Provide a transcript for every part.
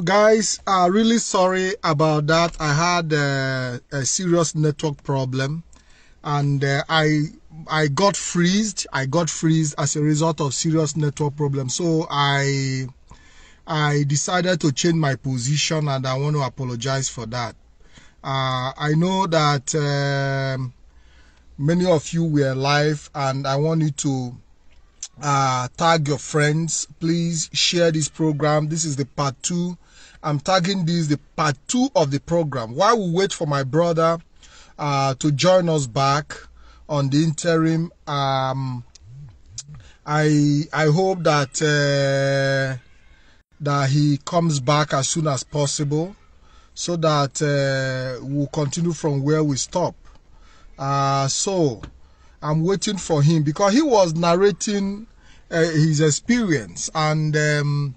guys are uh, really sorry about that i had uh, a serious network problem and uh, i i got freezed i got freezed as a result of serious network problem so i i decided to change my position and i want to apologize for that uh, i know that um, many of you were live and i want you to uh, tag your friends please share this program this is the part two I'm tagging this the part two of the program. While we wait for my brother uh, to join us back on the interim, um, I I hope that uh, that he comes back as soon as possible, so that uh, we'll continue from where we stop. Uh, so I'm waiting for him because he was narrating uh, his experience and um,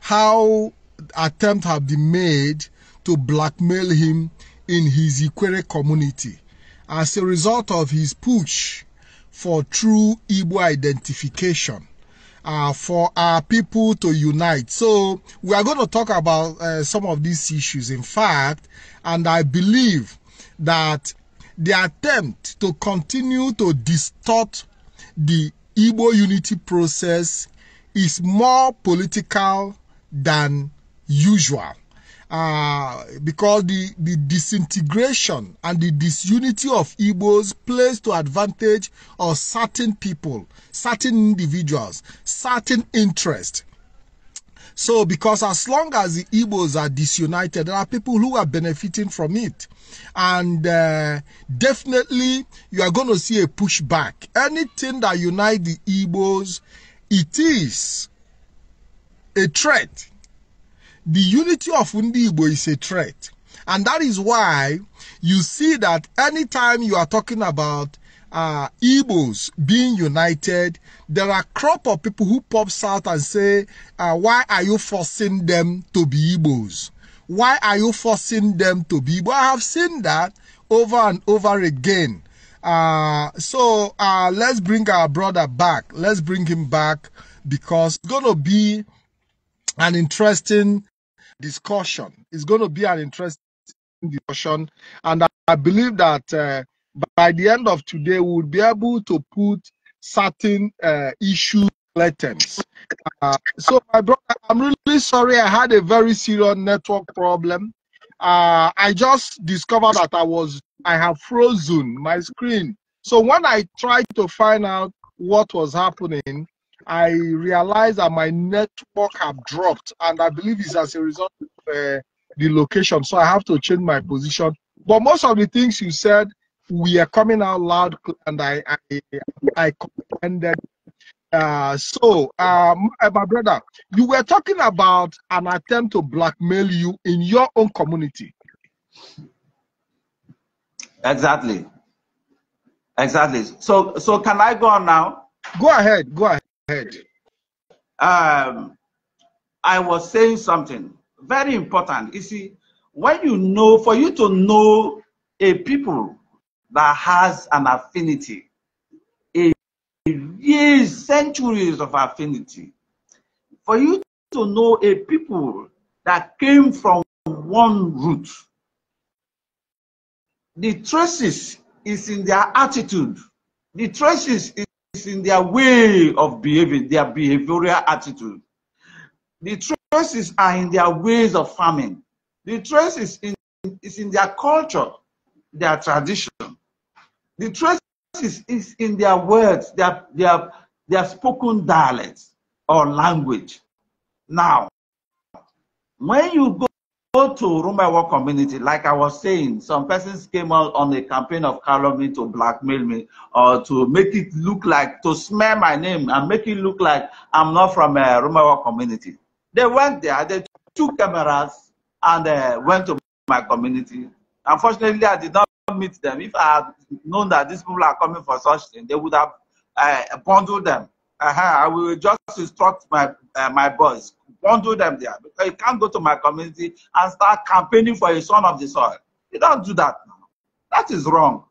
how attempts have been made to blackmail him in his Ikwere community as a result of his push for true Igbo identification, uh, for our people to unite. So we are going to talk about uh, some of these issues, in fact, and I believe that the attempt to continue to distort the Igbo unity process is more political than usual. Uh, because the, the disintegration and the disunity of Igbos plays to advantage of certain people, certain individuals, certain interests. So, because as long as the Igbos are disunited, there are people who are benefiting from it. And uh, definitely, you are going to see a pushback. Anything that unites the Igbos, it is a threat the unity of Ndi is a threat. And that is why you see that anytime you are talking about uh, Igbos being united, there are a crop of people who pops out and say, uh, why are you forcing them to be Igbos? Why are you forcing them to be I have seen that over and over again. Uh, so uh, let's bring our brother back. Let's bring him back because it's going to be an interesting discussion. It's going to be an interesting discussion. And I, believe that uh, by the end of today, we'll be able to put certain uh, issue latents. Uh, so, my brother, I'm really sorry. I had a very serious network problem. Uh, I just discovered that I was I have frozen my screen. So when I tried to find out what was happening, I realized that my network have dropped, and I believe it's as a result of uh, the location. So I have to change my position. But most of the things you said, we are coming out loud, and I I, I comprehended. Uh, so, um, uh, my brother, you were talking about an attempt to blackmail you in your own community. Exactly. Exactly. So, so can I go on now? Go ahead. Go ahead ahead. Um, I was saying something very important. You see, when you know, for you to know a people that has an affinity, a years, centuries of affinity, for you to know a people that came from one root, the traces is in their attitude. The traces is is in their way of behaving, their behavioral attitude. The traces are in their ways of farming. The traces is in, is in their culture, their tradition. The traces is, is in their words, their, their, their spoken dialects or language. Now, when you go to Rumewa community, like I was saying, some persons came out on a campaign of calumny to blackmail me or to make it look like, to smear my name and make it look like I'm not from uh, a community. They went there, they took cameras and uh, went to my community. Unfortunately, I did not meet them. If I had known that these people are coming for such thing, they would have uh, bundled them uh-huh, I will just instruct my uh, my boys, don't do them there. Because you can't go to my community and start campaigning for a son of the soil. You don't do that now. That is wrong.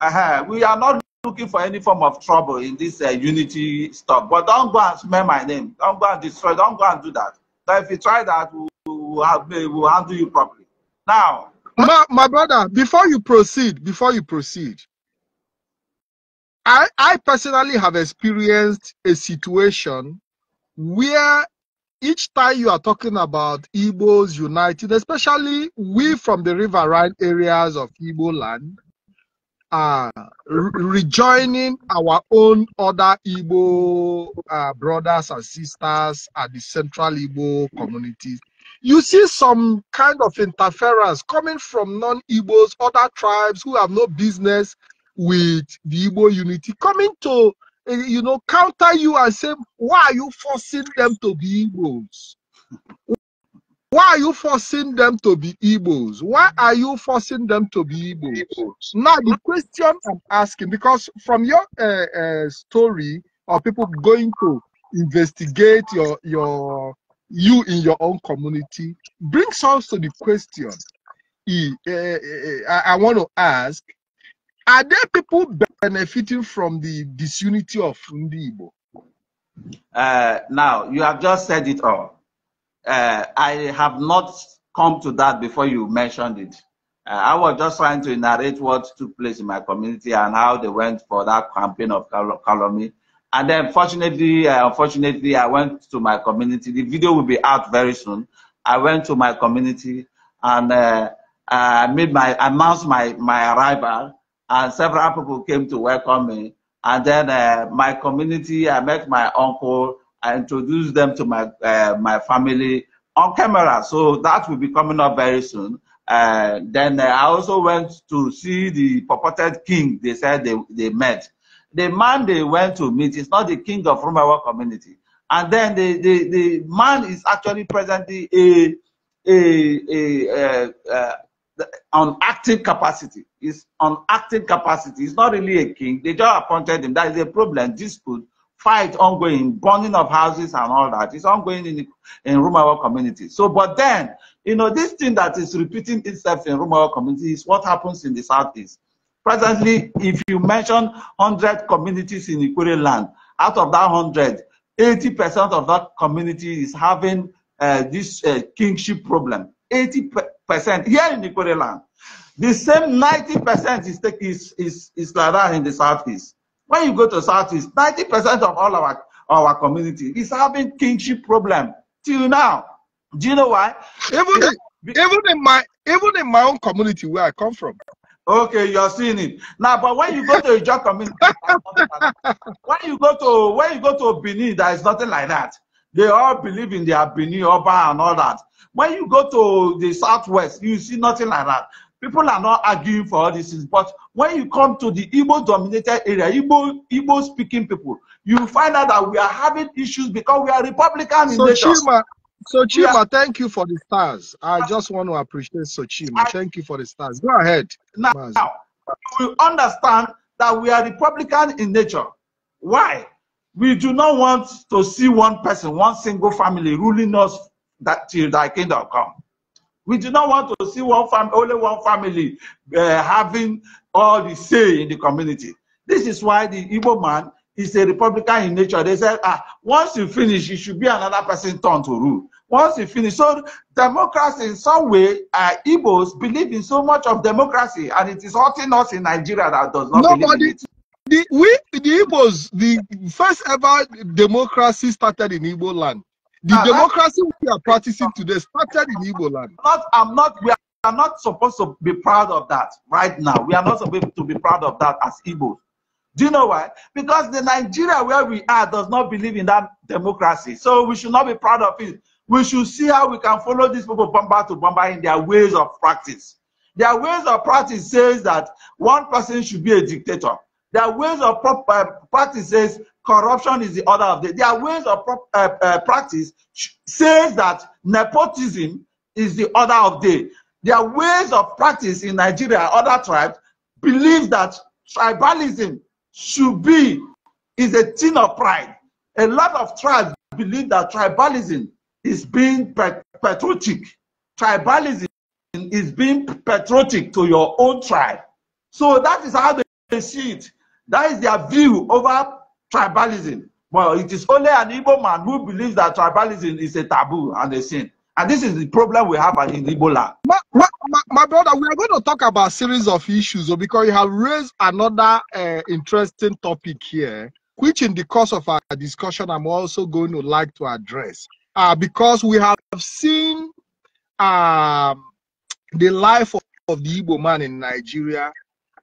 Uh-huh. We are not looking for any form of trouble in this uh, unity stuff. But don't go and smear my name. Don't go and destroy. Don't go and do that. if you try that, we'll, we'll, have, we'll handle you properly. Now, my, my brother, before you proceed, before you proceed, I, I personally have experienced a situation where each time you are talking about Igbos united, especially we from the riverine areas of Igbo land, uh, rejoining our own other Igbo uh, brothers and sisters at the central Igbo communities. You see some kind of interference coming from non Igbos, other tribes who have no business with the Igbo unity coming to, eh, you know, counter you and say, why are you forcing them to be Igbos? Why are you forcing them to be Igbos? Why are you forcing them to be Igbos? Now, the question I'm asking, because from your uh, uh, story of people going to investigate your, your you in your own community brings us to the question I, I, I want to ask are there people benefiting from the disunity of Ndi Igbo? Uh, now, you have just said it all. Uh, I have not come to that before you mentioned it. Uh, I was just trying to narrate what took place in my community and how they went for that campaign of calumny. And then, fortunately, uh, unfortunately, I went to my community. The video will be out very soon. I went to my community and uh, I made my announced my my arrival and several people came to welcome me. And then uh, my community, I met my uncle, I introduced them to my uh, my family on camera. So that will be coming up very soon. Uh, then uh, I also went to see the purported king. They said they, they met. The man they went to meet is not the king of Rumawa community. And then the, the, the man is actually presently a, a, a, a, uh, a uh, on acting capacity. Is on acting capacity. He's not really a king. They just appointed him. That is a problem, dispute, fight ongoing, burning of houses and all that. It's ongoing in, in Rumawa community. So, but then, you know, this thing that is repeating itself in Rumawa community is what happens in the Southeast. Presently, if you mention 100 communities in Ikure land, out of that 100, 80% of that community is having uh, this uh, kingship problem. 80 percent here in Ikore land. The same 90 percent is, is is is like that in the southeast. When you go to southeast, 90 percent of all our our community is having kinship problem till now. Do you know why? Even even in my even in my own community where I come from. Okay, you're seeing it now. But when you go to your community, when you go to when you go to Benin, there is nothing like that. They all believe in their Bini, Oba, and all that. When you go to the southwest, you see nothing like that. People are not arguing for all these But when you come to the Igbo dominated area, Igbo, speaking people, you find out that we are having issues because we are Republican in nature. Chima, so Chima, yeah. thank you for the stars. I just want to appreciate Sochima. I, thank you for the stars. Go ahead. Now, now you understand that we are Republican in nature. Why? We do not want to see one person, one single family ruling us that till thy kingdom come. We do not want to see one family, only one family uh, having all the say in the community. This is why the evil man is a republican in nature. They said, ah, once you finish, it should be another person turn to rule. Once you finish, so democracy in some way, uh, Igbos believe in so much of democracy, and it is hurting us in Nigeria that does not Nobody. believe in it. The, we, the Igbos, the first ever democracy started in Igbo land. The uh, democracy we are practicing today started in Igbo land. Not, I'm not, we are not supposed to be proud of that right now. We are not supposed to be proud of that as Igbos. Do you know why? Because the Nigeria where we are does not believe in that democracy. So we should not be proud of it. We should see how we can follow these people bomber to bomber in their ways of practice. Their ways of practice says that one person should be a dictator. There are ways of prop, uh, practices. Corruption is the order of the day. There are ways of prop, uh, uh, practice says that nepotism is the order of day. There are ways of practice in Nigeria. Other tribes believe that tribalism should be is a thing of pride. A lot of tribes believe that tribalism is being patriotic. Tribalism is being patriotic to your own tribe. So that is how they see it. That is their view over tribalism. Well, it is only an Igbo man who believes that tribalism is a taboo and a sin. And this is the problem we have in Igbo land. My, my, my, brother, we are going to talk about series of issues oh, because you have raised another uh, interesting topic here, which in the course of our discussion, I'm also going to like to address. Uh, because we have seen um, the life of, of the Igbo man in Nigeria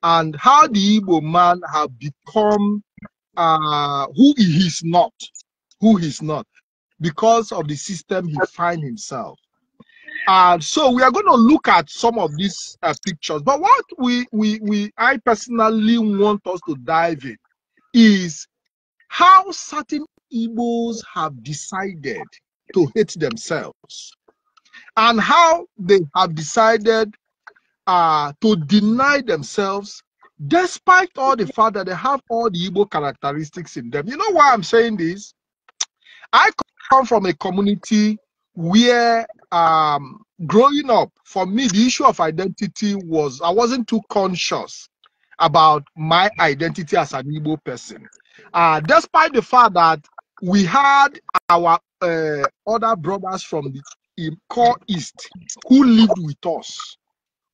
and how the Igbo man have become uh, who he is not, who he's not, because of the system he find himself. And so we are going to look at some of these uh, pictures. But what we, we, we, I personally want us to dive in is how certain Igbos have decided to hate themselves and how they have decided to deny themselves despite all the fact that they have all the Igbo characteristics in them. You know why I'm saying this? I come from a community where um, growing up, for me, the issue of identity was I wasn't too conscious about my identity as an Igbo person. Uh, despite the fact that we had our uh, other brothers from the core East who lived with us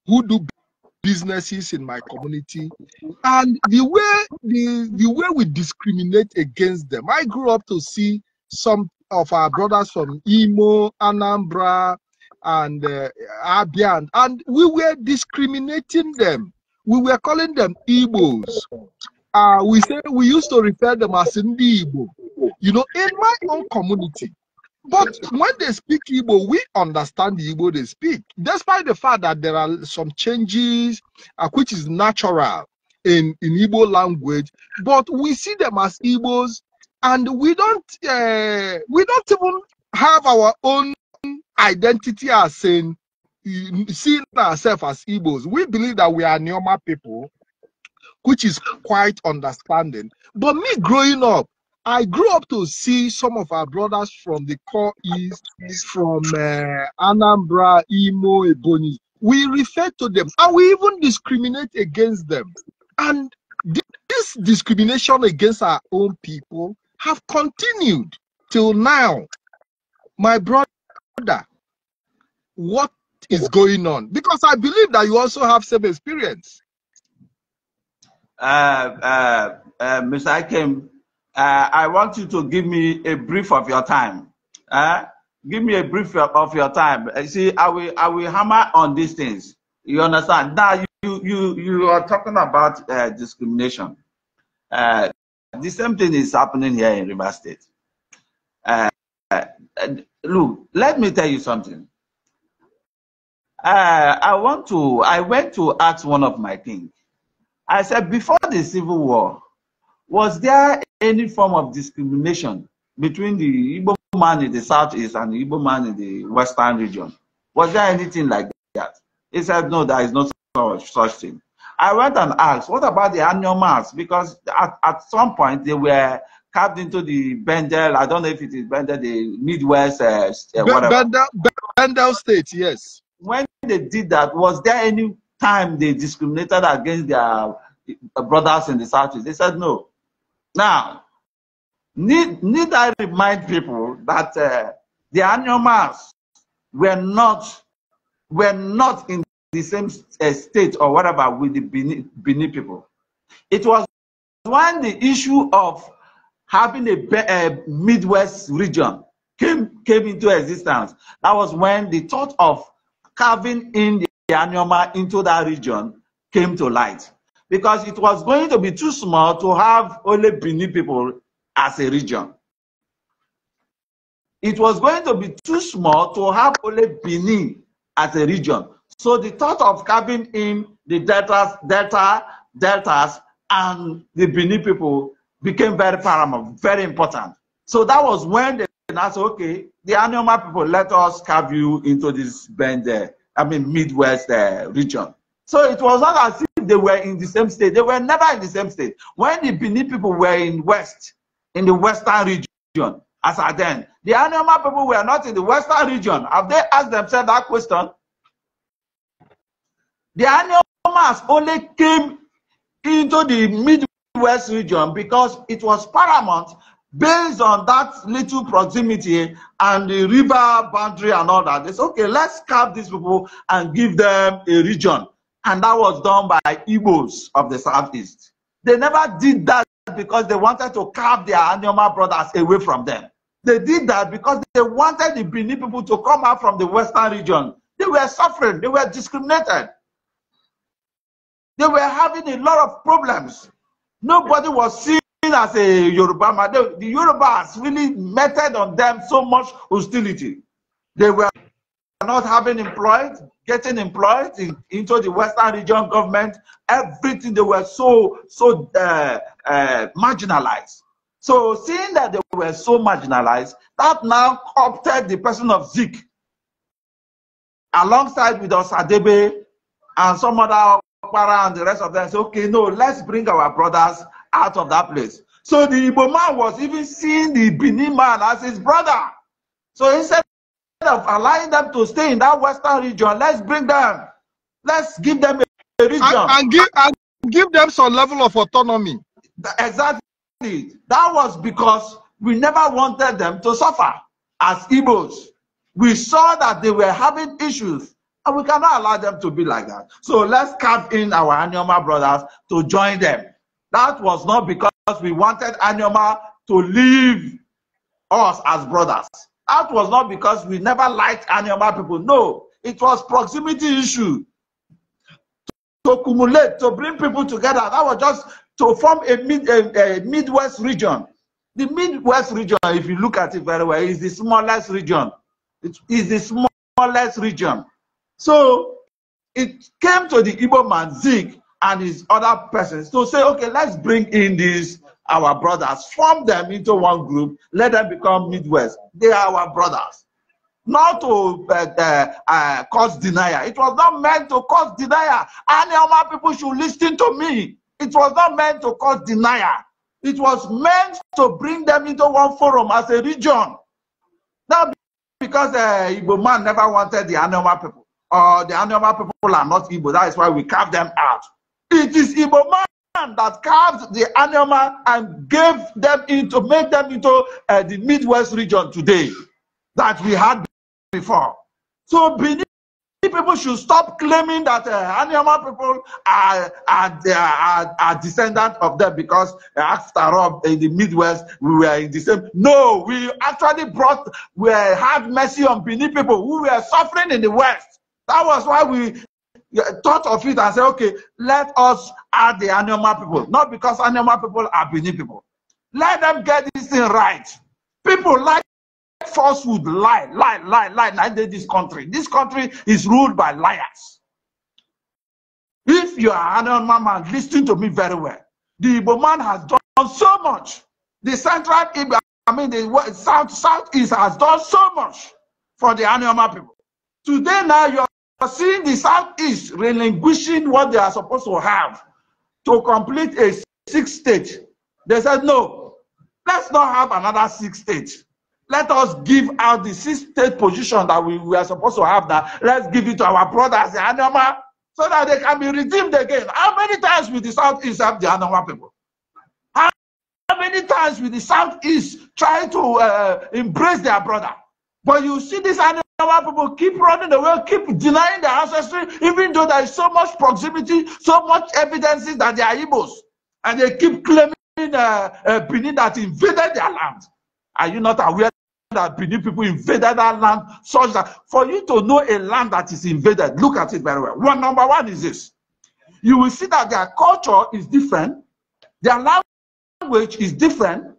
who do businesses in my community and the way the, the way we discriminate against them i grew up to see some of our brothers from imo anambra and uh, abia and, and we were discriminating them we were calling them igbos uh, we say we used to refer them as Ndi Igbo. You know, in my own community, but when they speak Igbo, we understand the Igbo they speak, despite the fact that there are some changes, uh, which is natural in, in Igbo language, but we see them as Igbos, and we don't uh, we don't even have our own identity as in seeing ourselves as Igbos. We believe that we are Neoma people, which is quite understanding. But me growing up, I grew up to see some of our brothers from the core east, from uh, Anambra, Imo, Ebony. We refer to them and we even discriminate against them. And this discrimination against our own people have continued till now. My brother, what is going on? Because I believe that you also have same experience. Uh, uh, uh, Mr. Akim, uh, I want you to give me a brief of your time. Uh, give me a brief of your time. Uh, see, I will, I will hammer on these things. You understand? Now you, you, you are talking about uh, discrimination. Uh, the same thing is happening here in River State. Uh, look, let me tell you something. Uh, I want to. I went to ask one of my things. I said before the civil war, was there any form of discrimination between the Igbo man in the southeast and the Igbo man in the western region? Was there anything like that? He said, no, there is no such, such thing. I went and asked, what about the annual mass? Because at, at some point they were carved into the Bendel, I don't know if it is Bendel, the Midwest, uh, uh whatever. Bendel, Bendel State, yes. When they did that, was there any time they discriminated against their uh, brothers in the Southeast? They said no. Now, need, need I remind people that uh, the animals were not were not in the same uh, state or whatever with the Bini, Bini people. It was when the issue of having a, a uh, Midwest region came came into existence. That was when the thought of carving in the, the animal into that region came to light. because it was going to be too small to have only Bini people as a region. It was going to be too small to have only Bini as a region. So the thought of carving in the deltas, delta, deltas, and the Bini people became very paramount, very important. So that was when they said, okay, the Anoma people, let us carve you into this bend there, uh, I mean, Midwest uh, region. So it was not as they were in the same state. They were never in the same state. When the Benin people were in West, in the Western region, as at then, the Anoma people were not in the Western region. Have they asked themselves that question? The Anomas only came into the Midwest region because it was paramount based on that little proximity and the river boundary and all that. said, okay, let's carve these people and give them a region. And that was done by Igbos of the Southeast. They never did that because they wanted to carve their Anyoma brothers away from them. They did that because they wanted the Bini people to come out from the Western region. They were suffering, they were discriminated. They were having a lot of problems. Nobody was seen as a Yoruba man. The, the Yorubas really meted on them so much hostility. They were not having employed, getting employed in, into the Western region government, everything they were so so uh, uh, marginalized. So seeing that they were so marginalized, that now opted the person of Zeke, alongside with us Adebe and some other Okpara and the rest of them. Say, okay, no, let's bring our brothers out of that place. So the Ibo man was even seeing the Benin man as his brother. So instead of allowing them to stay in that western region, let's bring them. Let's give them a, a region. And, and, give, and give them some level of autonomy. Exactly. That was because we never wanted them to suffer as Igbos. We saw that they were having issues and we cannot allow them to be like that. So let's carve in our Anyoma brothers to join them. That was not because we wanted Anyoma to leave us as brothers. That was not because we never liked animal people. No, it was proximity issue. To, to cumulate, to bring people together. That was just to form a, mid, a, a Midwest region. The Midwest region, if you look at it very well, is the smallest region. It is the smallest region. So it came to the Igbo man, Zeke, and his other persons to say, okay, let's bring in these our brothers. Form them into one group. Let them become Midwest. They are our brothers. Not to uh, uh, uh, cause denial. It was not meant to cause denial. Any of my people should listen to me. It was not meant to cause denial. It was meant to bring them into one forum as a region. Not because uh, Igbo man never wanted the Anoma people, or the Anoma people are not Igbo. That is why we carve them out. It is Igbo man that carved the animal and gave them into made them into uh, the midwest region today that we had before so benin people should stop claiming that uh, animal people are are, are are descendant of them because uh, after all in the midwest we were in the same no we actually brought we had mercy on benin people who were suffering in the west that was why we thought of it and said, okay, let us add the animal people. Not because animal people are beneath people. Let them get this thing right. People like falsehood, lie, lie, lie, lie, like this country. This country is ruled by liars. If you are an animal man, listen to me very well. The Igbo man has done so much. The central Igbo, I mean the south, southeast has done so much for the animal people. Today now you are seeing the Southeast relinquishing what they are supposed to have to complete a six state, they said, no, let's not have another six state. Let us give out the six state position that we, we are supposed to have that. Let's give it to our brothers, the Anama, so that they can be redeemed again. How many times will the Southeast have the Anama people? How many times will the Southeast try to uh, embrace their brother? But you see this animal our people keep running away, keep denying their ancestry, even though there is so much proximity, so much evidences that they are Igbos. And they keep claiming uh, uh, Benin that invaded their land. Are you not aware that Benin people invaded that land such that for you to know a land that is invaded, look at it very well. One number one is this. You will see that their culture is different, their language is different,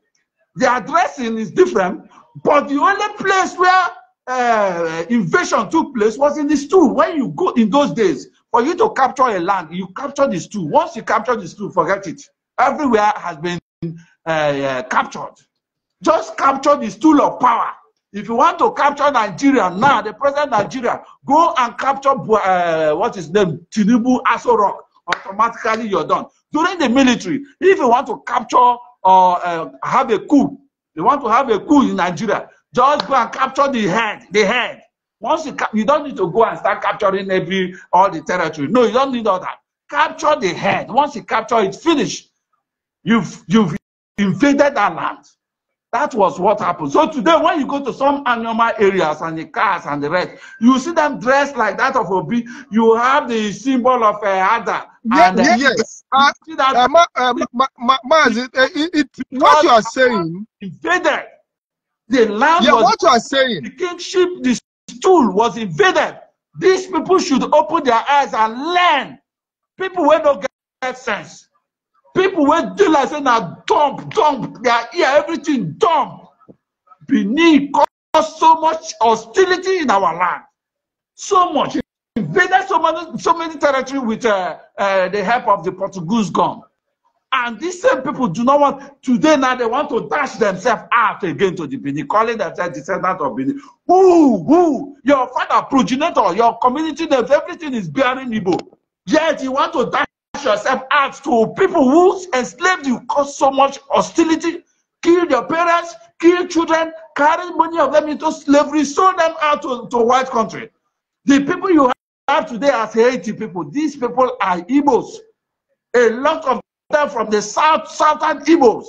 their dressing is different, but the only place where uh, invasion took place was in the stool. When you go in those days, for you to capture a land, you capture the stool. Once you capture the stool, forget it. Everywhere has been uh, uh, captured. Just capture the stool of power. If you want to capture Nigeria now, the present Nigeria, go and capture uh, what is named Tinubu Aso Rock. Automatically, you're done. During the military, if you want to capture or uh, have a coup, they want to have a coup in Nigeria. Just go and capture the head, the head. Once you you don't need to go and start capturing every all the territory. No, you don't need all that. Capture the head. Once you capture it, finish. You've you've invaded that land. That was what happened. So today, when you go to some animal areas and the cars and the rest, you see them dressed like that of a bee. You have the symbol of a adder. Yes, yes. Uh, see that? ma, ma, ma, what you are saying invaded The land yeah, was what you are saying. The kingship, the stool was invaded. These people should open their eyes and learn. People will not get sense. People will do like saying now dump, dump their ear, everything dump. Benin caused so much hostility in our land. So much. Invaded so many so many territory with uh, uh, the help of the Portuguese gun. And these same people do not want, today now they want to dash themselves out again to the Bini, calling themselves descendants of Bini. Who, who? Your father, progenitor, your community names, everything is bearing Igbo. Yet you want to dash yourself out to people who enslaved you, caused so much hostility, killed your parents, killed children, carried many of them into slavery, sold them out to, to white country. The people you have today as Haiti people, these people are Igbos. A lot of from the south southern Igbos.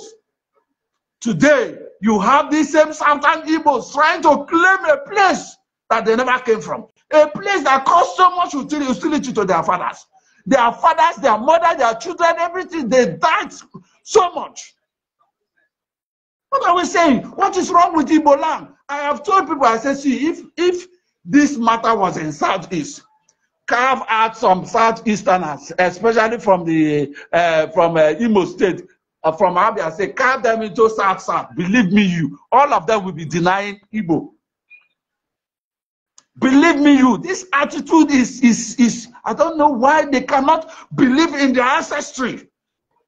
Today, you have these same southern Igbos trying to claim a place that they never came from. A place that caused so much hostility to their fathers. Their fathers, their mother, their children, everything, they died so much. What are we saying? What is wrong with Igbo land? I have told people, I said, see, if, if this matter was in Southeast, carve out some southeasterners, especially from the uh, from uh, Imo State, uh, from Abia Say carve them into South South. Believe me, you all of them will be denying Igbo. Believe me, you this attitude is is is. I don't know why they cannot believe in their ancestry.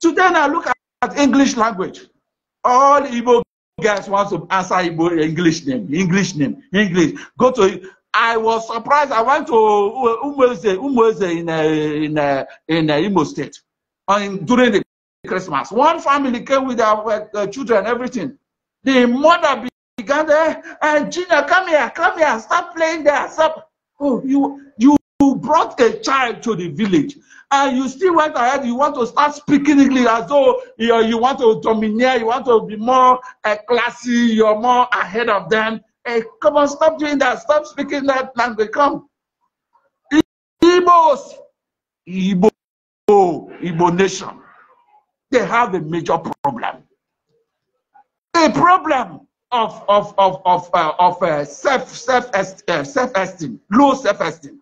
Today, I look at, at English language. All Igbo guys want to answer Igbo English name, English name, English. Go to I was surprised. I went to Umweze, Umweze in, uh, in, uh, in uh, Imo State and during the Christmas. One family came with their uh, children, everything. The mother began there, and eh, Gina, come here, come here, stop playing there. Stop. Oh, you, you brought a child to the village, and you still went ahead. You want to start speaking English as though you, know, you want to domineer, you want to be more uh, classy, you're more ahead of them. Hey, come on, stop doing that. Stop speaking that language. Come. Igbos. Igbo. Igbo nation. They have a major problem. A problem of of of of uh, of uh, self self est uh, self esteem, low self esteem,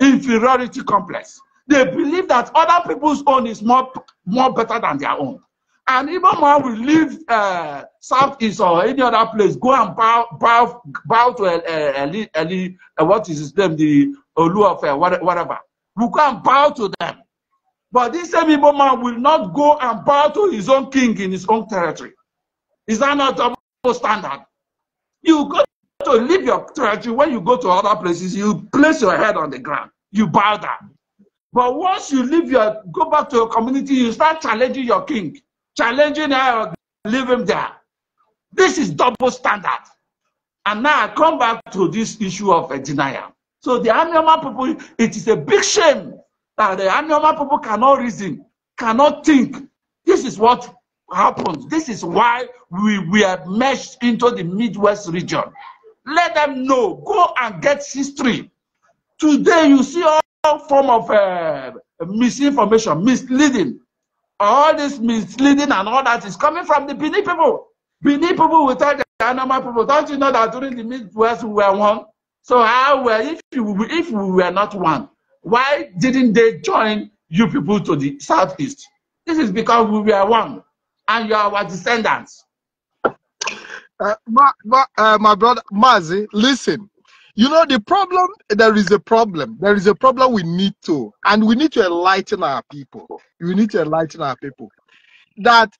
inferiority complex. They believe that other people's own is more more better than their own. And even when we leave uh, Southeast or any other place, go and bow, bow, bow to uh, uh, Eli, Eli, uh, what is his name, the Olu of whatever. We go and bow to them. But this same Igbo man will not go and bow to his own king in his own territory. Is that not double standard? You go to leave your territory, when you go to other places, you place your head on the ground. You bow down. But once you leave your, go back to your community, you start challenging your king. challenging her, leave him there. This is double standard. And now I come back to this issue of a denial. So the Anioma people, it is a big shame that the Anioma people cannot reason, cannot think. This is what happens. This is why we were meshed into the Midwest region. Let them know. Go and get history. Today you see all form of uh, misinformation, misleading. all this misleading and all that is coming from the Bini people. Bini people will tell the Anama people, don't you know that during the Midwest we were one? So how were if you if we were not one, why didn't they join you people to the southeast? This is because we were one, and you are our descendants. Uh, my, my, uh, my brother Mazi, listen. You know, the problem, there is a problem. There is a problem we need to, and we need to enlighten our people. We need to enlighten our people that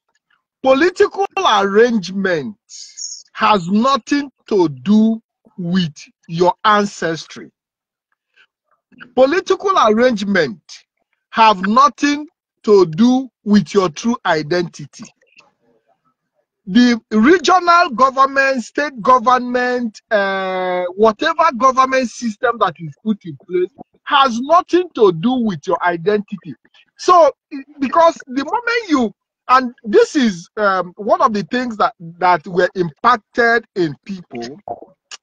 political arrangement has nothing to do with your ancestry. Political arrangement have nothing to do with your true identity the regional government, state government, uh, whatever government system that is put in place has nothing to do with your identity. So, because the moment you, and this is um, one of the things that, that were impacted in people,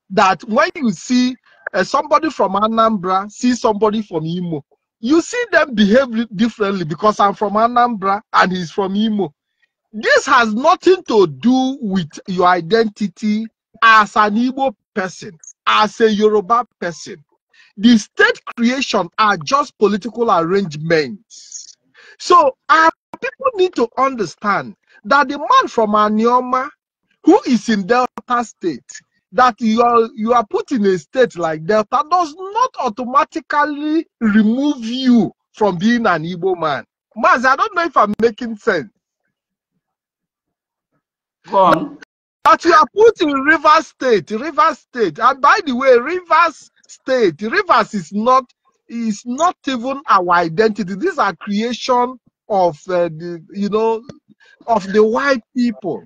that when you see uh, somebody from Anambra, see somebody from Imo, you see them behave differently because I'm from Anambra and he's from Imo. This has nothing to do with your identity as an Igbo person, as a Yoruba person. The state creation are just political arrangements. So our people need to understand that the man from Anioma who is in Delta State, that you are, you are put in a state like Delta does not automatically remove you from being an Igbo man. Maz, I don't know if I'm making sense on. But you are put in Rivers State, Rivers State. And by the way, Rivers State, Rivers is not is not even our identity. These are creation of uh, the you know of the white people,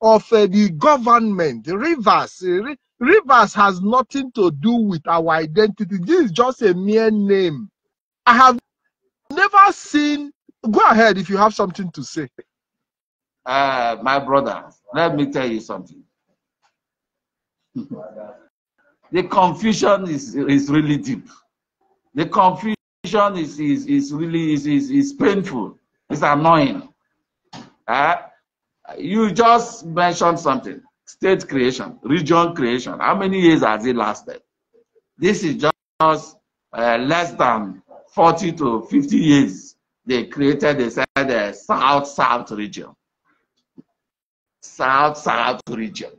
of uh, the government. Rivers uh, Rivers has nothing to do with our identity. This is just a mere name. I have never seen. Go ahead if you have something to say. Uh, my brother, let me tell you something. the confusion is, is really deep. The confusion is, is, is really is, is, is painful. It's annoying. Uh, you just mentioned something. State creation, region creation. How many years has it lasted? This is just uh, less than 40 to 50 years. They created, they said, the eh, South-South region. South South region.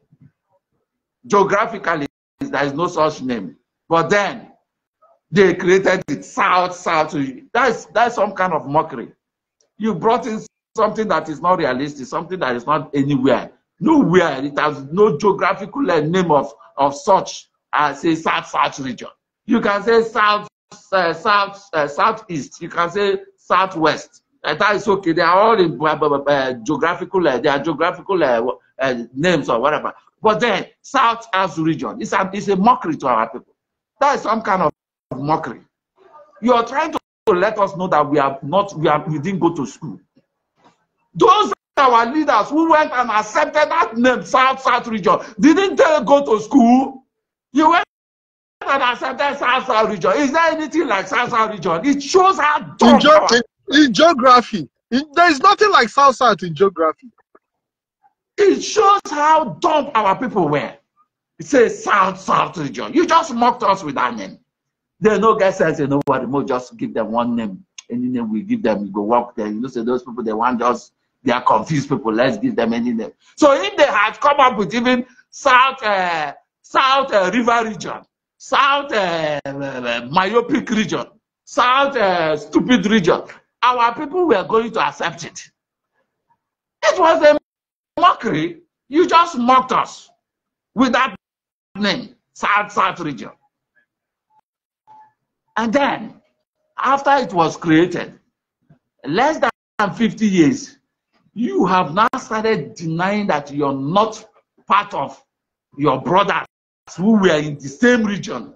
Geographically, there is no such name. But then they created it South South. That's that's some kind of mockery. You brought in something that is not realistic, something that is not anywhere, nowhere. It has no geographical name of of such as a South South region. You can say South uh, South uh, Southeast. You can say Southwest. that is okay. They are all in uh, geographical, uh, they are geographical uh, uh, names or whatever. But then, South as region, it's a, a mockery to our people. That is some kind of mockery. You are trying to let us know that we are not, we, are, we didn't go to school. Those our leaders who went and accepted that name, South South region, didn't they go to school? You went and accepted South South region. Is there anything like South South region? It shows how dumb. in geography. In, there is nothing like South South in geography. It shows how dumb our people were. It says South South region. You just mocked us with that name. There are no guys says you know what, just give them one name. Any name we give them, you go walk there. You know, say those people they want just they are confused people. Let's give them any name. So if they had come up with even South uh, South uh, River region, South uh, uh myopic region, South uh, stupid region, our people were going to accept it. It was a mockery. You just mocked us with that name, South South region. And then, after it was created, less than 50 years, you have now started denying that you're not part of your brothers who were in the same region.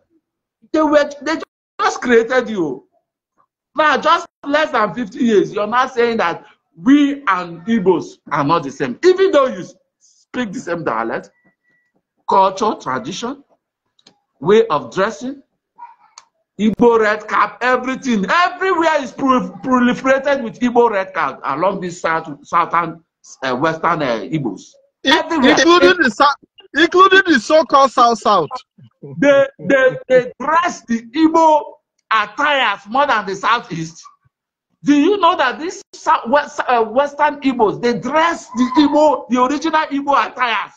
They were they just created you. Now, just less than 50 years, you're not saying that we and Igbos are not the same. Even though you speak the same dialect, culture, tradition, way of dressing, Igbo red cap, everything, everywhere is proliferated with Igbo red cap along this south, southern, uh, western uh, Igbos. Including the, including the so-called South-South. They, they, they dress the Igbo are tired more than the southeast. Do you know that these West, uh, Western Igbos, they dress the Igbo, the original Igbo attires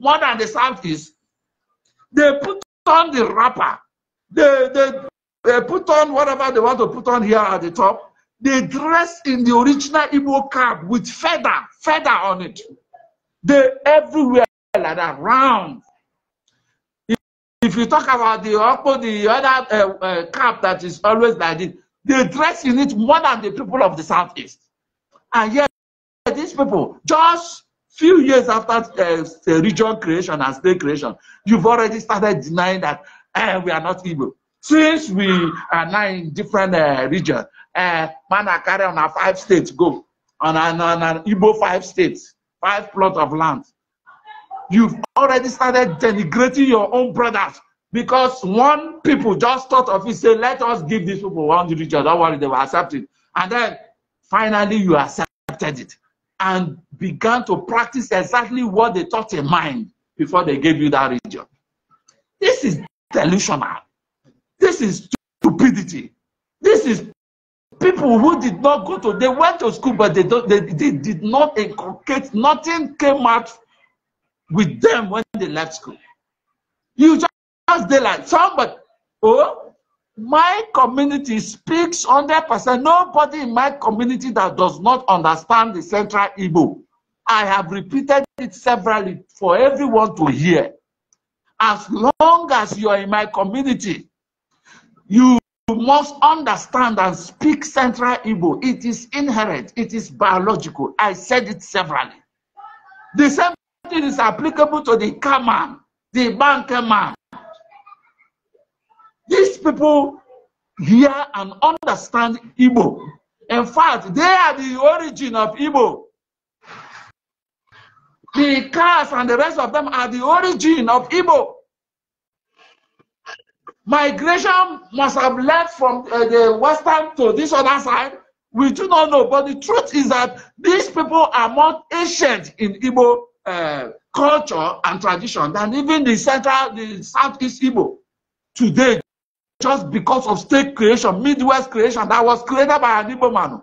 more than the Southeast? They put on the wrapper. They, they, they put on whatever they want to put on here at the top. They dress in the original Igbo cap with feather, feather on it. They everywhere like that, round. if you talk about the Okpo, the other uh, uh, camp that is always like this, the dress you need more than the people of the Southeast. And yet, these people, just few years after uh, region creation and state creation, you've already started denying that eh, we are not Igbo. Since we are now in different uh, regions, uh, eh, man are carrying on our five states go, on an, on an Igbo five states, five plots of land. you've already started denigrating your own brothers because one people just thought of it, say, let us give these people one religion. Don't worry, they will accept it. And then finally you accepted it and began to practice exactly what they thought in mind before they gave you that religion. This is delusional. This is stupidity. This is people who did not go to, they went to school, but they, don't, they, they did not inculcate, nothing came out with them when they left school. You just they like somebody. Oh, my community speaks 100%. Nobody in my community that does not understand the Central Igbo. I have repeated it severally for everyone to hear. As long as you are in my community, you must understand and speak Central Igbo. It is inherent, it is biological. I said it severally. The same thing is applicable to the car man, the banker man. These people hear and understand Igbo. In fact, they are the origin of Igbo. The cars and the rest of them are the origin of Igbo. Migration must have led from uh, the western to this other side. We do not know, but the truth is that these people are more ancient in Igbo uh, culture and tradition than even the central, the southeast Igbo today, just because of state creation, Midwest creation that was created by an Igbo man.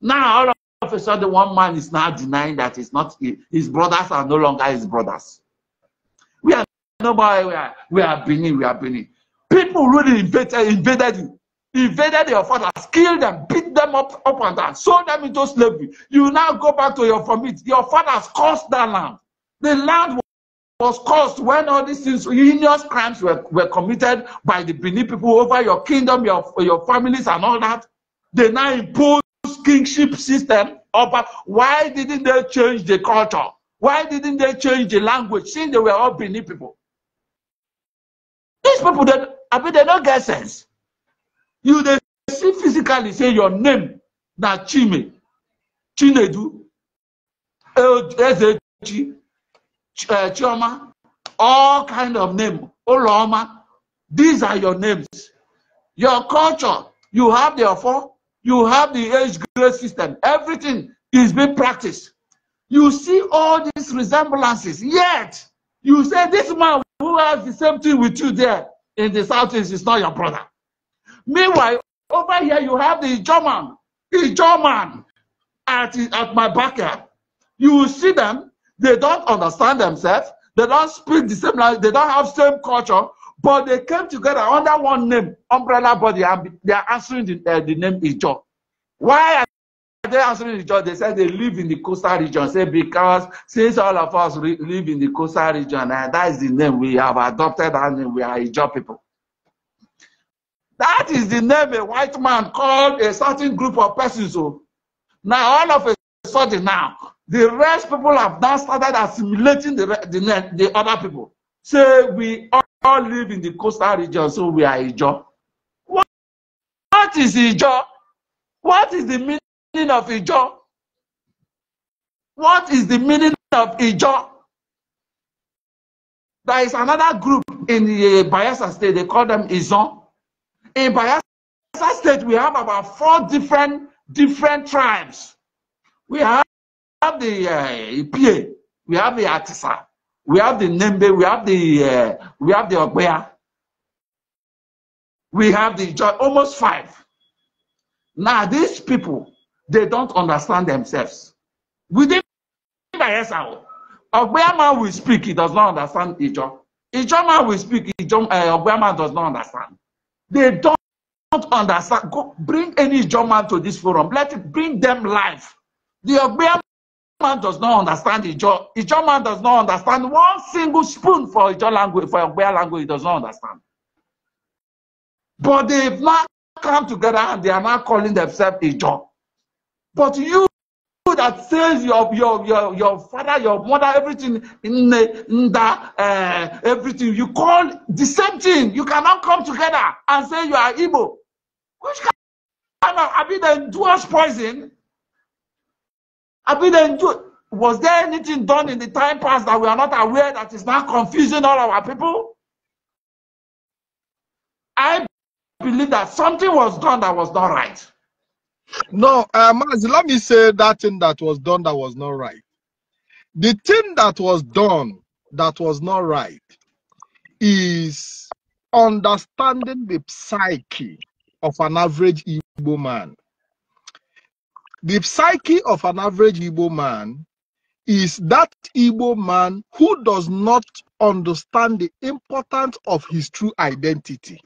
Now, all of a sudden, one man is now denying that it's not his brothers are no longer his brothers. We are nobody, we are, we are Benin, we are Benin. People really invaded, invaded you. invaded your fathers, killed them, beat them up, up and down, sold them into slavery. You now go back to your family. Your fathers cursed that land. The land was caused when all these heinous crimes were, were committed by the Bini people over your kingdom, your, your families, and all that. They now impose kingship system. Over. Why didn't they change the culture? Why didn't they change the language since they were all Bini people? These people, that I mean, they don't get sense. you dey see physically say your name na chime chinedu ezechi eh, chioma all kind of name oloma these are your names your culture you have the ofo you have the age grade system everything is being practiced you see all these resemblances yet you say this man who has the same thing with you there in the southeast is not your brother Meanwhile, over here you have the German, the German at, at my backyard. You will see them, they don't understand themselves, they don't speak the same language, they don't have same culture, but they came together under one name, umbrella body, and they are answering the, uh, the name Ijo. Why are they answering Ijo? They said they live in the coastal region. Say because since all of us live in the coastal region, and eh, that is the name we have adopted, and we are Ijo people. That is the name a white man called a certain group of persons. So oh. now all of a sudden now, the rest people have now started assimilating the, the, the other people. Say we all live in the coastal region, so we are Ijo. What, what is Ijo? What is the meaning of Ijo? What is the meaning of Ijo? There is another group in the Bayelsa state, they call them Izon in Bayelsa State, we have about four different different tribes. We have the uh, Ipie, we have the Atisa, we have the Nembe, we have the uh, we have the Ogbea, we have the almost five. Now these people, they don't understand themselves. Within Bayelsa, Ogbea man will speak, he does not understand Ijo. Ijo man will speak, Ijo, uh, Ogbea man does not understand. They don't understand. Go bring any German to this forum. Let it bring them life. The German man does not understand the German man does not understand one single spoon for Ijo language, for Yoruba language. He does not understand. But they've not come together and they are now calling themselves Ijo. But you that says your your your, your father, your mother, everything in the, in the uh, everything you call the same thing. You cannot come together and say you are Igbo. Which kind of I the poison? Have mean the was there anything done in the time past that we are not aware that is now confusing all our people? I believe that something was done that was not right. No, uh, Mazi, let me say that thing that was done that was not right. The thing that was done that was not right is understanding the psyche of an average Igbo man. The psyche of an average Igbo man is that Igbo man who does not understand the importance of his true identity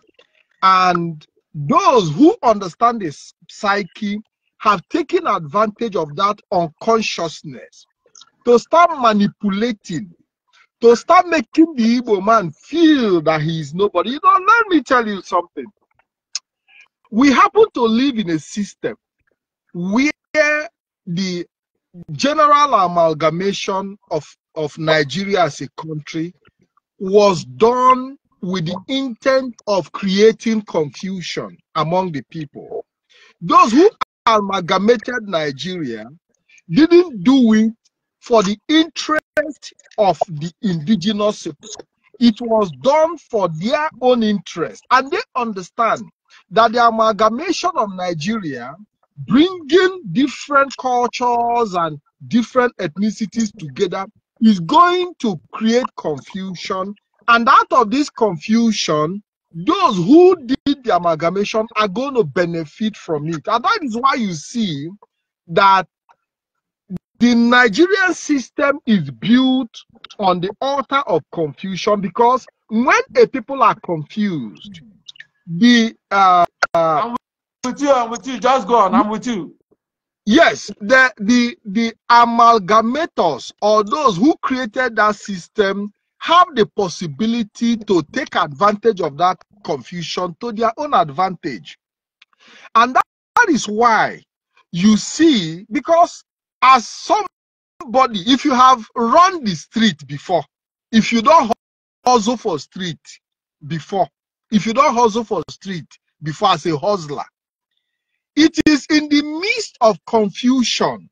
and those who understand the psyche have taken advantage of that unconsciousness to start manipulating, to start making the evil man feel that he is nobody. You know, let me tell you something. We happen to live in a system where the general amalgamation of, of Nigeria as a country was done with the intent of creating confusion among the people. Those who amalgamated Nigeria didn't do it for the interest of the indigenous people. It was done for their own interest. And they understand that the amalgamation of Nigeria, bringing different cultures and different ethnicities together, is going to create confusion and out of this confusion, those who did the amalgamation are going to benefit from it. And that is why you see that the Nigerian system is built on the altar of confusion because when a people are confused, the uh, I'm with you, I'm with you, just go on, I'm with you. Yes, the the the amalgamators or those who created that system have the possibility to take advantage of that confusion to their own advantage. And that, that is why you see, because as somebody, if you have run the street before, if you don't hustle for street before, if you don't hustle for street before as a hustler, it is in the midst of confusion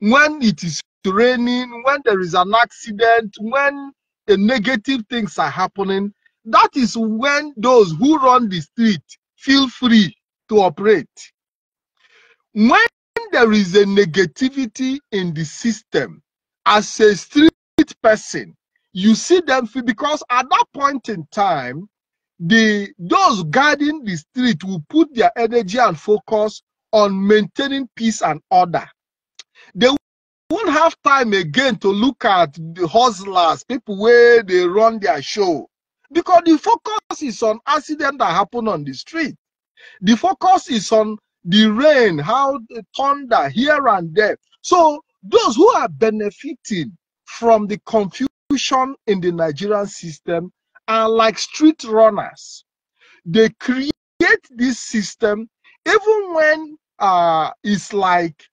when it is raining, when there is an accident, when negative things are happening, that is when those who run the street feel free to operate. When there is a negativity in the system, as a street person, you see them feel, because at that point in time, the those guarding the street will put their energy and focus on maintaining peace and order. They don't have time again to look at the hustlers, people where they run their show. Because the focus is on accident that happen on the street. The focus is on the rain, how the thunder here and there. So those who are benefiting from the confusion in the Nigerian system are like street runners. They create this system even when uh, it's like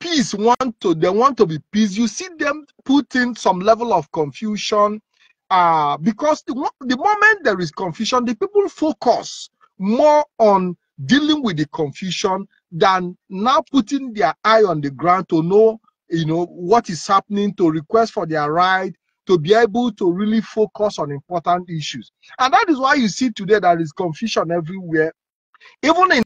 peace want to they want to be peace you see them put in some level of confusion uh because the, the moment there is confusion the people focus more on dealing with the confusion than now putting their eye on the ground to know you know what is happening to request for their right to be able to really focus on important issues and that is why you see today there is confusion everywhere even in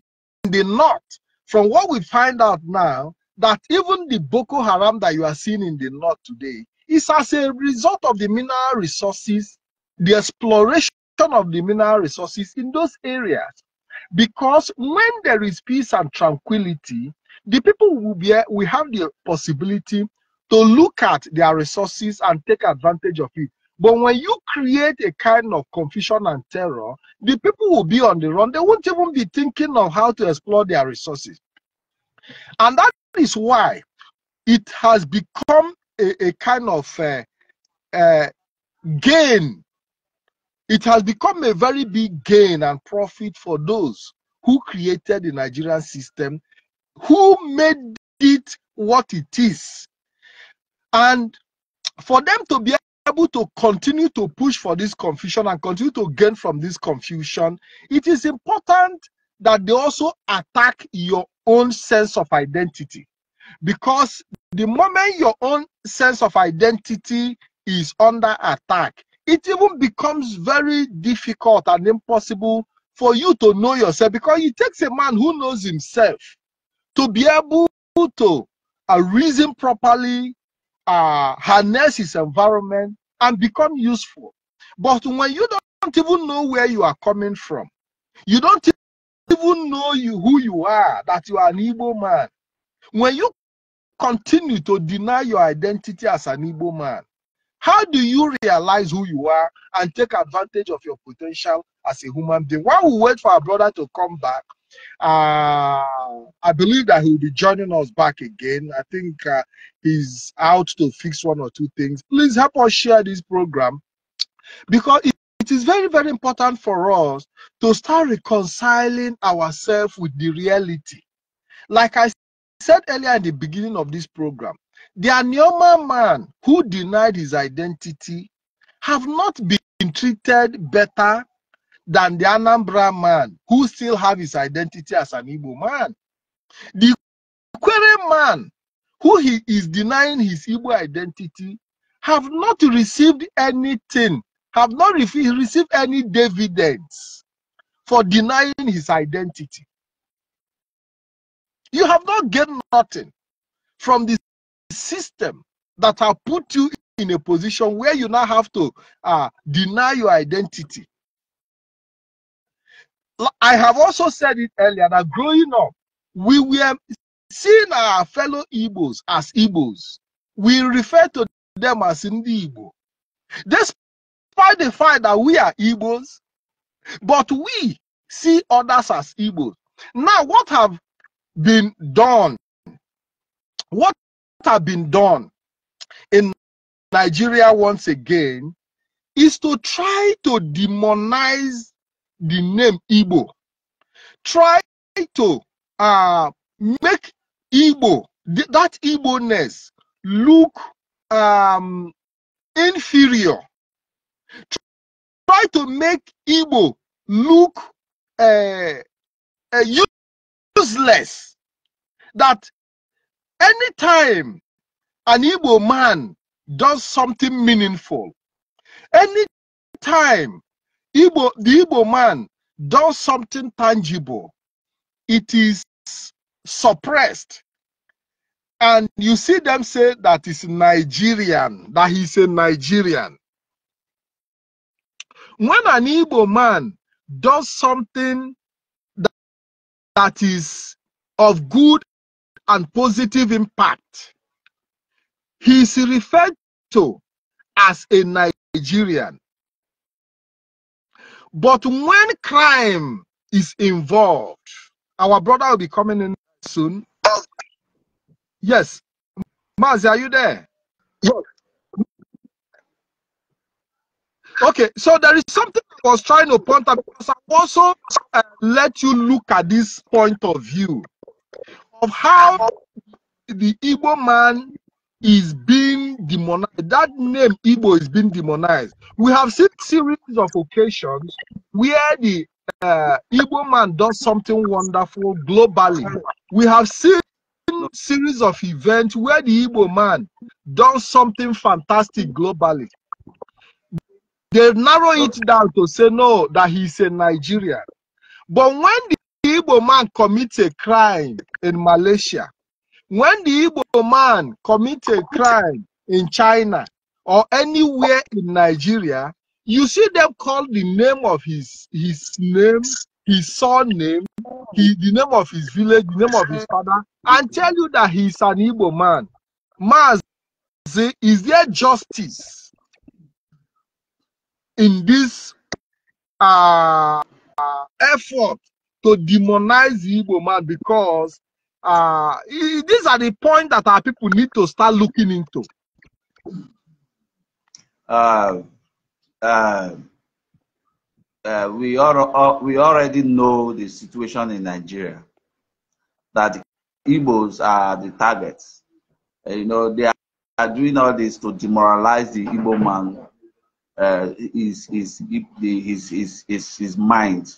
the north from what we find out now that even the Boko Haram that you are seeing in the north today is as a result of the mineral resources, the exploration of the mineral resources in those areas. Because when there is peace and tranquility, the people will be we have the possibility to look at their resources and take advantage of it. But when you create a kind of confusion and terror, the people will be on the run. They won't even be thinking of how to explore their resources. And that is why it has become a, a kind of uh, uh, gain. It has become a very big gain and profit for those who created the Nigerian system, who made it what it is. And for them to be able to continue to push for this confusion and continue to gain from this confusion, it is important that they also attack your own sense of identity. Because the moment your own sense of identity is under attack, it even becomes very difficult and impossible for you to know yourself because it takes a man who knows himself to be able to uh, reason properly, uh, harness his environment, and become useful. But when you don't even know where you are coming from, you don't even know you who you are, that you are an evil man, when you continue to deny your identity as an evil man, how do you realize who you are and take advantage of your potential as a human being? While we wait for our brother to come back, uh, I believe that he'll be joining us back again. I think uh, he's out to fix one or two things. Please help us share this program because it is very, very important for us to start reconciling ourselves with the reality. Like I said earlier in the beginning of this program, the Anioma man who denied his identity have not been treated better than the Anambra man who still have his identity as an Igbo man. The Quere man who he is denying his Igbo identity have not received anything have not received any dividends for denying his identity. You have not gained nothing from the system that have put you in a position where you now have to uh, deny your identity. I have also said it earlier that growing up, we were seeing our fellow Igbos as Igbos. We refer to them as Ndi Igbo. This despite the fact that we are Igbos, but we see others as Igbos. Now, what have been done? What have been done in Nigeria once again is to try to demonize the name Igbo. Try to uh, make Igbo, that Igbo-ness, look um, inferior Try to make Igbo look uh, uh, useless. That anytime an Igbo man does something meaningful, anytime Igbo, the Igbo man does something tangible, it is suppressed. And you see them say that is Nigerian, that he's a Nigerian when an Igbo man does something that, that is of good and positive impact, he is referred to as a Nigerian. But when crime is involved, our brother will be coming in soon. Yes. Mazi, are you there? Yes. Okay, so there is something I was trying to point out because I also uh, let you look at this point of view of how the Igbo man is being demonized. That name Igbo is being demonized. We have seen series of occasions where the uh, Igbo man does something wonderful globally. We have seen series of events where the Igbo man does something fantastic globally. They narrow it down to say no, that he's a Nigerian. But when the Igbo man commits a crime in Malaysia, when the Igbo man commits a crime in China or anywhere in Nigeria, you see them call the name of his his name, his surname, he, the name of his village, the name of his father, and tell you that he's an Igbo man. Maz, is there justice? in this uh, effort to demonize the Igbo man because uh, these are the points that our people need to start looking into. Uh, uh, uh, we, are, uh, we already know the situation in Nigeria that Igbos are the targets. you know, they are, doing all this to demoralize the Igbo man his, uh, his, his, his, his, his mind.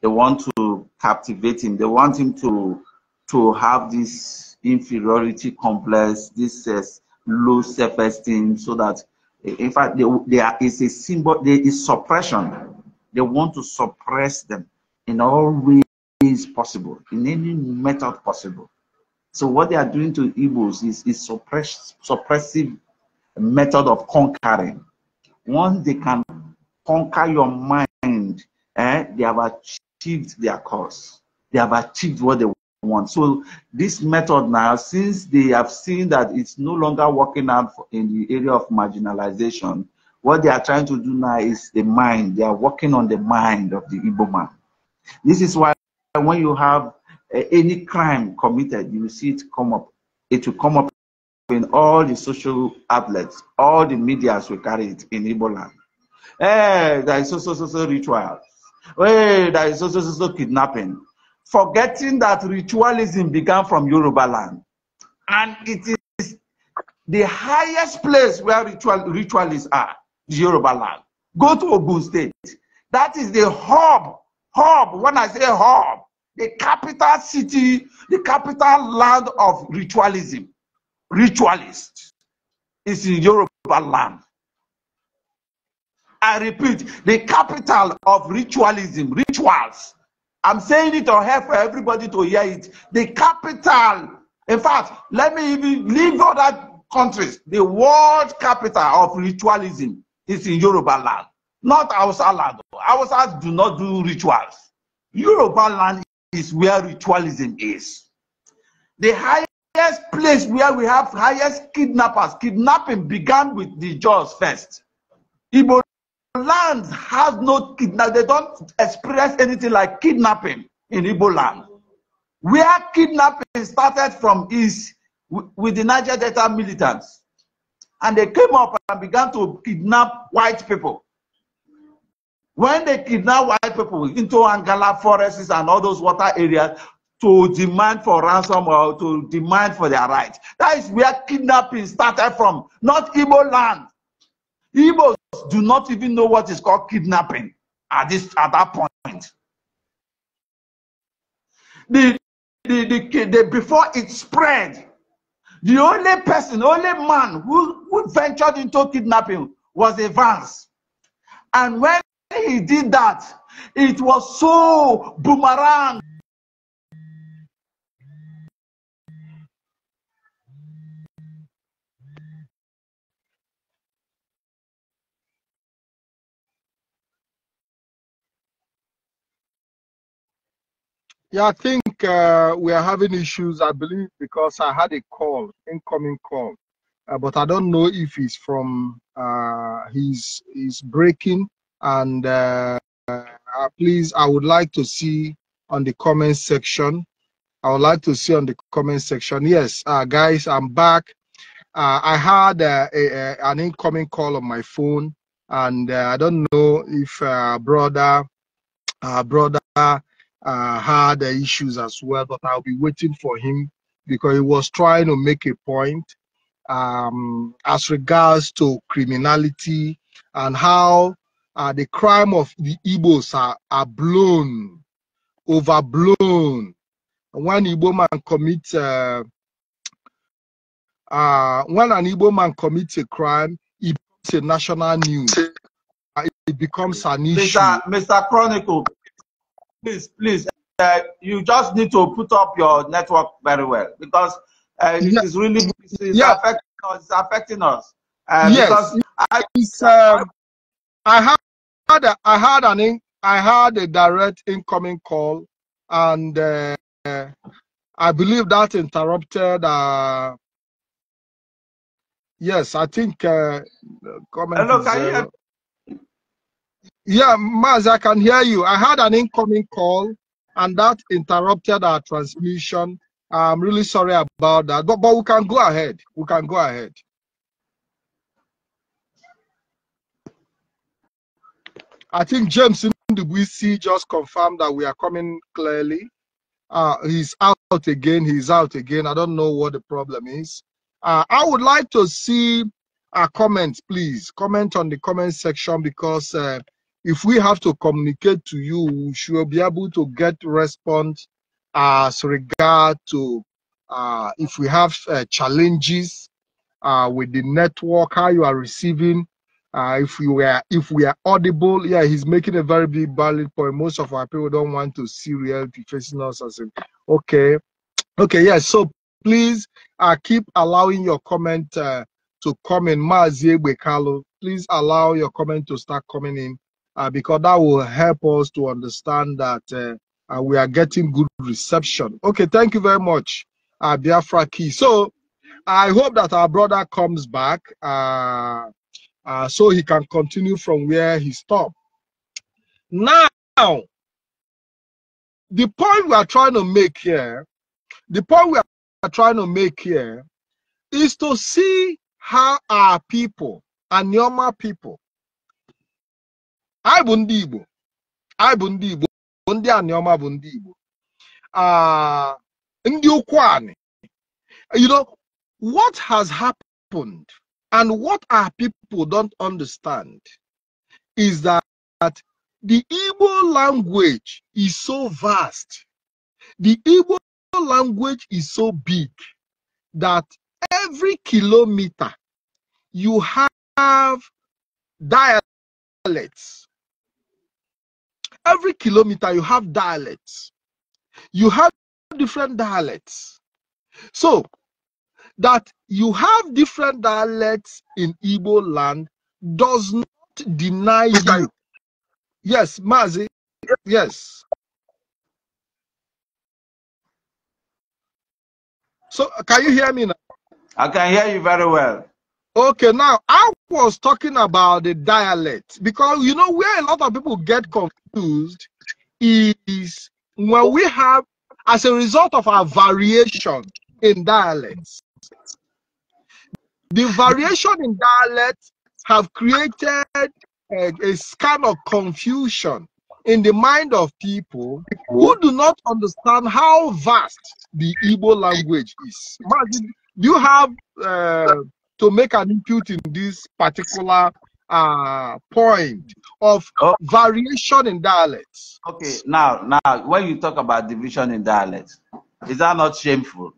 They want to captivate him. They want him to, to have this inferiority complex, this uh, low self-esteem, so that, in fact, they, they are, it's a symbol, there is suppression. They want to suppress them in all ways possible, in any method possible. So what they are doing to Igbos is, is suppress, suppressive method of conquering once they can conquer your mind, eh, they have achieved their cause. They have achieved what they want. So this method now, since they have seen that it's no longer working out in the area of marginalization, what they are trying to do now is the mind. They are working on the mind of the Igbo man. This is why when you have uh, any crime committed, you see it come up. It will come up in all the social outlets, all the medias will carry it in Igbo land. Hey, there is so so so so rituals. Hey, there is so so so so kidnapping. Forgetting that ritualism began from Yoruba land, and it is the highest place where ritual ritualists are, Yoruba land. Go to Ogun State. That is the hub, hub. When I say hub, the capital city, the capital land of ritualism ritualists is in Yoruba land. I repeat, the capital of ritualism, rituals. I'm saying it on here for everybody to hear it. The capital, in fact, let me even leave other countries. The world capital of ritualism is in Yoruba land, not Hausa land. Hausa do not do rituals. Yoruba land is where ritualism is. The high highest place where we have highest kidnappers. Kidnapping began with the Jaws first. Igbo land has no kidnap. They don't experience anything like kidnapping in Igbo land. Where kidnapping started from is with the Niger Delta militants. And they came up and began to kidnap white people. When they kidnap white people into Angala forests and all those water areas, to demand for ransom or to demand for their rights. That is where kidnapping started from, not Igbo land. Igbos do not even know what is called kidnapping at this at that point. The, the, the, the before it spread, the only person, only man who, who ventured into kidnapping was Evans, And when he did that, it was so boomerang Yeah, I think uh, we are having issues, I believe, because I had a call, incoming call, uh, but I don't know if he's from uh, he's, he's breaking. And uh, uh please, I would like to see on the comment section. I would like to see on the comment section. Yes, uh, guys, I'm back. Uh, I had a, a, an incoming call on my phone, and I don't know if brother, brother uh, had issues as well, but I'll be waiting for him because he was trying to make a point um, as regards to criminality and how uh, the crime of the Igbos are, are blown, overblown. When Igbo man commits, uh, uh, when an Igbo man commits a crime, it becomes a national news. It becomes an issue. Mr. Mr. Chronicle, please, please, uh, you just need to put up your network very well because uh, yeah. it is really it's yeah. affecting us. It's affecting us. Uh, yes, I, um, I had I had an I had a direct incoming call, and uh, I believe that interrupted. Uh, yes, I think. Uh, Hello, can you uh, yeah, Maz, I can hear you. I had an incoming call and that interrupted our transmission. I'm really sorry about that, but, but we can go ahead. We can go ahead. I think James Ndubuisi just confirmed that we are coming clearly. Uh, he's out again. He's out again. I don't know what the problem is. Uh, I would like to see a uh, comment, please. Comment on the comment section because uh, if we have to communicate to you, we should be able to get response as regard to uh, if we have uh, challenges uh, with the network, how you are receiving. Uh, if we were if we are audible, yeah, he's making a very big valid point. Most of our people don't want to see reality facing us as a, okay, okay, yeah. So please uh, keep allowing your comment uh, to come in. please allow your comment to start coming in uh, because that will help us to understand that uh, uh, we are getting good reception. Okay, thank you very much, uh, Biafra Key. So I hope that our brother comes back uh, uh, so he can continue from where he stopped. Now, the point we are trying to make here, the point we are trying to make here is to see how our people, our normal people, anyị bụ ndị Igbo anyị bụ ndị Igbo ndị aniọma bụ ndị Igbo ah, ndị ukwu anị you know what has happened and what our people don't understand is that, the Igbo language is so vast the Igbo language is so big that every kilometer you have dialects every kilometer you have dialects. You have different dialects. So that you have different dialects in Igbo land does not deny you. Yes, Mazi. Yes. So can you hear me now? I can hear you very well. Okay, now I was talking about the dialect because you know where a lot of people get confused is when we have as a result of our variation in dialects the variation in dialects have created a, a kind of confusion in the mind of people who do not understand how vast the Igbo language is. Do you have uh, to make an input in this particular uh, point of oh. variation in dialects. Okay, now, now, when you talk about division in dialects, is that not shameful?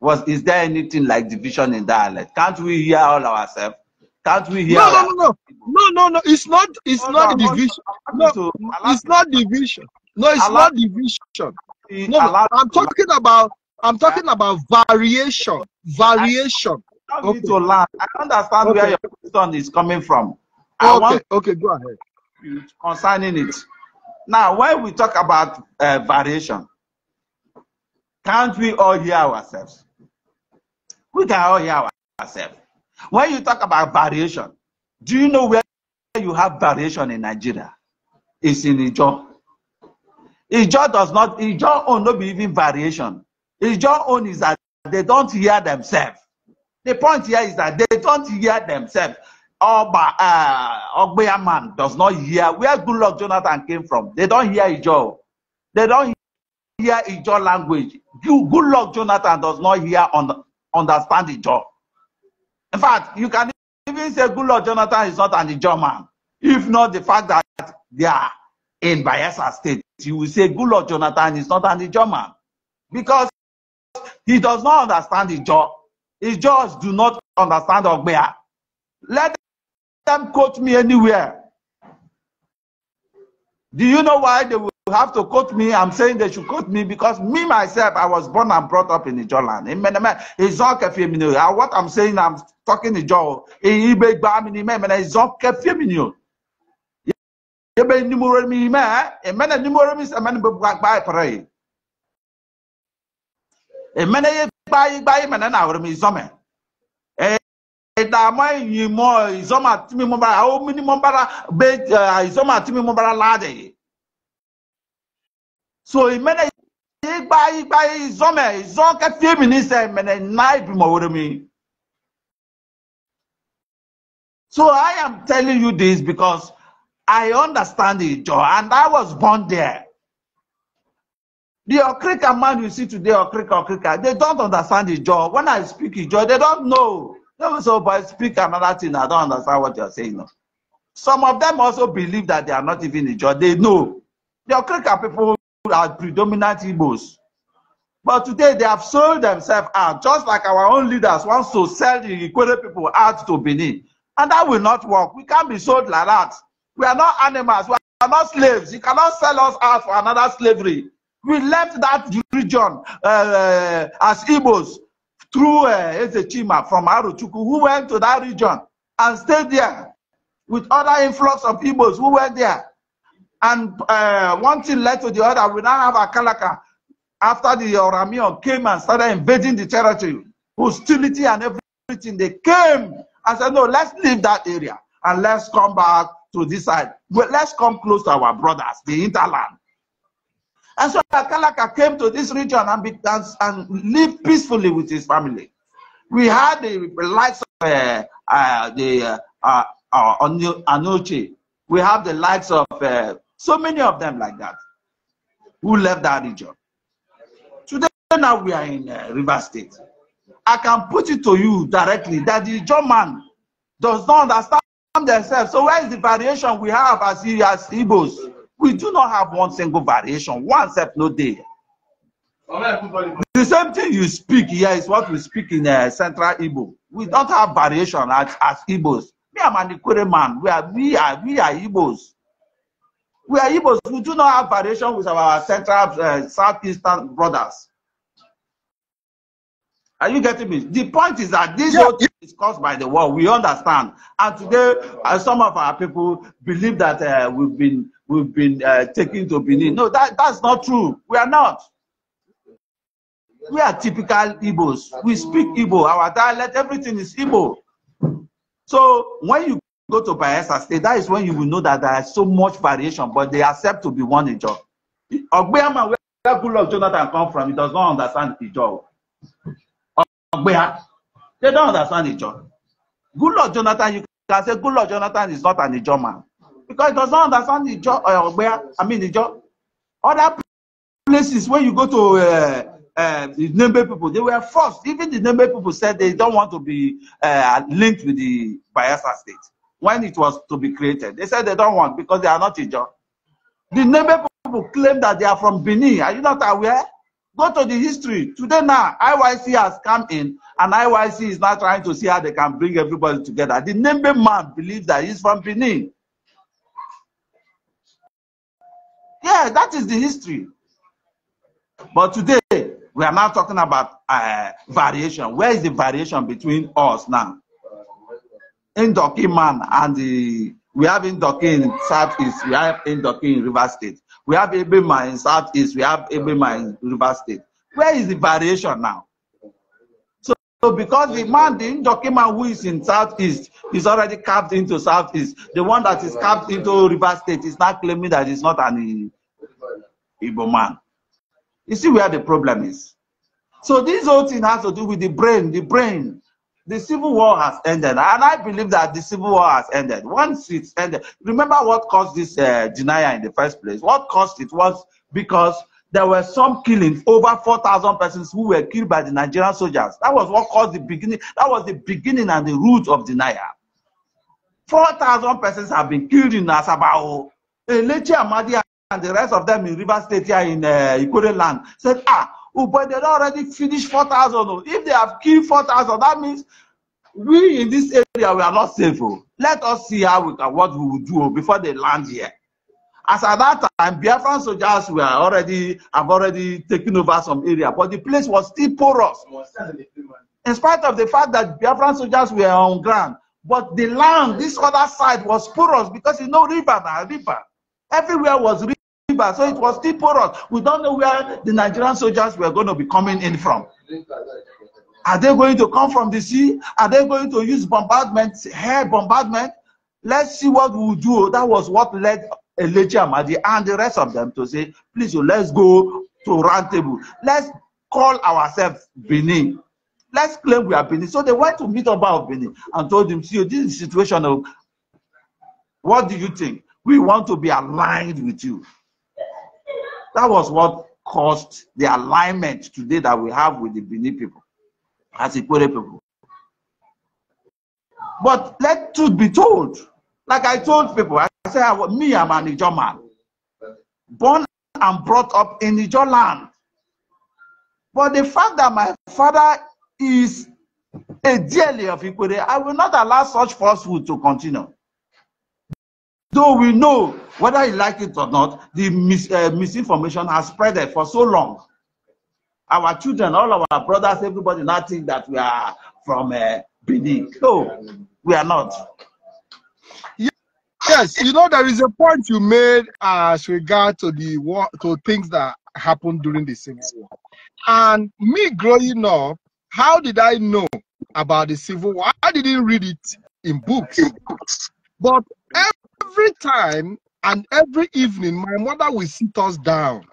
Was is there anything like division in dialect? Can't we hear all ourselves? Can't we hear? No, no, no, no, no, no, no. It's not. It's no, not no, division. No, to, it's not division. No, it's allow, not division. No, I'm talking about. I'm talking about variation. Variation okay. to land. I understand okay. where your question is coming from. I okay. want okay, go ahead. Concerning it. Now, when we talk about uh, variation, can't we all hear ourselves? We can all hear ourselves. When you talk about variation, do you know where you have variation in Nigeria? It's in Ijo. Ijo does not, Ijo own not be even variation. Ijo own is that they don't hear themselves. The point here is that they don't hear themselves. Oba uh, eh, Ogbeya man does not hear where good luck Jonathan came from. They don't hear Ijo. They don't hear Ijo language. You, good luck Jonathan does not hear on, understand Ijo. In fact, you can even say good luck Jonathan is not an Ijo man. If not the fact that they are in Bayelsa State, you will say good luck Jonathan is not an Ijo man. Because he does not understand Ijo his judges do not understand Ogbea. Let them quote me anywhere. Do you know why they will have to quote me? I'm saying they should quote me because me myself, I was born and brought up in the Ijoland. Uh, what I'm saying, I'm talking the Is Ijo. Amen gbai gbai mene na awere mi zome ìdààmú ẹ̀yìn mọ ìzọ́mọ àti mímú bára àwọn mímú bára gbé ìzọ́mọ àti mímú bára láàdè yìí. so buy buy, ìgbà ìzọ́mẹ̀ ìzọ́ kẹfì mi ní sẹ́ ìmẹ́nẹ̀ náà ìbímọ wẹrẹ mi. so I am telling you this because I understand it Joe and I was born there. The Okrika man you see today, Okrika, Okrika, they don't understand the job. When I speak the job, they don't know. They will say, oh, but I speak another thing. I don't understand what you're saying. Some of them also believe that they are not even the job. They know. The Okrika people are predominant Igbos. But today they have sold themselves out, just like our own leaders want to sell the Ikwere people out to Benin. And that will not work. We can't be sold like that. We are not animals. We are not slaves. You cannot sell us out for another slavery. We left that region uh, as Igbos through uh, from Aruchuku, who went to that region and stayed there with other influx of Igbos who were there. And uh, one thing led to the other. We now have Akalaka after the Oramion came and started invading the territory, hostility and everything. They came and said, No, let's leave that area and let's come back to this side. Well, let's come close to our brothers, the interland. And so Akalaka came to this region and, began and, lived peacefully with his family. We had the likes of uh, uh, the uh, uh, uh Anuchi. We have the likes of uh, so many of them like that who left that region. Today, now we are in uh, River State. I can put it to you directly that the German does not understand themselves. So where is the variation we have as, as Igbos? We do not have one single variation. One step no day. The same thing you speak here is what we speak in uh, Central Igbo. We don't have variation as, as Igbos. Me, I'm an Ikure man. We are, we are, we are Igbos. We are Igbos. We do not have variation with our Central, uh, Southeastern brothers. Are you getting me? The point is that this yeah. whole thing is caused by the war. We understand, and today uh, some of our people believe that uh, we've been we've been uh, taken to Benin. No, that that's not true. We are not. We are typical Igbos. We speak Igbo. Our dialect, everything is Igbo. So when you go to Bayelsa State, that is when you will know that there is so much variation, but they accept to be one Ijaw. Ogbeama, where good luck Jonathan come from, he does not understand Ijaw. They don't understand the John. Good Lord Jonathan, you can say Good Lord Jonathan is not an Ijo man. Because he does not understand the Ijo, uh, where, I mean Ijo. Other places where you go to uh, uh, the Nembe people, they were forced. Even the Nembe people said they don't want to be uh, linked with the Bayelsa state when it was to be created. They said they don't want because they are not Ijo. The Nembe people claim that they are from Benin. Are you not aware? Go to the history. Today now, IYC has come in, and IYC is now trying to see how they can bring everybody together. The Nembe man believes that he's from Benin. Yeah, that is the history. But today, we are now talking about uh, variation. Where is the variation between us now? Indoki man and the, we have Indoki in Southeast, we have Indoki in River State. We have Ebema in Southeast. We have Ebema in River State. Where is the variation now? So, so because the man, the Njokiman who is in Southeast is already carved into Southeast. The one that is carved into River State is not claiming that he's not an Igbo man. You see where the problem is. So this whole thing has to do with the brain, the brain. The civil war has ended, and I believe that the civil war has ended. Once it's ended, remember what caused this uh, denial in the first place? What caused it was because there were some killings, over 4,000 persons who were killed by the Nigerian soldiers. That was what caused the beginning, that was the beginning and the root of denial. 4,000 persons have been killed in Asabao. Elechi Amadi and the rest of them in River State here in uh, land said, ah, but they don't already finish 4,000. If they have killed 4,000, that means we in this area, we are not safe. Oh. Let us see how we can, what we will do oh, before they land here. As at that time, Biafran soldiers were already have already taken over some area, but the place was still porous. In spite of the fact that Biafran soldiers were on ground, but the land, this other side, was porous because you know river, river. Everywhere was river river, so it was still porous. We don't know where the Nigerian soldiers were going to be coming in from. Are they going to come from the sea? Are they going to use bombardment, air bombardment? Let's see what we will do. That was what led Elijah Amadi and the rest of them to say, please, oh, let's go to round table. Let's call ourselves Benin. Let's claim we are Benin. So they went to meet up of Benin and told him, see, this is the situation of, what do you think? We want to be aligned with you. That was what caused the alignment today that we have with the Benin people, as Ikwere people. But let truth be told. Like I told people, I said, me, I'm an Ijo man. Born and brought up in Ijo land. But the fact that my father is a dearly of Ikwere, I will not allow such falsehood to continue though we know whether he liked it or not, the mis uh, misinformation has spreaded for so long. Our children, all our brothers, everybody now think that we are from uh, Benin. No, we are not. Yes, you know there is a point you made as regard to the war, to things that happened during the Civil War. And me growing up, how did I know about the Civil War? I didn't read it in books, but every time and every evening, my mother will sit us down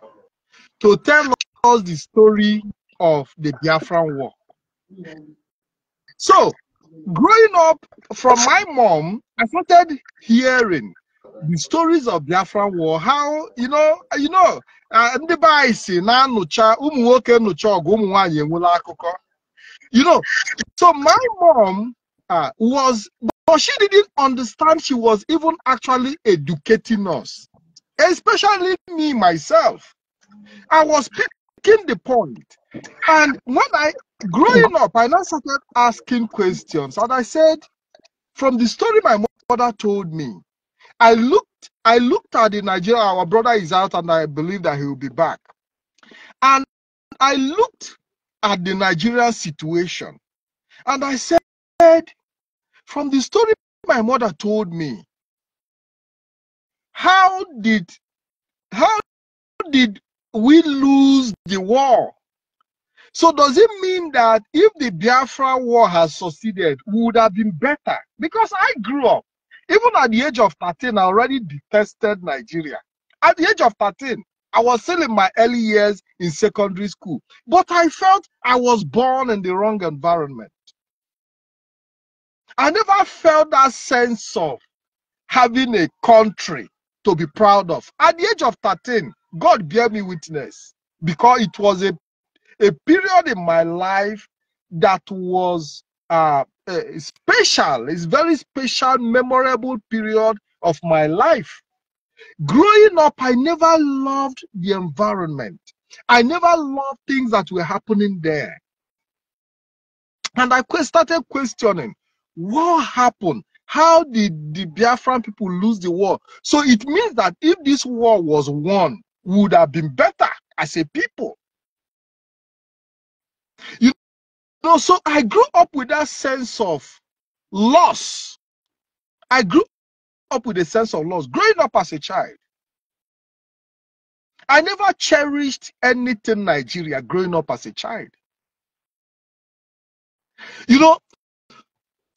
to tell us the story of the Biafran War. So, growing up from my mom, I started hearing the stories of Biafran War. How you know, you know, uh, ndị be anyị na You know, so my mom uh, was but she didn't understand she was even actually educating us, especially me myself. I was picking the point. And when I, growing up, I now started asking questions. And I said, from the story my mother told me, I looked, I looked at the Nigeria, our brother is out and I believe that he will be back. And I looked at the Nigerian situation and I said, from the story my mother told me, how did how did we lose the war? So does it mean that if the Biafra war has succeeded, would have been better? Because I grew up, even at the age of 13, I already detested Nigeria. At the age of 13, I was still in my early years in secondary school, but I felt I was born in the wrong environment. I never felt that sense of having a country to be proud of. At the age of 13, God gave me witness because it was a, a period in my life that was uh, special. It's very special, memorable period of my life. Growing up, I never loved the environment. I never loved things that were happening there. And I started questioning what happened? How did the Biafran people lose the war? So it means that if this war was won, would have been better as a people. You know, so I grew up with that sense of loss. I grew up with a sense of loss growing up as a child. I never cherished anything Nigeria growing up as a child. You know,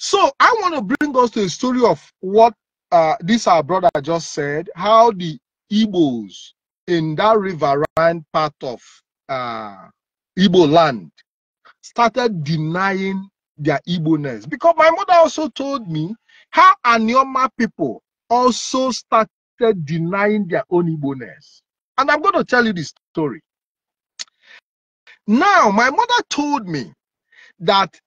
so I want to bring us to the story of what uh, this our brother just said, how the Igbos in that riverine part of uh, Igbo land started denying their Igbo-ness. Because my mother also told me how Anioma people also started denying their own Igbo-ness. And I'm going to tell you this story. Now, my mother told me that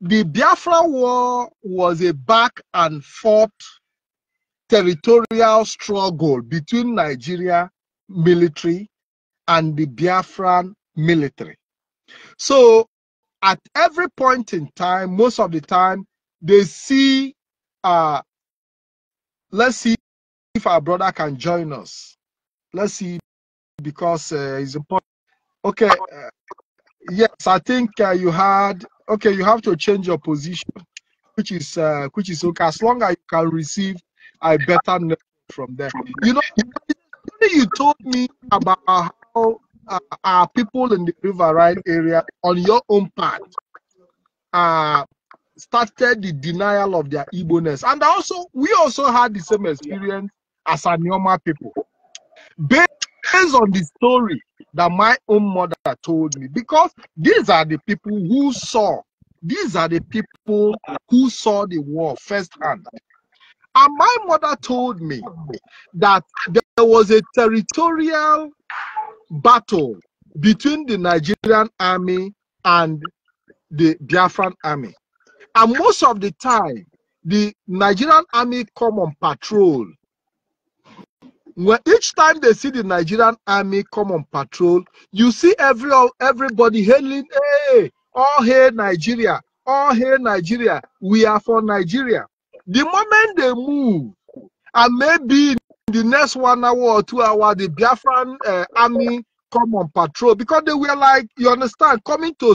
the Biafra War was a back and forth territorial struggle between Nigeria military and the Biafran military. So at every point in time, most of the time, they see, uh, let's see if our brother can join us. Let's see, because uh, it's important. Okay, uh, yes, I think uh, you had okay, you have to change your position, which is uh, which is okay as long as you can receive a better network from them. You know, you told me about how uh, our people in the riverine area on your own part uh, started the denial of their Igbo-ness. And also, we also had the same experience as our normal people. Based on the story that my own mother told me because these are the people who saw these are the people who saw the war firsthand and my mother told me that there was a territorial battle between the Nigerian army and the Biafran army. And most of the time, the Nigerian army come on patrol when each time they see the Nigerian army come on patrol, you see every everybody hailing, hey, all hail Nigeria, all hail Nigeria, we are for Nigeria. The moment they move, and maybe the next one hour or two hour, the Biafran uh, army come on patrol because they were like, you understand, coming to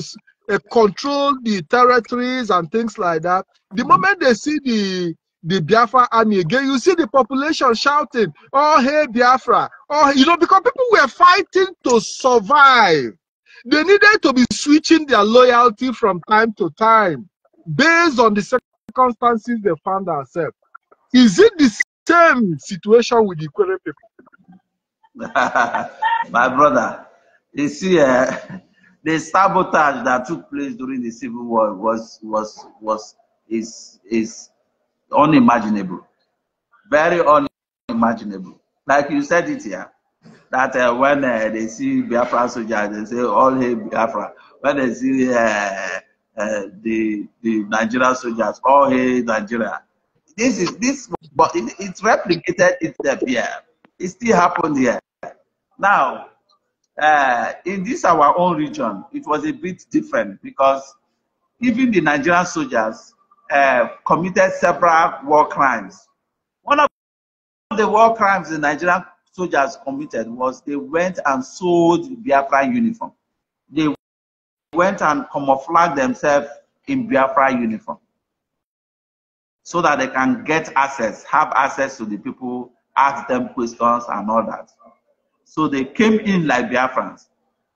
uh, control the territories and things like that. The mm-hmm. moment they see the the Biafra army again. You see the population shouting, Oh, hey, Biafra. Oh, you know, because people were fighting to survive. They needed to be switching their loyalty from time to time based on the circumstances they found themselves. Is it the same situation with the Korean people? My brother, you see, uh, the sabotage that took place during the Civil War was was was is is unimaginable, very unimaginable. Like you said it here, that uh, when uh, they see Biafra soldiers, they say all hail Biafra. When they see uh, uh, the the Nigerian soldiers, all hail Nigeria. This is this, but it, it's replicated itself here. It still happened here. Now, uh, in this our own region, it was a bit different because even the Nigerian soldiers uh, committed several war crimes. One of the war crimes the Nigerian soldiers committed was they went and sold Biafra uniform. They went and camouflaged themselves in Biafra uniform so that they can get access, have access to the people, ask them questions and all that. So they came in like Biafrans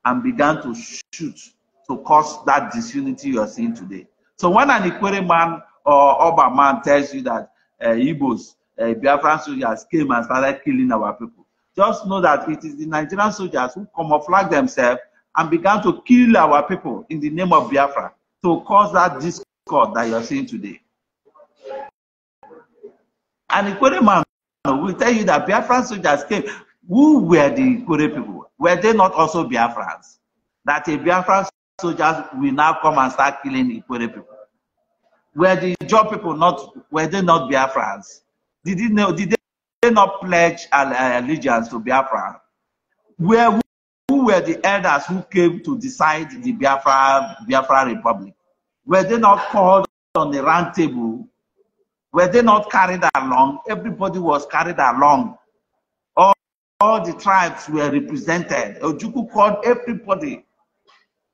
and began to shoot to cause that disunity you're seeing today. So when an Ikwere man or Oba man tells you that uh, Igbos, uh, Biafran soldiers came and started killing our people, just know that it is the Nigerian soldiers who camouflage themselves and began to kill our people in the name of Biafra to cause that discord that you're seeing today. An Ikwere man will tell you that Biafran soldiers came. Who were the Ikwere people? Were they not also Biafrans? That a Biafran soldiers will now come and start killing Ikwere people. Were the job people not, were they not Biafrans? Did they, know, did they not pledge uh, allegiance to Biafra? Where, who were the elders who came to decide the Biafra, Biafra Republic? Were they not called on the round table? Were they not carried along? Everybody was carried along. All, all the tribes were represented. Ojuku called everybody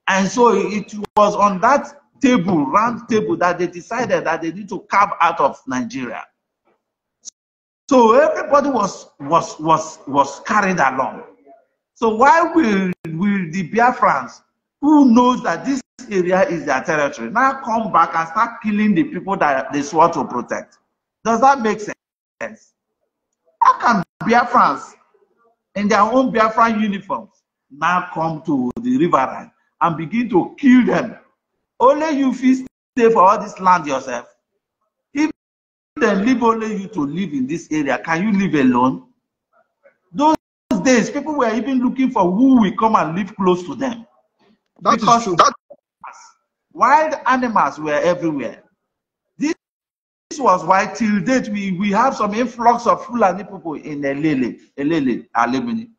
And so it was on that table, round table, that they decided that they need to carve out of Nigeria. So everybody was was was was carried along. So why will will the Biafrans, who knows that this area is their territory, now come back and start killing the people that they swore to protect? Does that make sense? How can Biafrans, in their own Biafran uniforms, now come to the riverine and begin to kill them. Only you feel stay for all this land yourself. If they leave only you to live in this area, can you live alone? Those days, people were even looking for who will come and live close to them. That because that... wild animals were everywhere. This, this was why till date we, we have some influx of Fulani people in Elele, Elele, Alemini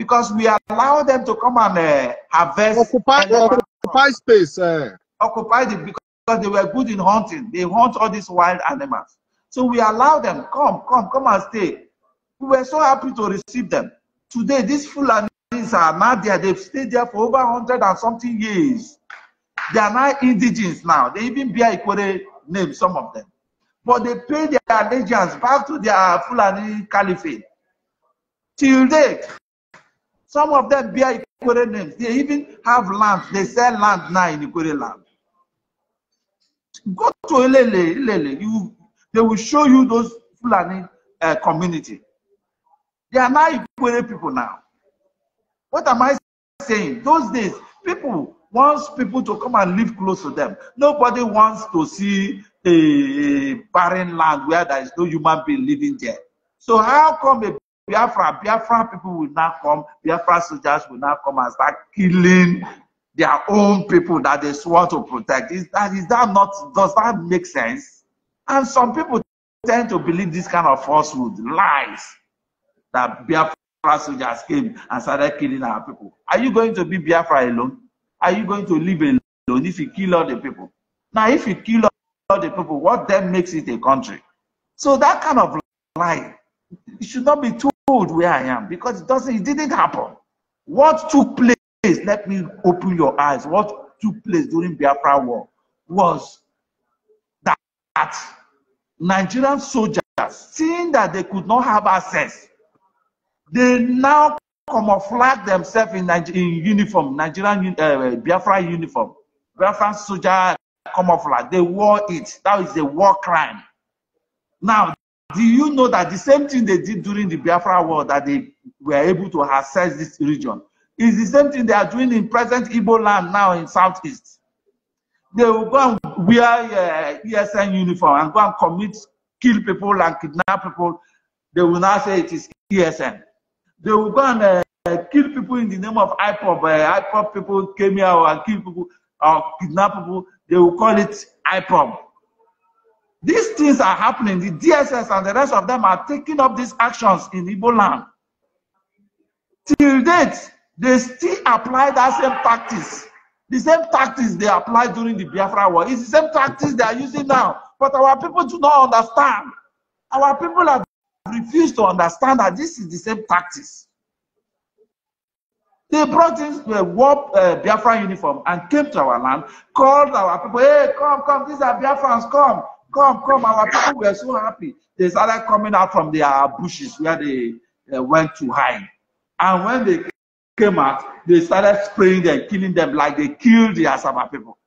because we allow them to come and uh, harvest. Occupy, occupy space. Uh. Occupy the because they were good in hunting. They hunt all these wild animals. So we allow them, come, come, come and stay. We were so happy to receive them. Today, these Fulanis are now there. They've stayed there for over 100 and something years. They are now indigenous now. They even bear Ikore name, some of them. But they pay their allegiance back to their Fulani caliphate. Till date, Some of them bear Ikwere names. They even have land. They sell land now in Ikwere land. Go to Ilele, Ilele. You, they will show you those Fulani uh, community. They are now Ikwere people now. What am I saying? Those days, people wants people to come and live close to them. Nobody wants to see a barren land where there is no human being living there. So how come a Biafra, Biafra people will now come, Biafra soldiers will now come and start killing their own people that they swore to protect. Is that, is that not, does that make sense? And some people tend to believe this kind of falsehood, lies, that Biafra soldiers came and started killing our people. Are you going to be Biafra alone? Are you going to live alone if you kill all the people? Now, if you kill all the people, what then makes it a country? So that kind of lie It should not be told where I am because it doesn't, it didn't happen. What took place, let me open your eyes, what took place during Biafra War was that, Nigerian soldiers, seeing that they could not have access, they now camouflage themselves in, Niger in uniform, Nigerian uh, Biafra uniform, Biafra soldier camouflage. They wore it. That is a war crime. Now Do you know that the same thing they did during the Biafra war that they were able to access this region is the same thing they are doing in present Igbo land now in Southeast? They will go and wear uh, ESN uniform and go and commit, kill people and kidnap people. They will now say it is ESN. They will go and uh, kill people in the name of IPOB. Uh, IPOB people came here and kill people or kidnap people. They will call it IPOB. These things are happening. The DSS and the rest of them are taking up these actions in Igbo land. Till date, they still apply that same tactics. The same tactics they applied during the Biafra war. It's the same tactics they are using now. But our people do not understand. Our people have refused to understand that this is the same tactics. They brought in a war uh, Biafran uniform and came to our land, called our people, hey, come, come, these are Biafrans, come. Come, come. Our people were so happy. They started coming out from their bushes where they uh, went to hide. And when they came out, they started spraying them, killing them like they killed the Asaba people.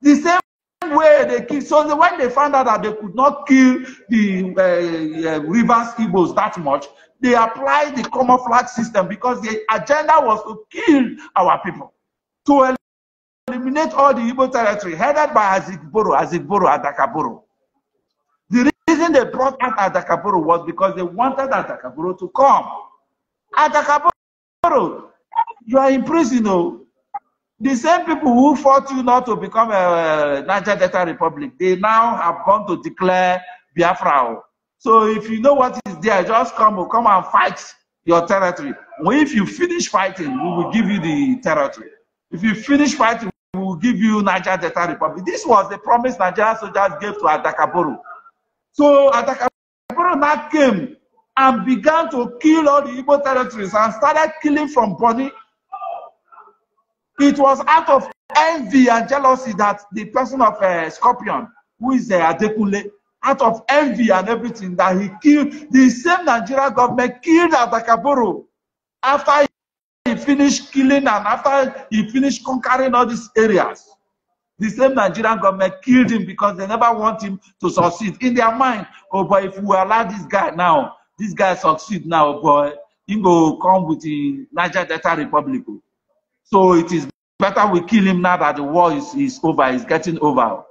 The same way they killed. So the, when they found out that they could not kill the uh, uh, Rivers Igbos that much, they applied the camouflage system because the agenda was to kill our people, to eliminate all the Igbo territory headed by Azigboro, Azigboro, Adakaboro reason they brought out Atakapuru was because they wanted Atakapuru to come. Atakapuru, you are in prison. Oh. The same people who fought you not to become a Niger Delta Republic, they now have gone to declare Biafra. Oh. So if you know what is there, just come, oh, come and fight your territory. If you finish fighting, we will give you the territory. If you finish fighting, we will give you Niger Delta Republic. This was the promise Nigeria soldiers gave to Adakaboru. So now came and began to kill all the Igbo territories and started killing from Bonny. It was out of envy and jealousy that the person of uh, Scorpion, who is uh, eh, Adekule, out of envy and everything that he killed, the same Nigerian government killed Atakaboro after he finished killing and after he finished conquering all these areas. The same Nigerian government killed him because they never want him to succeed. In their mind, oh boy, if we allow this guy now, this guy succeed now, oh boy, he go come with the Niger Delta Republic. So it is better we kill him now that the war is, is over, is getting over.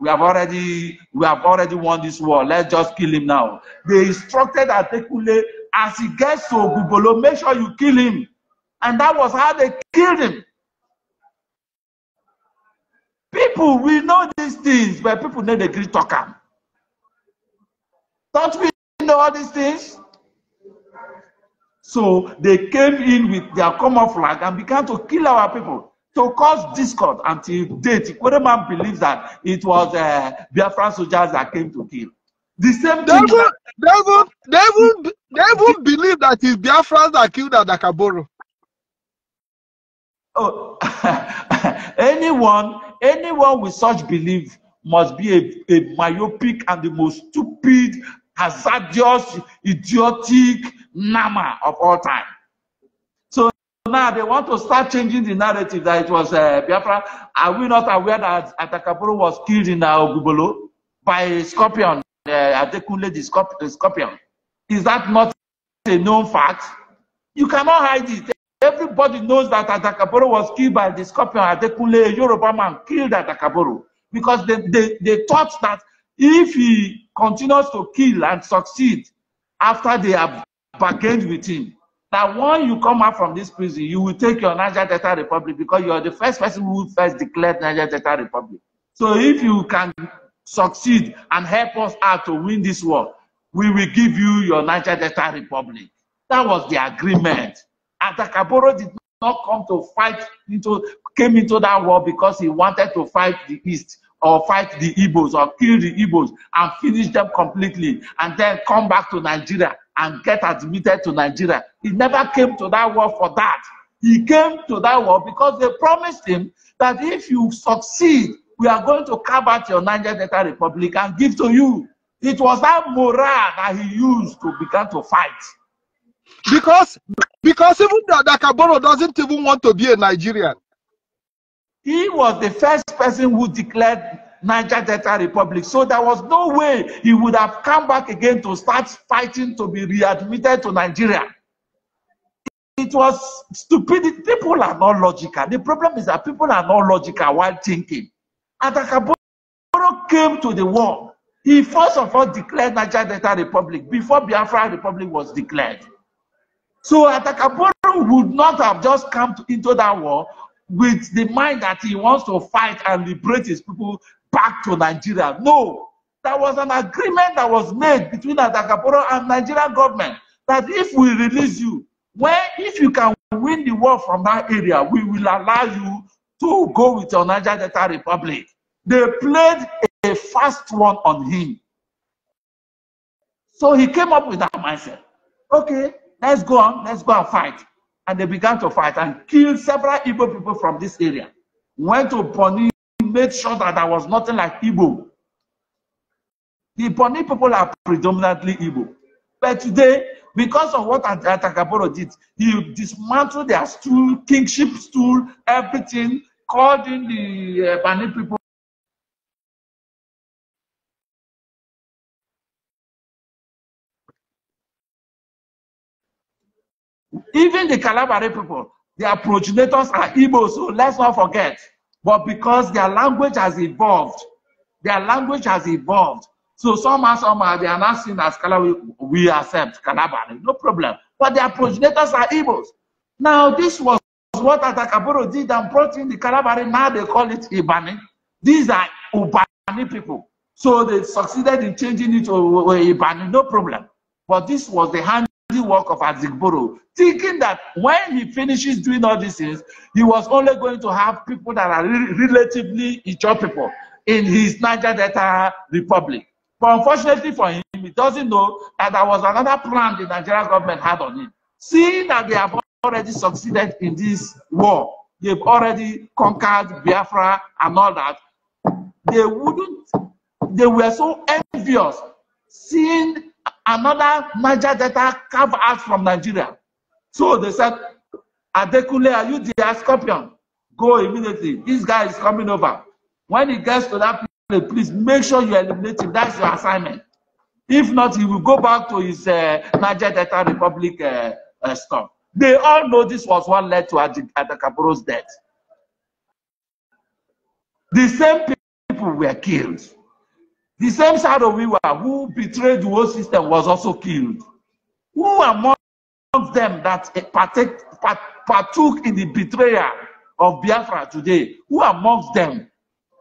We have already we have already won this war. Let's just kill him now. They instructed Atekule as he gets to Bubolo, make sure you kill him. And that was how they killed him. People will know these things, but people no dey gree talk am. Don't we know all these things? So they came in with their common flag and began to kill our people, to cause discord until date. Kwereman believes that it was uh, Biafran soldiers that came to kill. The same thing. they thing. they will, they will, they will believe that it's Biafran that killed Adakaboro. Oh, anyone Anyone with such belief must be a, a myopic and the most stupid, hazardous, idiotic nama of all time. So now they want to start changing the narrative that it was uh, Biafra. Are we not aware that Atakapuru was killed in uh, Ogubolo by a scorpion, uh, Adekunle the scorpion? Is that not a known fact? You cannot hide it. Everybody knows that Adakaboro was killed by the scorpion Adekunle, a Yoruba man, killed Adakaboro. Because they, they, they thought that if he continues to kill and succeed after they have bargained with him, that when you come out from this prison, you will take your Niger Delta Republic because you are the first person who first declared Niger Delta Republic. So if you can succeed and help us out to win this war, we will give you your Niger Delta Republic. That was the agreement. Atakaboro did not come to fight into came into that war because he wanted to fight the East or fight the Igbos or kill the Igbos and finish them completely and then come back to Nigeria and get admitted to Nigeria. He never came to that war for that. He came to that war because they promised him that if you succeed, we are going to carve out your Niger Delta Republic and give to you. It was that morale that he used to begin to fight. Because because even Dakaboro doesn't even want to be a Nigerian. He was the first person who declared Niger Delta Republic. So there was no way he would have come back again to start fighting to be readmitted to Nigeria. It was stupid. People are not logical. The problem is that people are not logical while thinking. Atakaboro came to the world. He first of all declared Niger Delta Republic before Biafra Republic was declared. So Atakaporo would not have just come to, into that war with the mind that he wants to fight and liberate his people back to Nigeria. No, there was an agreement that was made between Atakaporo and Nigerian government that if we release you, when if you can win the war from that area, we will allow you to go with your Niger Delta Republic. They played a fast one on him. So he came up with that mindset. Okay, Let's go on, let's go and fight. And they began to fight and killed several Igbo people from this area. Went to Bonny, made sure that there was nothing like Igbo. The Bonny people are predominantly Igbo. But today, because of what Atakaboro did, he dismantled their stool, kingship stool, everything, called in the uh, Bani people Even the Calabari people, their progenitors are Igbo, so let's not forget. But because their language has evolved, their language has evolved. So somehow, somehow, they are not seen as Calabari. We accept Calabari, no problem. But their progenitors are Igbos. Now, this was what Atakaburo did and brought in the Calabari. Now they call it Ibani. These are Ubani people. So they succeeded in changing it to Ibani, no problem. But this was the hand work of Azigboro, thinking that when he finishes doing all these things, he was only going to have people that are re relatively Ijaw people in his Niger Delta Republic. But unfortunately for him, he doesn't know that there was another plan the Nigerian government had on him. Seeing that they have already succeeded in this war, they've already conquered Biafra and all that, they wouldn't, they were so envious seeing another Niger Delta carved out from Nigeria. So they said, Adekule, are you the scorpion? Go immediately. This guy is coming over. When he gets to that place, please make sure you eliminate him. That's your assignment. If not, he will go back to his uh, Niger Delta Republic uh, uh, stuff. They all know this was what led to Adekapuro's death. The same people were killed. The same side of Shadowiwa who betrayed the whole system was also killed. Who among them that partook in the betrayal of Biafra today, who amongst them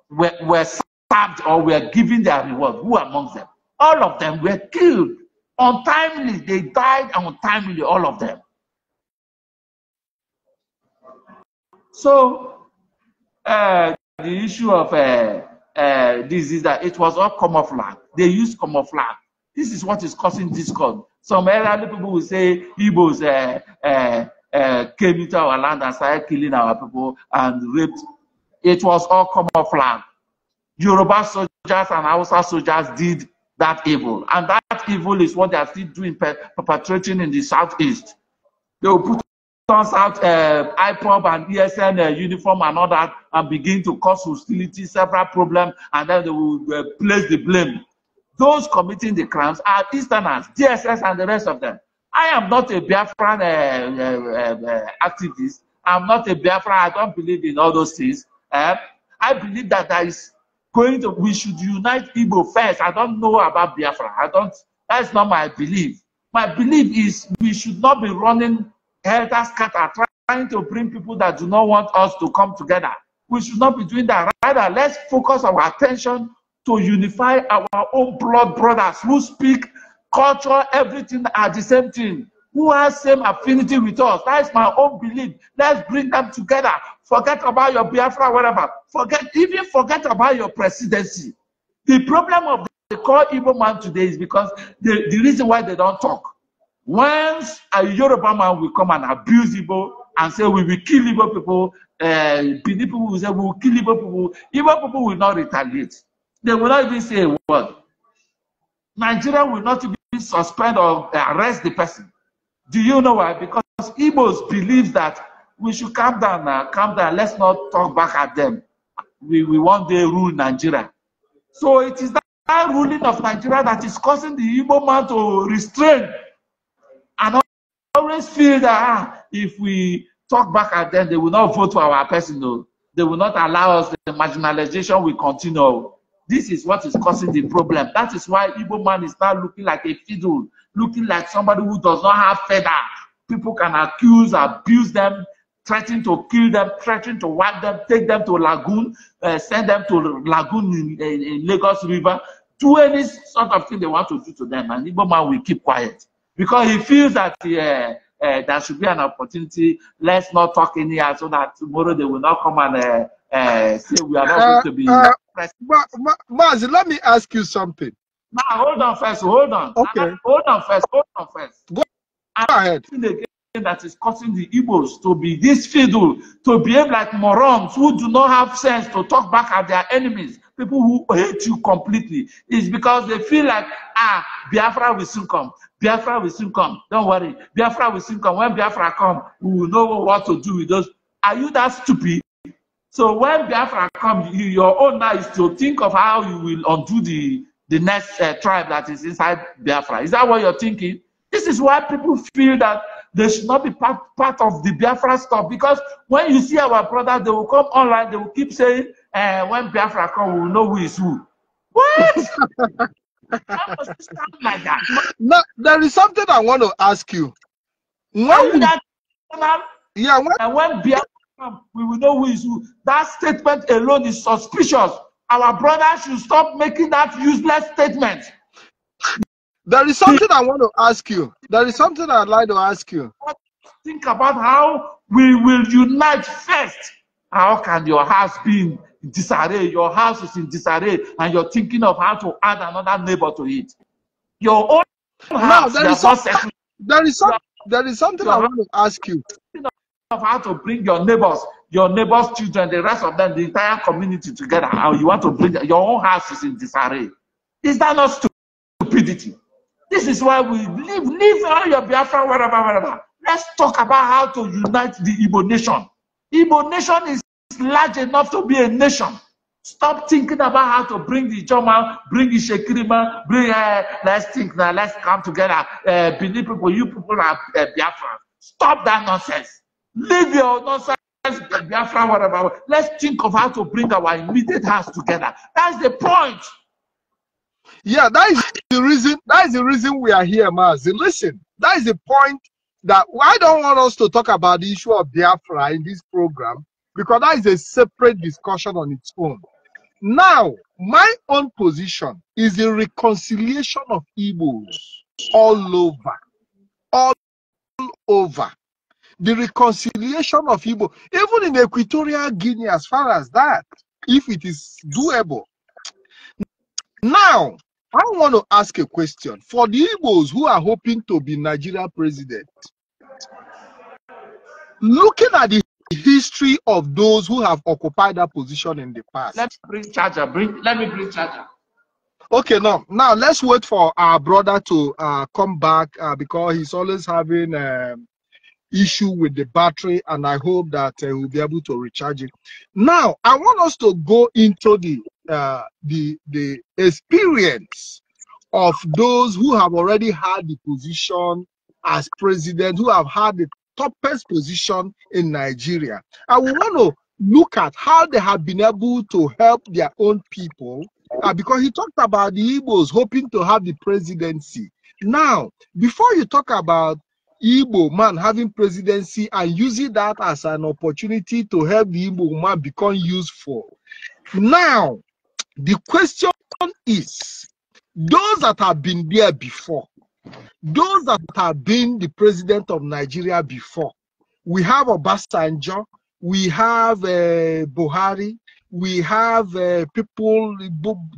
were, were stabbed or were given their reward? Who amongst them? All of them were killed untimely. They died untimely, all of them. So, uh, the issue of uh, uh, this is that it was all camouflage. They used camouflage. This is what is causing discord. Some elderly people will say Igbos uh, uh, uh, came into our land and started killing our people and raped. It was all camouflage. Yoruba soldiers and Hausa soldiers did that evil. And that evil is what they are still doing, perpetrating in the southeast. They will put turns out uh, IPOB and ESN uh, uniform and all that and begin to cause hostility, several problems, and then they will uh, place the blame. Those committing the crimes are Easterners, DSS, and the rest of them. I am not a Biafran uh, uh, uh, uh, activist. I'm not a Biafran. I don't believe in all those things. Uh, I believe that there is going to, we should unite Igbo first. I don't know about Biafra. I don't, that's not my belief. My belief is we should not be running helter skelter, trying to bring people that do not want us to come together. We should not be doing that. Rather, let's focus our attention to unify our own blood brothers who speak culture, everything are the same thing, who has same affinity with us. That is my own belief. Let's bring them together. Forget about your Biafra, whatever. Forget, even forget about your presidency. The problem of the core evil man today is because the, the reason why they don't talk. Once a Yoruba man will come and abuse Igbo and say we will kill Igbo people, uh, people will say we will kill Igbo people, Igbo people will not retaliate. They will not even say a word. Nigeria will not even suspend or eh, arrest the person. Do you know why? Because Igbos believe that we should calm down now, calm down, let's not talk back at them. We, we want day rule Nigeria. So it is that ruling of Nigeria that is causing the Igbo man to restrain always feel that ah, if we talk back at them, they will not vote for our personal. Oh. They will not allow us. The marginalization will continue. Oh. This is what is causing the problem. That is why Igbo man is now looking like a fiddle, looking like somebody who does not have feather. People can accuse, abuse them, threaten to kill them, threaten to whack them, take them to Lagoon, uh, send them to Lagoon in, in, in Lagos River, do any sort of thing they want to do to them, and Igbo man will keep quiet because he feels that yeah, uh, uh, there should be an opportunity. Let's not talk in here so that tomorrow they will not come and uh, uh say we are not uh, going to be. Ma, Ma, let me ask you something. Ma, hold on first. Hold on. Okay. Hold on first. Hold on first. Go and ahead. that is causing the Igbos to be this fiddle, to behave like morons who do not have sense to talk back at their enemies people who hate you completely is because they feel like, ah, Biafra will soon come. Biafra will soon come. Don't worry. Biafra will soon come. When Biafra come, we will know what to do with those. Are you that stupid? So when Biafra come, you, your own now is to think of how you will undo the, the next uh, tribe that is inside Biafra. Is that what you're thinking? This is why people feel that they should not be part, part of the Biafra stuff because when you see our brother, they will come online, they will keep saying, uh, when Biafra come, we will know who is who. What? like that. No, there is something I want to ask you. When Are you yeah, when, and eh, when Biafra come, we will know who is who. That statement alone is suspicious. Our brother should stop making that useless statement. There is something I want to ask you. There is something I'd like to ask you. Think about how we will unite first. How can your house be disarray, your house is in disarray, and you're thinking of how to add another neighbor to it. Your own house, now, there, is there is some, there is something I want to ask you. Of how to bring your neighbors, your neighbors' children, the rest of them, the entire community together, How you want to bring your own house is in disarray. Is that not stupidity? This is why we live, leave all your Biafra, wherever, wherever. Let's talk about how to unite the Igbo nation. Igbo nation is large enough to be a nation. Stop thinking about how to bring the German, bring the Shekirima, bring, uh, let's think now, let's come together. Uh, eh, Benin people, you people are uh, Biafra. Stop that nonsense. Leave your nonsense, Biafra, whatever. Let's think of how to bring our immediate house together. That's the point. Yeah, that is the reason. That is the reason we are here, Mazi. Listen, that is the point that I don't want us to talk about the issue of Biafra in this program because that is a separate discussion on its own. Now, my own position is a reconciliation of Igbos all over, all over. The reconciliation of Igbo, even in Equatorial Guinea, as far as that, if it is doable. Now, I want to ask a question for the Igbos who are hoping to be Nigeria president. Looking at the history of those who have occupied that position in the past. Let's bring charger. Bring, let me bring charger. Okay, now now let's wait for our brother to uh, come back uh, because he's always having um, issue with the battery, and I hope that uh, we'll be able to recharge it. Now I want us to go into the uh, the the experience of those who have already had the position as president, who have had the toppest position in Nigeria. And we want to look at how they have been able to help their own people uh, because he talked about the Igbos hoping to have the presidency. Now, before you talk about Igbo man having presidency and using that as an opportunity to help the Igbo man become useful, now the question is those that have been there before, those that have been the president of Nigeria before, we have Obasanjo, we have uh, Buhari, we have uh, people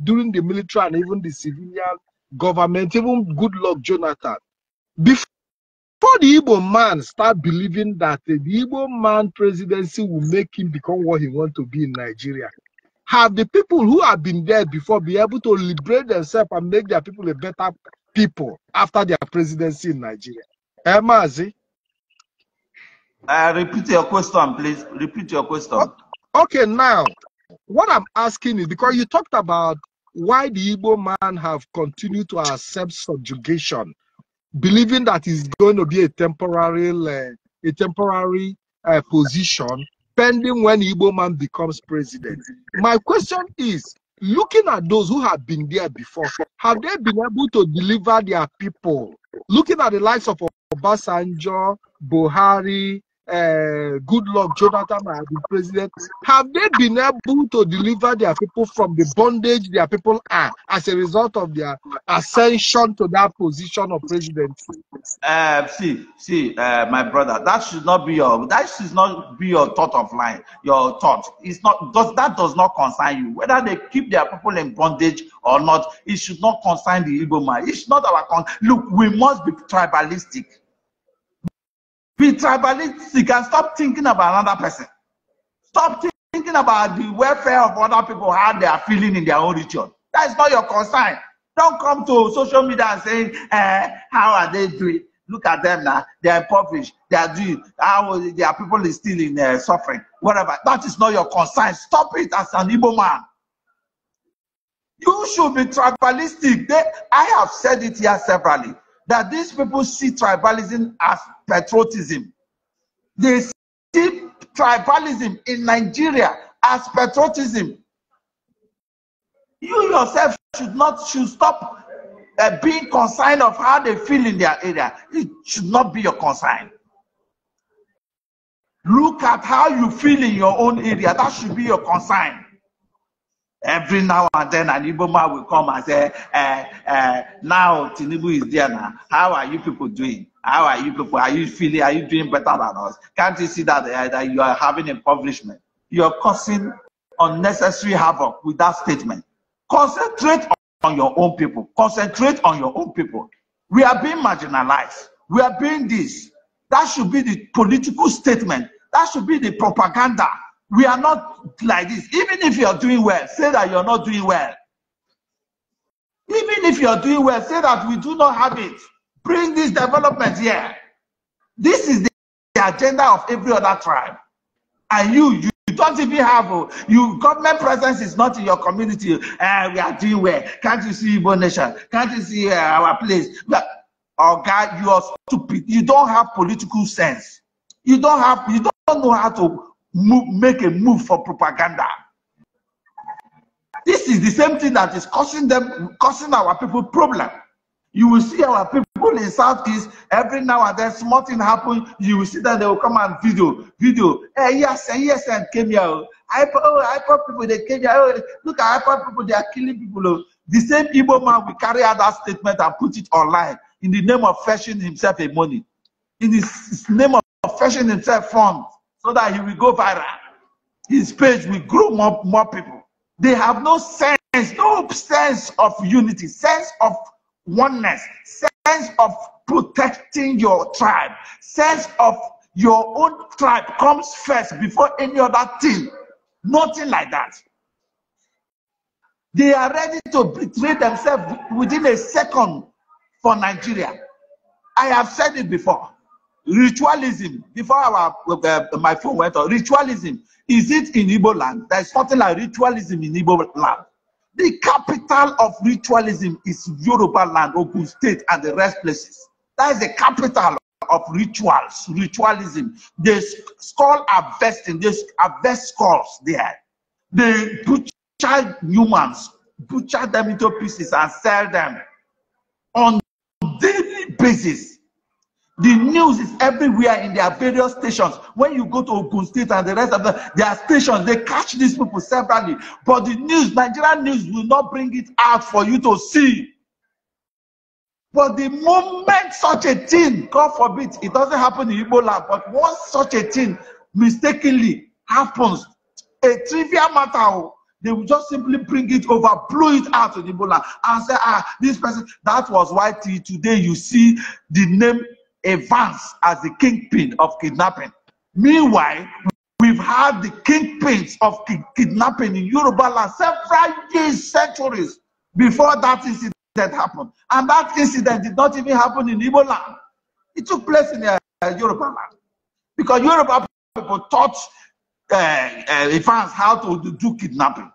during the military and even the civilian government, even good luck Jonathan. Before the Igbo man start believing that the Igbo man presidency will make him become what he want to be in Nigeria, have the people who have been there before be able to liberate themselves and make their people a better people after their presidency in Nigeria. Emazi. Uh, repeat your question, please. Repeat your question. Okay, now, what I'm asking is because you talked about why the Ibo man have continued to accept subjugation, believing that it's going to be a temporary, uh, a temporary uh, position pending when Ibo man becomes president. My question is, looking at those who have been there before, have they been able to deliver their people? Looking at the likes of Obasanjo, Buhari, uh, good Goodluck Jonathan had president, have they been able to deliver their people from the bondage their people are as a result of their ascension to that position of president? Uh, see, see, uh, my brother, that should not be your that should not be your thought of line. Your thought is not does that does not concern you whether they keep their people in bondage or not. It should not concern the Igbo man. It's not our con- look. We must be tribalistic Be tribalistic and stop thinking about another person. Stop thinking about the welfare of other people, how they are feeling in their own region. That is not your concern. Don't come to social media and say, eh, how are they doing? Look at them now. They are impoverished. They are doing, how, their people is still in uh, suffering. Whatever. That is not your concern. Stop it as an Igbo man. You should be tribalistic. They, I have said it here severally. that these people see tribalism as patriotism. They see tribalism in Nigeria as patriotism. You yourself should not should stop uh, being concerned of how they feel in their area. It should not be your concern. Look at how you feel in your own area. That should be your concern. Every now and then, an Igbo man will come and say, uh, uh, Now Tinubu is there now. How are you people doing? How are you people? Are you feeling? Are you doing better than us? Can't you see that, uh, that you are having impoverishment? You're causing unnecessary havoc with that statement. Concentrate on your own people. Concentrate on your own people. We are being marginalized. We are being this. That should be the political statement. That should be the propaganda we are not like this. Even if you're doing well, say that you're not doing well. Even if you're doing well, say that we do not have it. Bring this development here. This is the agenda of every other tribe. And you, you don't even have a, oh, you government presence is not in your community. Uh, we are doing well. Can't you see Igbo nation? Can't you see uh, our place? But, oh God, you are stupid. You don't have political sense. You don't have. You don't know how to move, make a move for propaganda. This is the same thing that is causing them, causing our people problem. You will see our people in Southeast every now and then, small thing happen. You will see that they will come and video, video. Hey, eh, yes, and eh, yes, and eh, came here. I, oh, IPO oh, people, they came here. Oh, look at IPO people, they are killing people. Oh. The same evil man will carry out that statement and put it online in the name of fetching himself a money, in his name of fetching himself funds so that he will go viral. His page will grow more, more people. They have no sense, no sense of unity, sense of oneness, sense of protecting your tribe, sense of your own tribe comes first before any other thing. Nothing like that. They are ready to betray themselves within a second for Nigeria. I have said it before. Ritualism. Before our, uh, my phone went on, ritualism. Is it in Ibo land? There's something like ritualism in Ibo land. The capital of ritualism is Yoruba land, Ogun State, and the rest places. That is the capital of rituals, ritualism. The skull harvesting, they harvest skulls there. They butcher humans, butcher them into pieces and sell them on daily basis. The news is everywhere in their various stations. When you go to Ogun State and the rest of the, their stations, they catch these people separately. But the news, Nigerian news, will not bring it out for you to see. But the moment such a thing, God forbid, it doesn't happen in Ebola, but once such a thing mistakenly happens, a trivial matter, oh, they will just simply bring it over, blow it out in Ebola, and say, ah, this person. That was why today you see the name Advance as the kingpin of kidnapping. Meanwhile, we've had the kingpins of kidnapping in Yoruba land several years, centuries before that incident happened. And that incident did not even happen in Igbo land. It took place in uh, Yoruba land. Because Yoruba people taught uh, uh, how to do kidnapping.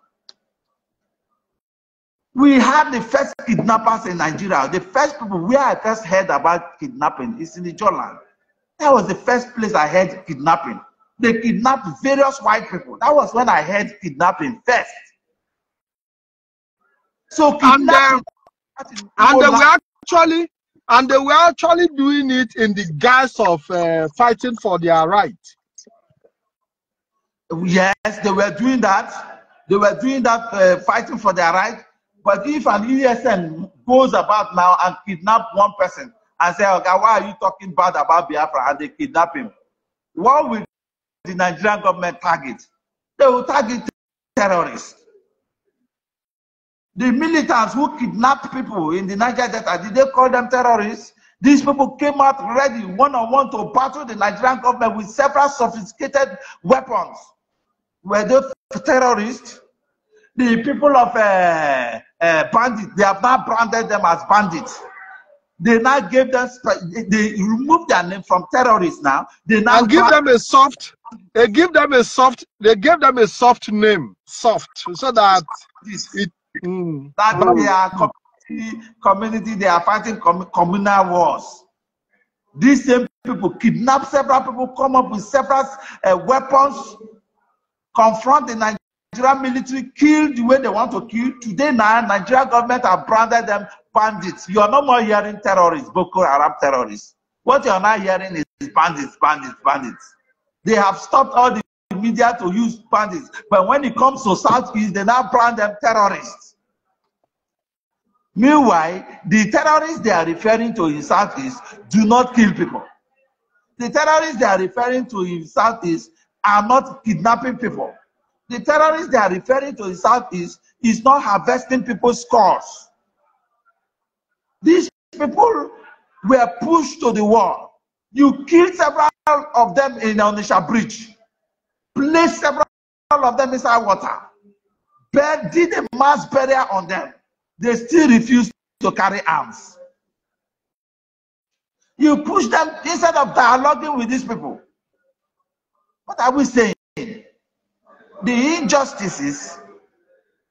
We had the first kidnappers in Nigeria. The first people where I first heard about kidnapping is in the Jordan. That was the first place I heard kidnapping. They kidnapped various white people. That was when I heard kidnapping first. So um, kidnapping. And, and they were actually and they were actually doing it in the guise of uh, fighting for their right. Yes, they were doing that. They were doing that, uh, fighting for their right. But if an ESN goes about now and kidnap one person and say, okay, why are you talking bad about Biafra? And they kidnap him. What will the Nigerian government target? They will target terrorists. The militants who kidnapped people in the Niger Delta, did they call them terrorists? These people came out ready, one on one, to battle the Nigerian government with several sophisticated weapons. Were they terrorists? The people of uh, uh, bandits. They have now branded them as bandits. They now gave them, they removed their name from terrorists now. They now and give them a soft, they give them a soft, they gave them a soft name, soft, so that it, mm, that mm. they are community, community, they are fighting com communal wars. These same people kidnap several people, come up with several uh, weapons, confront the Nigerian Nigerian military kill the way they want to kill. Today now, Nigerian government have branded them bandits. You are no more hearing terrorists, Boko Haram terrorists. What you are now hearing is bandits, bandits, bandits. They have stopped all the media to use bandits. But when it comes to Southeast, they now brand them terrorists. Meanwhile, the terrorists they are referring to in Southeast do not kill people. The terrorists they are referring to in Southeast are not kidnapping people. The terrorists they are referring to the Southeast is not harvesting people's scores. These people were pushed to the wall. You killed several of them in Onisha Bridge, placed several of them inside water, but did a mass burial on them. They still refused to carry arms. You push them instead of dialoguing with these people. What are we saying? The injustices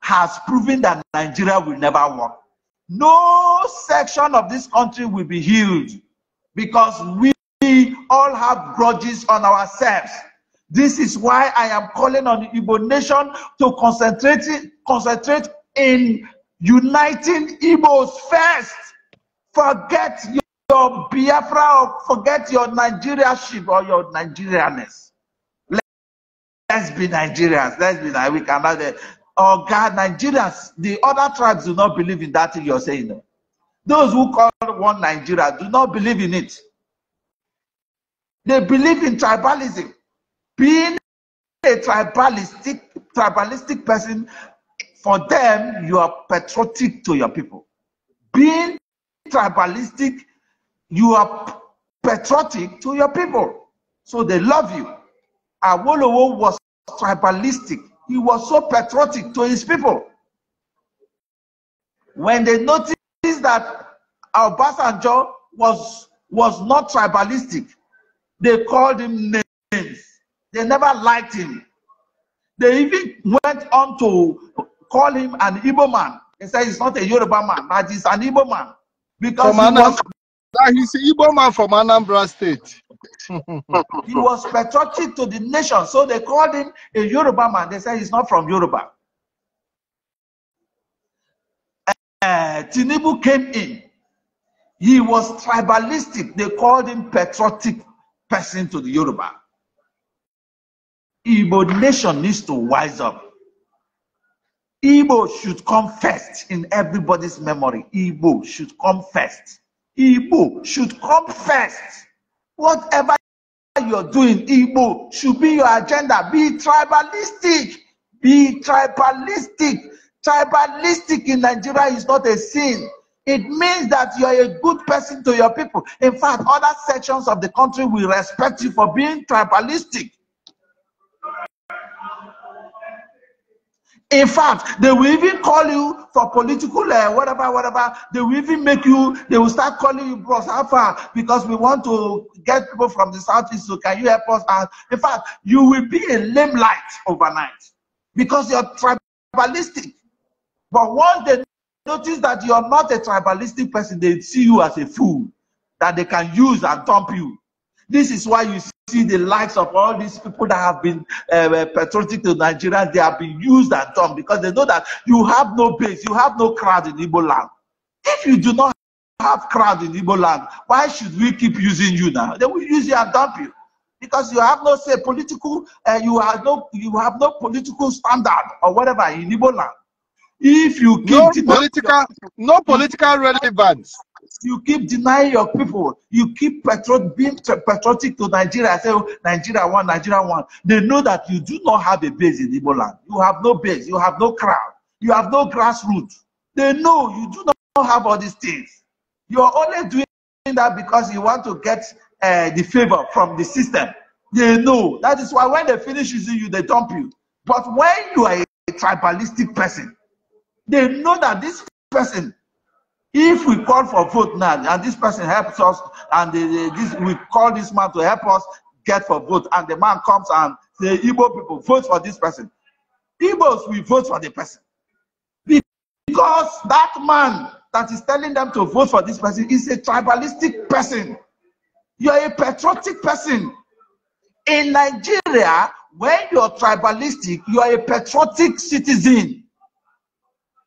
has proven that Nigeria will never work. No section of this country will be healed because we all have grudges on ourselves. This is why I am calling on the Igbo nation to concentrate, concentrate in uniting Igbos first. Forget your Biafra or forget your ship or your Nigerianness. Let's be Nigerians. Let's be Nigerians. We eh, Oh God, Nigerians, the other tribes do not believe in that thing you're saying. Those who call one Nigeria do not believe in it. They believe in tribalism. Being a tribalistic, tribalistic person, for them, you are patriotic to your people. Being tribalistic, you are patriotic to your people. So they love you. Awolowo was tribalistic. He was so patriotic to his people. When they noticed that Obasanjo was, was not tribalistic, they called him names. They never liked him. They even went on to call him an Igbo man. They said he's not a Yoruba man, but he's an Igbo man. Because he was... he's an Igbo man from Anambra State. he was patriotic to the nation. So they called him a Yoruba man. They said he's not from Yoruba. Uh, Tinubu came in. He was tribalistic. They called him patriotic person to the Yoruba. Igbo nation needs to wise up. Igbo should come first in everybody's memory. Igbo should come first. Igbo should come first. Whatever you're doing, Igbo, should be your agenda. Be tribalistic. Be tribalistic. Tribalistic in Nigeria is not a sin. It means that you are a good person to your people. In fact, other sections of the country will respect you for being tribalistic. In fact, they will even call you for political uh, whatever, whatever. They will even make you, they will start calling you Bros Alpha because we want to get people from the Southeast. So can you help us out? In fact, you will be a limelight overnight because you're tribalistic. But once they notice that you're not a tribalistic person, they see you as a fool that they can use and dump you. This is why you see the likes of all these people that have been um, uh, patriotic to Nigerians. They have been used and done because they know that you have no base, you have no crowd in Igbo land. If you do not have crowd in Igbo land, why should we keep using you now? They will use you and dump you because you have no say political, uh, you have no you have no political standard or whatever in Igbo land. If you keep no political, no political relevance. You keep denying your people. You keep being patriotic to Nigeria. I say, oh, Nigeria one, Nigeria one. They know that you do not have a base in Igbo land. You have no base. You have no crowd. You have no grassroots. They know you do not have all these things. You are only doing that because you want to get uh, the favor from the system. They know. That is why when they finish using you, they dump you. But when you are a tribalistic person, they know that this person if we call for vote now, and this person helps us, and this, we call this man to help us get for vote, and the man comes and the Igbo people, vote for this person. Igbos will vote for the person. Because that man that is telling them to vote for this person is a tribalistic person. You are a patriotic person. In Nigeria, when you are tribalistic, you are a patriotic citizen.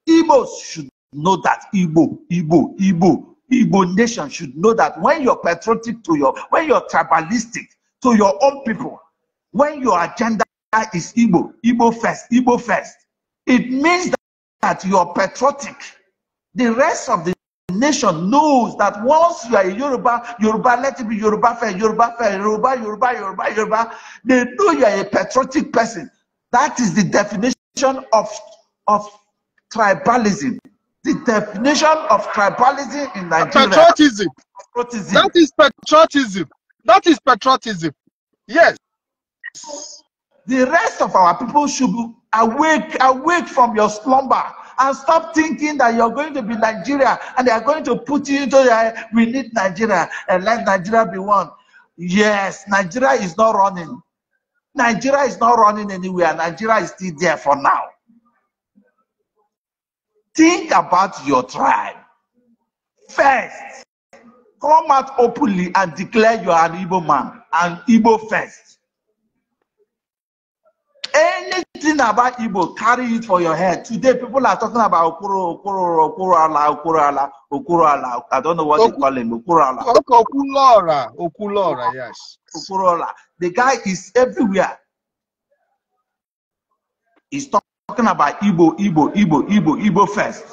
Igbos should know that Igbo, Igbo, Igbo, Igbo nation should know that when you're patriotic to your, when you're tribalistic to your own people, when your agenda is Igbo, Igbo first, Igbo first, it means that you're patriotic. The rest of the nation knows that once you are a Yoruba, Yoruba, let it be Yoruba first, Yoruba first, Yoruba, Yoruba, Yoruba, Yoruba. They know you are a patriotic person. That is the definition of, of tribalism the definition of tribalism in Nigeria. Patriotism. patriotism. That is patriotism. That is patriotism. Yes. The rest of our people should be awake, awake from your slumber and stop thinking that you're going to be Nigeria and they are going to put you into the, we need Nigeria and let Nigeria be one. Yes, Nigeria is not running. Nigeria is not running anywhere. Nigeria is still there for now. Think about your tribe first. Come out openly and declare you are an Igbo man and Igbo first. Anything about Igbo, carry it for your head. Today, people are talking about Okoro, Okoro, Okoro Ala, Okoro Ala, Okoro Ala. I don't know what they call him. Okoro Ala. Okulora. Okulora, yes. Okoro Ala. The guy is everywhere. He's talking talking about Igbo, Igbo, Igbo, Igbo, Igbo first.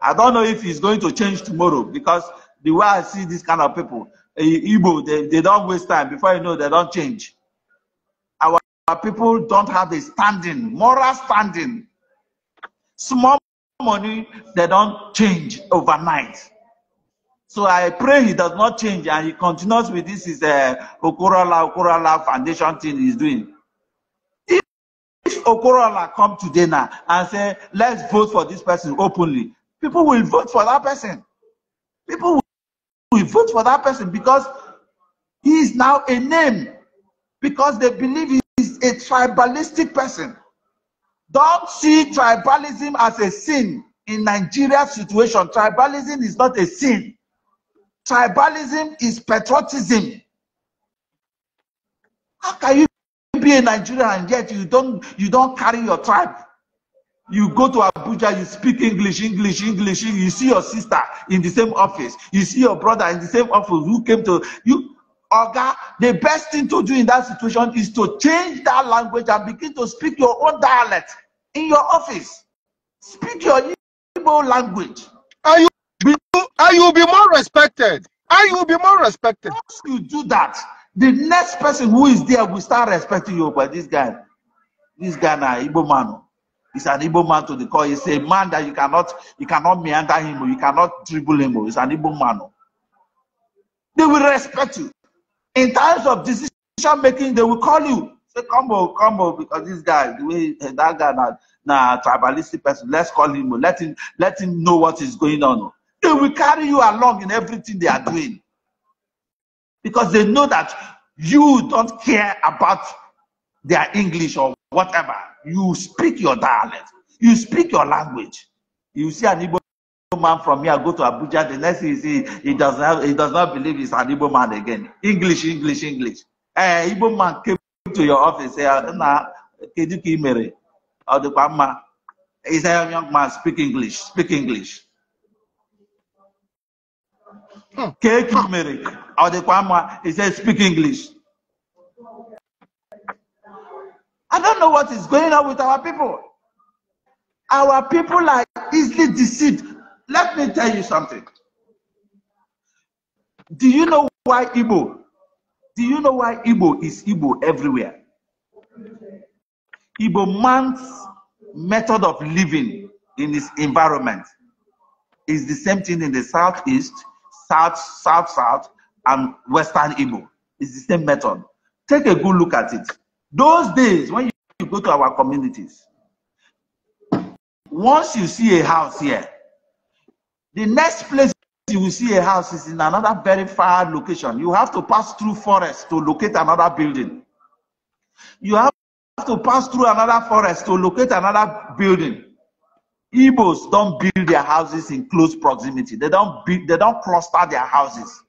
I don't know if it's going to change tomorrow because the way I see this kind of people, eh, Igbo, they, they don't waste time. Before you know, they don't change. Our, our people don't have the standing, moral standing. Small money, they don't change overnight. So I pray he does not change and he continues with this is a eh, Okorala Okorala Foundation thing he's doing. Okorola come today now and say, let's vote for this person openly, people will vote for that person. People will vote for that person because he is now a name, because they believe he is a tribalistic person. Don't see tribalism as a sin in Nigeria's situation. Tribalism is not a sin. Tribalism is patriotism. How can you be a Nigerian and yet you don't you don't carry your tribe. You go to Abuja, you speak English, English, English. You see your sister in the same office. You see your brother in the same office who came to you. Oga, the best thing to do in that situation is to change that language and begin to speak your own dialect in your office. Speak your Igbo language. And you, be, you will be more respected. And you will be more respected. Once you do that, the next person who is there will start respecting you. But this guy, this guy now, Igbo man, is an Igbo man to the core. He's a man that you cannot, you cannot meander him, oh. you cannot dribble him. Oh. He's an Igbo man. Oh. They will respect you. In times of decision making, they will call you. Say, come on, come on, because this guy, the way eh, that guy now, now tribalistic person, let's call him, let him, let him know what is going on. They will carry you along in everything they are doing because they know that you don't care about their English or whatever. You speak your dialect, you speak your language. You see an Igbo man from here go to Abuja, the next thing you see, he does not, he does not believe he's an Igbo man again. English, English, English. Eh, uh, Igbo man came to your office, say, ah, na, kedu ka imere? Ọ dịkwa mma. He a young man, speak English, speak English. Cake hmm. turmeric. he speak English. I don't know what is going on with our people. Our people are easily deceived. Let me tell you something. Do you know why Igbo? Do you know why Igbo is Igbo everywhere? Igbo man's method of living in his environment is the same thing in the southeast, South, South, South, and Western Igbo. It's the same method. Take a good look at it. Those days, when you, you go to our communities, once you see a house here, the next place you will see a house is in another very far location. You have to pass through forest to locate another building. You have to pass through another forest to locate another building. Igbos don't build their houses in close proximity. They don't build, they don't cluster their houses.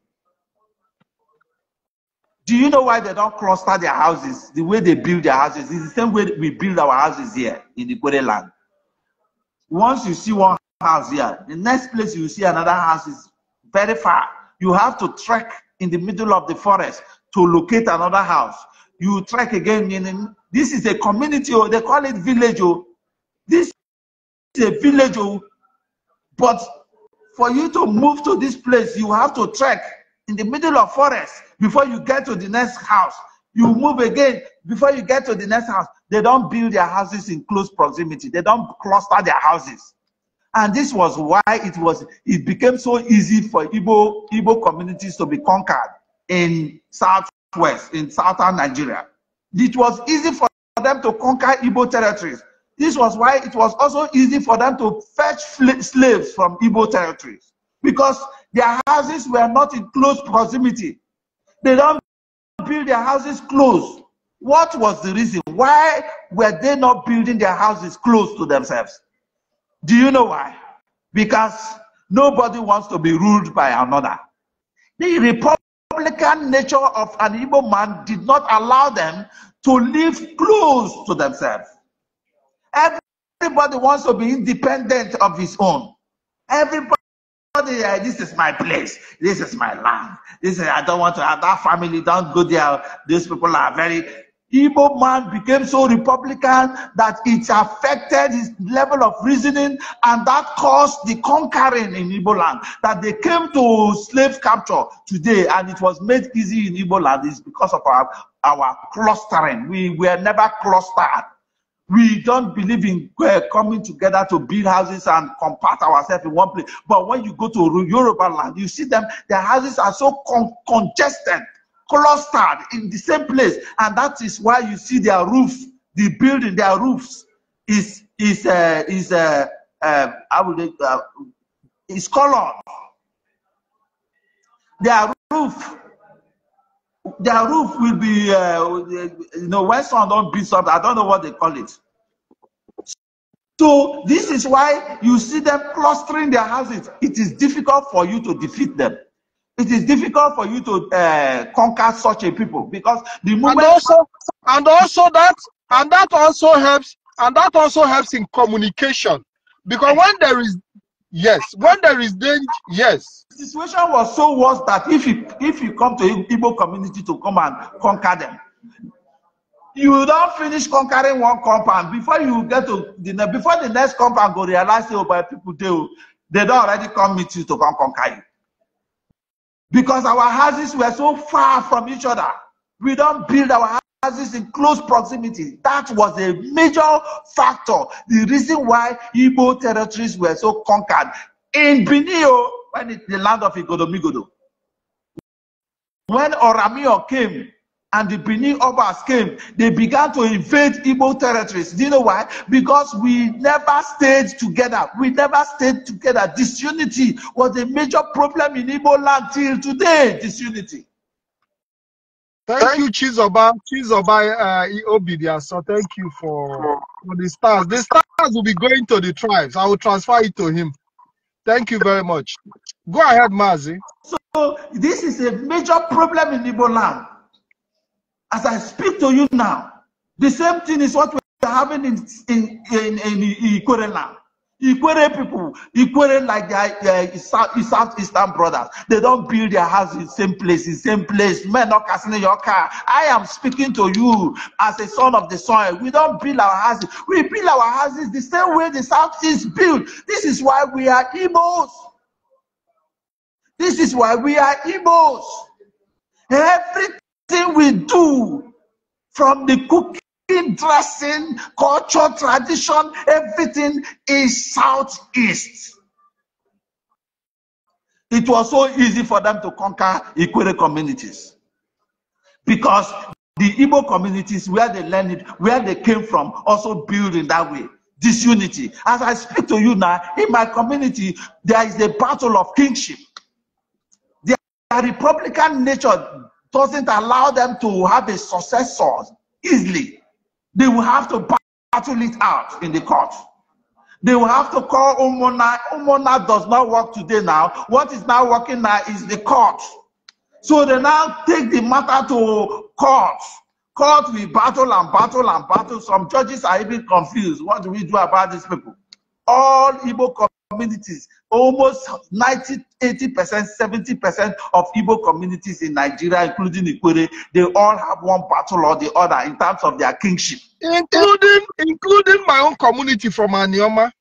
Do you know why they don't cluster their houses? The way they build their houses is the same way we build our houses here in the Kore land. Once you see one house here, the next place you see another house is very far. You have to trek in the middle of the forest to locate another house. You trek again. meaning This is a community, or oh, they call it village. Oh. This a village, oh. but for you to move to this place, you have to trek in the middle of forest before you get to the next house. You move again before you get to the next house. They don't build their houses in close proximity. They don't cluster their houses. And this was why it was it became so easy for Igbo, Igbo communities to be conquered in southwest, in southern Nigeria. It was easy for them to conquer Igbo territories this was why it was also easy for them to fetch slaves from Igbo territories because their houses were not in close proximity. They don't build their houses close. What was the reason? Why were they not building their houses close to themselves? Do you know why? Because nobody wants to be ruled by another. The republican nature of an Igbo man did not allow them to live close to themselves. Everybody wants to be independent of his own. Everybody, eh, this is my place. This is my land. This is, I don't want to have that family. Don't go there. These people are very. Igbo man became so Republican that it affected his level of reasoning, and that caused the conquering in Igbo land. That they came to slave capture today, and it was made easy in Igbo land is because of our, our clustering. We were never clustered. We don't believe in uh, coming together to build houses and compact ourselves in one place. But when you go to Yoruba land, you see them, their houses are so con- congested, clustered in the same place. And that is why you see their roof, the building, their roofs is, is, uh, is, uh, uh, I would, uh, is colored. Their roof their roof will be, uh, you know, when some don't build something, I don't know what they call it. So this is why you see them clustering their houses. It is difficult for you to defeat them. It is difficult for you to uh, conquer such a people because the movement and also and also that and that also helps and that also helps in communication because when there is Yes, when there is danger, yes. The situation was so worse that if you if you come to Igbo community to come and conquer them, you don finish conquering one compound before you get to the before the next compound go realize say oh my people oh, They they don't already come meet you to come conquer you because our houses were so far from each other we don't build our house houses in close proximity. That was a major factor, the reason why Igbo territories were so conquered. In Benio, oh, when it's the land of Igodomigodo, when Oramio came and the Benin Obas came, they began to invade Igbo territories. Do you know why? Because we never stayed together. We never stayed together. Disunity was a major problem in Igbo land till today, disunity. Thank you, Chizoba, Chizoba uh, So thank you for, for the stars. The stars will be going to the tribes. I will transfer it to him. Thank you very much. Go ahead, Mazi. So this is a major problem in Ibo land. As I speak to you now, the same thing is what we're having in in in, in, in Ikore land. Ikwere people, Ikwere like their uh, South Eastern brothers, they don't build their house in same place, in same place. Men not casting your car. I am speaking to you as a son of the soil. We don't build our houses. We build our houses the same way the is built. This is why we are Igbos. This is why we are Igbos. Everything we do, from the cooking dressing, culture, tradition, everything is Southeast. It was so easy for them to conquer Ikwere communities because the Igbo communities where they learned it, where they came from, also build in that way. Disunity. As I speak to you now, in my community, there is a battle of kingship. The Republican nature doesn't allow them to have a successor easily. They will have to battle it out in the court. They will have to call Omona. Omona does not work today now. What is now working now is the court. So they now take the matter to court. Court, will battle and battle and battle. Some judges are even confused. What do we do about these people? All Igbo communities almost 90, 80%, 70% of Igbo communities in Nigeria, including Ikwere, they all have one battle or the other in terms of their kingship. Including including my own community from Anioma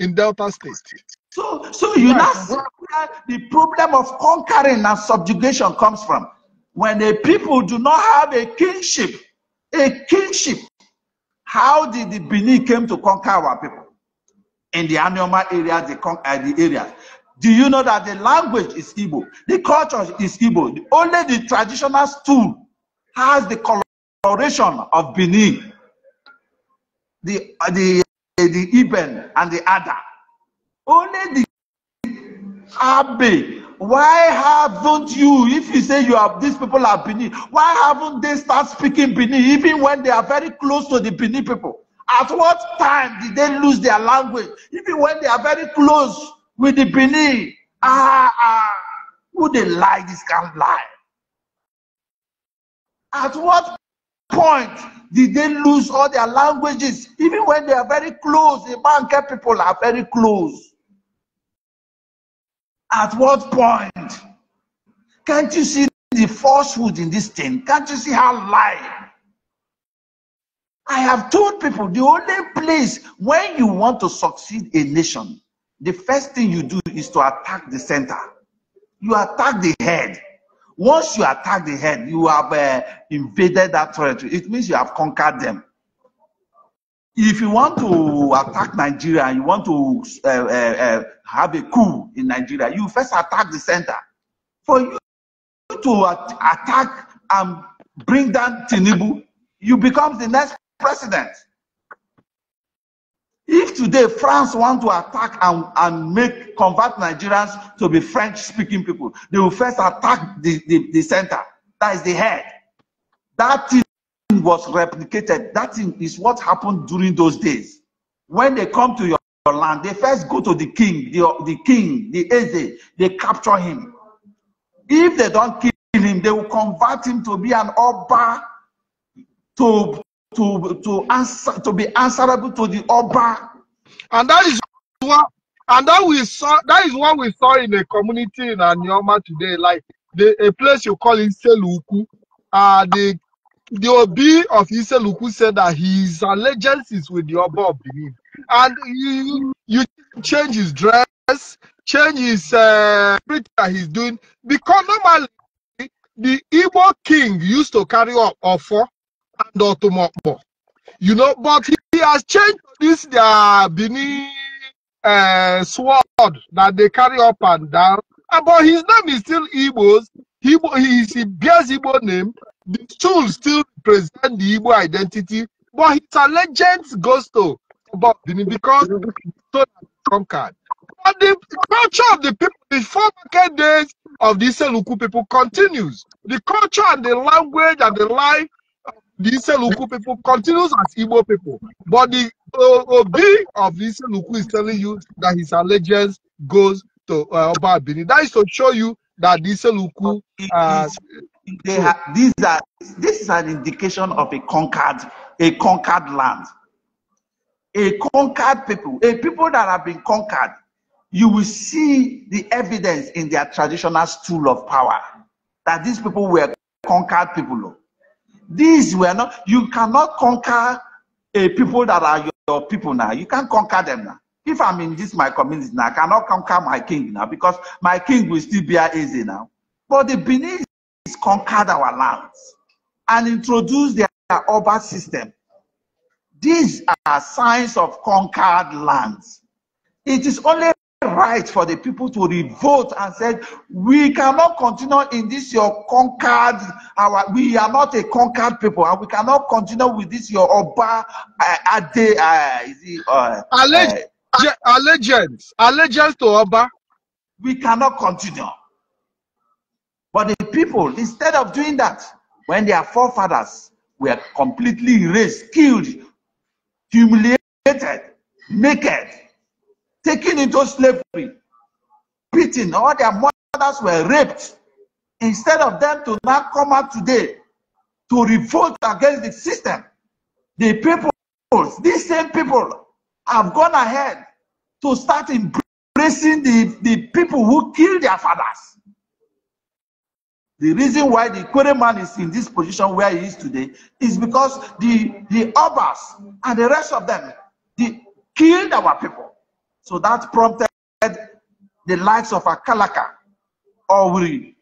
in Delta State. So, so you know where the problem of conquering and subjugation comes from. When the people do not have a kingship, a kingship, how did the Bini came to conquer our people? in the Anioma area, the, uh, the areas. Do you know that the language is Igbo? The culture is Igbo. Only the traditional stool has the coloration of Benin, the, uh, the, uh, the Iben, and the Ada. Only the Abe. Why haven't you, if you say you have these people are Benin, why haven't they start speaking Benin even when they are very close to the Benin people? At what time did they lose their language? Even when they are very close with the Benin. Ah, ah, would they lie? This can't lie. At what point did they lose all their languages? Even when they are very close, the Banker people are very close. At what point? Can't you see the falsehood in this thing? Can't you see how lying? I have told people the only place when you want to succeed a nation, the first thing you do is to attack the center. You attack the head. Once you attack the head, you have uh, invaded that territory. It means you have conquered them. If you want to attack Nigeria and you want to uh, uh, uh, have a coup in Nigeria, you first attack the center. For you to at attack and bring down Tinubu, you become the next president. If today France want to attack and, and make convert Nigerians to be French-speaking people, they will first attack the, the, the center. That is the head. That thing was replicated. That thing is what happened during those days. When they come to your, your land, they first go to the king, the, the king, the Eze, they capture him. If they don't kill him, they will convert him to be an Oba, to to, to answer to be answerable to the Oba. And that is what and that we saw that is what we saw in the community in Anioma today. Like the a place you call Iseluku. Uh the the Obi of Iseluku said that his allegiance is with the Oba of Benin. And you you change his dress, change his uh that he's doing because normally the Igbo king used to carry up offer you know, but he, he has changed this their Bini uh, sword that they carry up and down. But his name is still Igbos. He, he, he bears Igbo name. The tools still represent the Igbo identity. But it's a legend ghost about Bini because so conquered. But the culture of the people, the four days of the Seluku people continues. The culture and the language and the life the Iselukwu people continues as Igbo people. But the Obi of the Iselukwu is telling you that his allegiance goes to uh, Oba That is to show you that the Iselukwu. Uh, they have, these are, this is an indication of a conquered, a conquered land. A conquered people, a people that have been conquered, you will see the evidence in their traditional stool of power that these people were conquered people. These were not, you cannot conquer a people that are your, your people now. You can't conquer them now. If I'm in this my community now, I cannot conquer my king now because my king will still a easy now. But the Benin conquered our lands and introduced their urban system. These are signs of conquered lands. It is only right for the people to revolt and said, We cannot continue in this your conquered our we are not a conquered people, and we cannot continue with this your Oba uh, Ade uh, is it, uh, Alleg uh, allegiance, allegiance to Oba. We cannot continue. But the people, instead of doing that, when their forefathers were completely erased, killed, humiliated, naked, taken into slavery, beaten, or their mothers were raped. Instead of them to now come out today to revolt against the system, the people, these same people, have gone ahead to start embracing the, the people who killed their fathers. The reason why the query man is in this position where he is today is because the the Obas and the rest of them they killed our people. So that prompted the likes of Akalaka, Owri,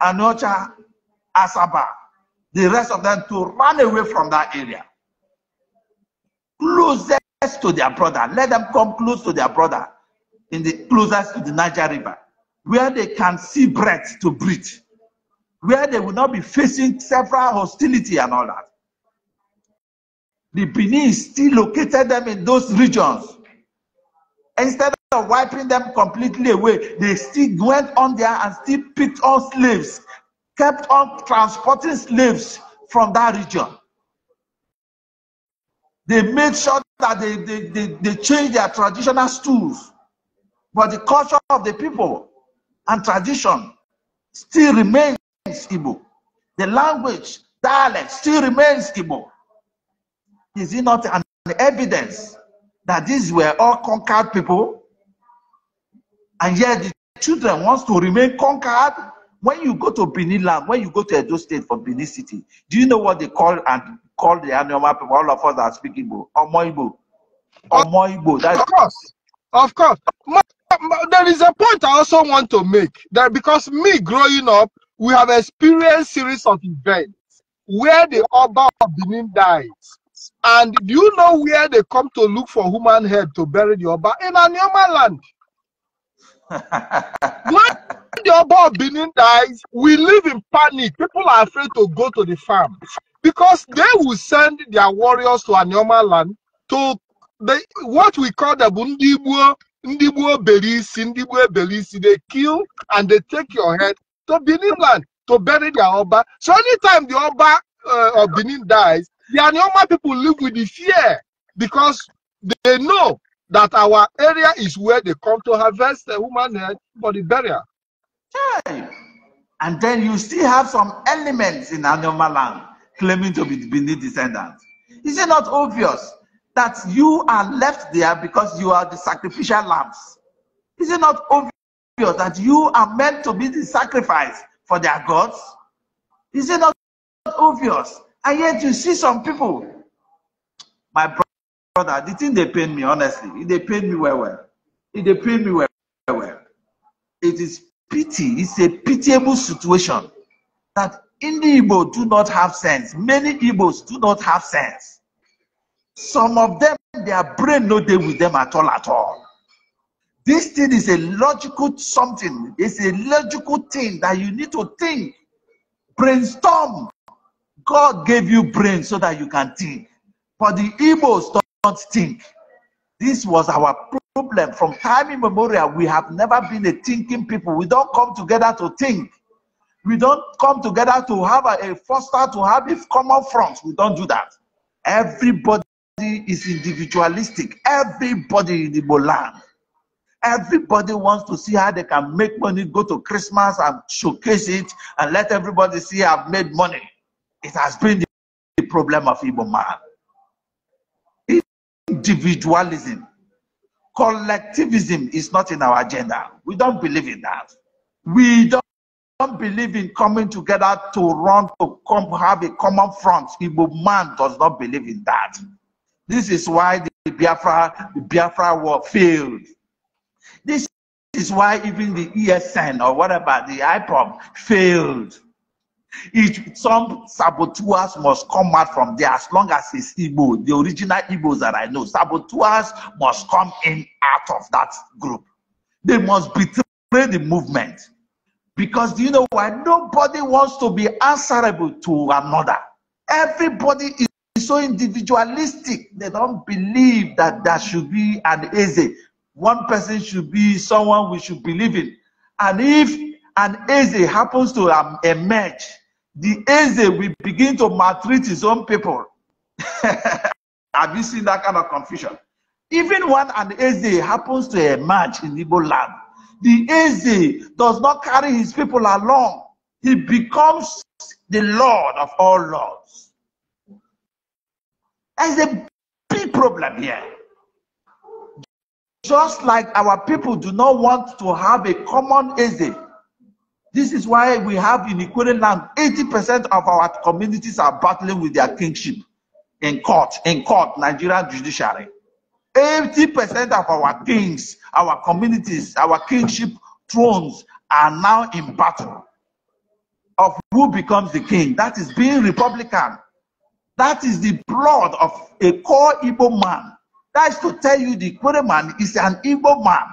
Anocha, Asaba, the rest of them to run away from that area. Closest to their brother. Let them come close to their brother in the closest to the Niger River, where they can see breath to breathe, where they will not be facing several hostility and all that. The Benin still located them in those regions Instead of wiping them completely away, they still went on there and still picked on slaves, kept on transporting slaves from that region. They made sure that they, they, they, they changed their traditional stools, but the culture of the people and tradition still remains Igbo. The language, dialect still remains Igbo. Is it not an evidence that these were all conquered people, and yet the children wants to remain conquered. When you go to Benin land, when you go to Edo State for Benin City, do you know what they call and call the Anioma people? All of us are speaking, Igbo, Omoibo, Omoibo. That's of course, of course. My, my, there is a point I also want to make that because me growing up, we have experienced series of events where the Oba of Benin dies, and do you know where they come to look for human head to bury the Oba? In Anyama land. when the Oba of Benin dies, we live in panic. People are afraid to go to the farm because they will send their warriors to Anyama land to the, what we call the Bundibuo, Ndibuo Belisi, Ndibuo Belisi. They kill and they take your head to Benin land to bury their Oba. So anytime the Oba uh, of Benin dies, the normal people live with the fear because they know that our area is where they come to harvest the human head for the burial. Hey. And then you still have some elements in Anoma land claiming to be Bini descendants. Is it not obvious that you are left there because you are the sacrificial lambs? Is it not obvious that you are meant to be the sacrifice for their gods? Is it not obvious and yet you see some people, my brother, the thing they paid me, honestly, they paid me well, well. They paid me well, well. It is pity, it's a pitiable situation that the Igbo do not have sense. Many Igbos do not have sense. Some of them, their brain no deal with them at all, at all. This thing is a logical something. It's a logical thing that you need to think, brainstorm, God gave you brain so that you can think. But the Igbos don't think. This was our problem. From time immemorial, we have never been a thinking people. We don't come together to think. We don't come together to have a, a foster, to have a common front. We don't do that. Everybody is individualistic. Everybody in the land. Everybody wants to see how they can make money, go to Christmas and showcase it, and let everybody see I've made money. It has been the problem of Igbo man. Individualism, collectivism is not in our agenda. We don't believe in that. We don't don't believe in coming together to run to come have a common front. Igbo man does not believe in that. This is why the Biafra, the Biafra war failed. This is why even the ESN or whatever, the IPOM failed. If some saboteurs must come out from there as long as it's Igbo, the original Igbos that I know. Saboteurs must come in out of that group. They must betray the movement. Because you know why? Nobody wants to be answerable to another. Everybody is so individualistic. They don't believe that there should be an easy One person should be someone we should believe in. And if an easy happens to emerge, the Eze will begin to maltreat his own people. Have you seen that kind of confusion? Even when an Eze happens to emerge in Igbo land, the Eze does not carry his people along. He becomes the Lord of all lords. There's a big problem here. Just like our people do not want to have a common Eze, this is why we have in Equatorial land, 80% of our communities are battling with their kingship in court, in court, Nigerian judiciary. 80% of our kings, our communities, our kingship thrones are now in battle of who becomes the king. That is being Republican. That is the blood of a core Igbo man. That is to tell you the Kwere man is an Igbo man.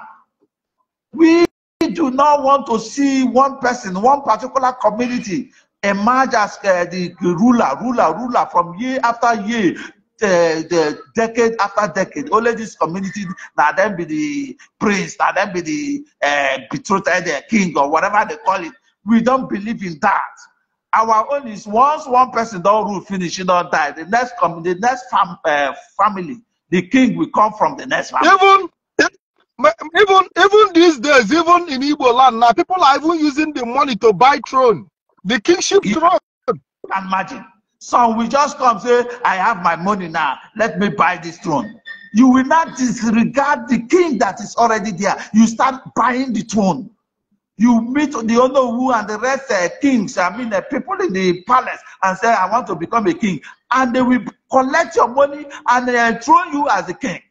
We we do not want to see one person, one particular community emerge as uh, the ruler, ruler, ruler from year after year, the, the decade after decade. Only this community now then be the prince, now then be the uh, betrothed the uh, king or whatever they call it. We don't believe in that. Our own is once one person don't rule finish, he don't die. The next com- the next fam- uh, family, the king will come from the next family. Even even even these days, even in Igbo land now, people are even using the money to buy throne, the kingship yeah. throne. Can imagine. Some will just come say, "I have my money now. Let me buy this throne." You will not disregard the king that is already there. You start buying the throne. You meet the who and the rest uh, kings, I mean, uh, people in the palace, and say, I want to become a king. And they will collect your money and uh, throw you as a king.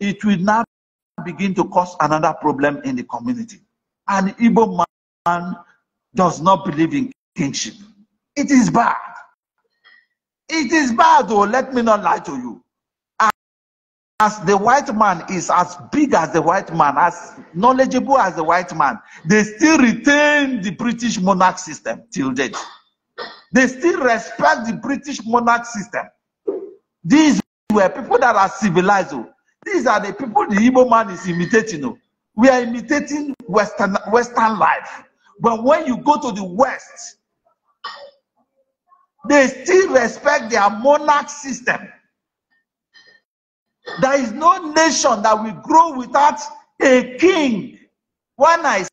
It will not begin to cause another problem in the community. An Igbo man does not believe in kingship. It is bad. It is bad, though. Let me not lie to you. As the white man is as big as the white man, as knowledgeable as the white man, they still retain the British monarch system till date. They still respect the British monarch system. These were people that are civilized. Oh. These are the people the evil man is imitating. Oh. We are imitating Western, Western life. But when you go to the West, they still respect their monarch system. There is no nation that will grow without a king. When I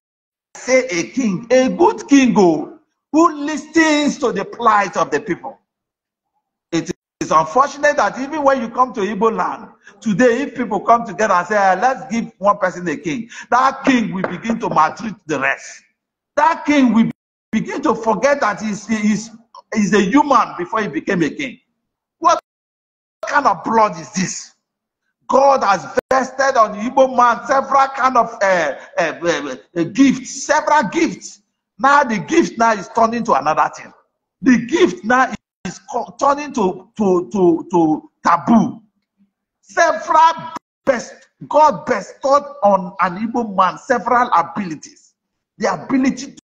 say a king, a good king oh, who listens to the plight of the people. It's unfortunate that even when you come to Igbo land, today, if people come together and say, ah, let's give one person a king, that king will begin to maltreat the rest. That king will begin to forget that he's, he's, he's a human before he became a king. What kind of blood is this? God has vested on the Igbo man several kind of uh, uh, uh, gifts, several gifts. Now the gift now is turned into another thing. The gift now is turning to, to, to, to taboo. Several best, God bestowed on an evil man several abilities. The ability to,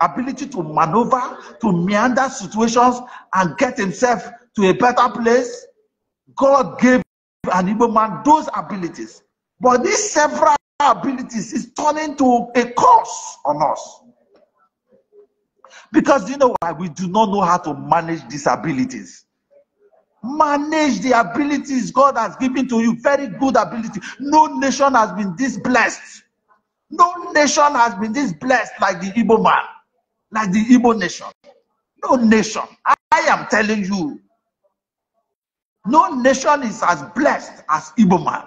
ability to maneuver, to meander situations and get himself to a better place. God gave an evil man those abilities. But these several abilities is turning to a curse on us. Because you know why? We do not know how to manage these abilities. Manage the abilities God has given to you. Very good ability. No nation has been this blessed. No nation has been this blessed like the Igbo man, like the Igbo nation. No nation. I, I am telling you, no nation is as blessed as Igbo man.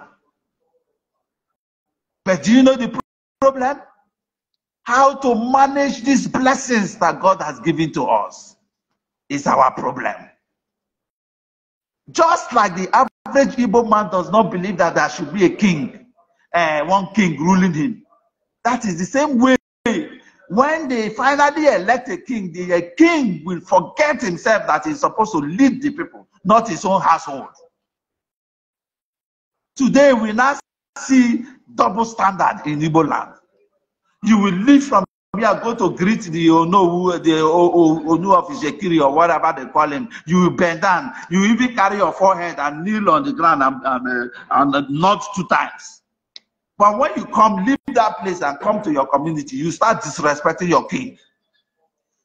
But do you know the problem? How to manage these blessings that God has given to us is our problem. Just like the average Igbo man does not believe that there should be a king, uh, one king ruling him. That is the same way when they finally elect a king, the eh, king will forget himself that he's supposed to lead the people, not his own household. Today, we now see double standard in Igbo land. You will leave from here, go to greet the Onowu, the Onu of Ishekiri or whatever they call him. You will bend down. You even carry your forehead and kneel on the ground and, and, uh, and uh, nod two times. But when you come, leave that place and come to your community, you start disrespecting your king.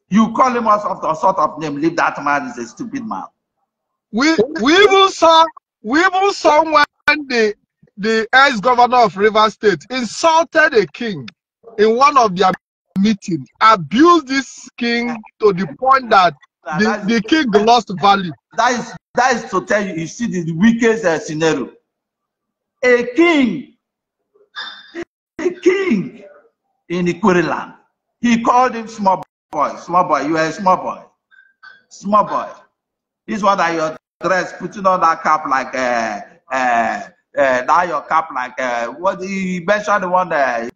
You call him out of sort of name. Leave that man is a stupid man. We we even saw we even saw when the the ex governor of River State insulted a king in one of their meetings, abused this king to the point that the, the king lost value. That is that is to tell you, you see the weakest uh, scenario. A king, a king in the Ikuri land. He called him small boy, small boy. You are a small boy, small boy. This one that you're dressed, putting on that cap like uh, uh, uh, now your cap like uh, what he mentioned the one that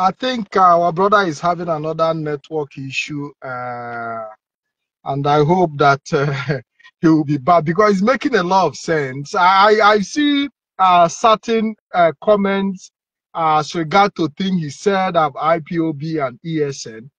I think uh, our brother is having another network issue, uh, and I hope that uh, he will be back because it's making a lot of sense. I I see uh, certain uh, comments uh, as regard to things he said of IPOB and ESN,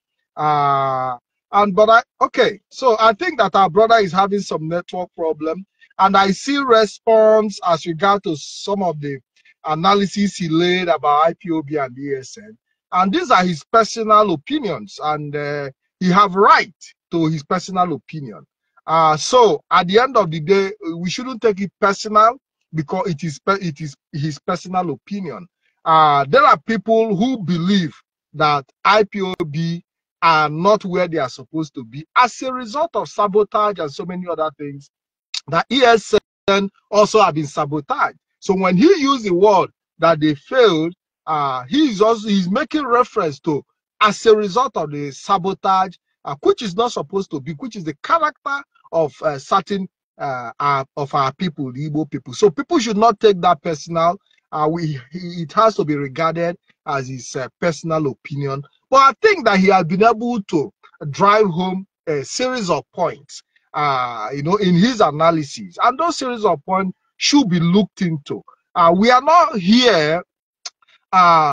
and but I okay. So I think that our brother is having some network problem, and I see response as regard to some of the analysis he laid about IPOB and ESN. And these are his personal opinions, and uh, he have right to his personal opinion. Uh, so at the end of the day, we shouldn't take it personal because it is it is his personal opinion. Uh, there are people who believe that IPOB are not where they are supposed to be as a result of sabotage and so many other things. That ESN also have been sabotaged. So when he used the word that they failed, uh, he's also he's making reference to as a result of the sabotage, uh, which is not supposed to be, which is the character of uh, certain uh, of our people, the Igbo people. So people should not take that personal. Uh, we it has to be regarded as his uh, personal opinion. But I think that he has been able to drive home a series of points, uh, you know, in his analysis, and those series of points should be looked into. we are not here uh,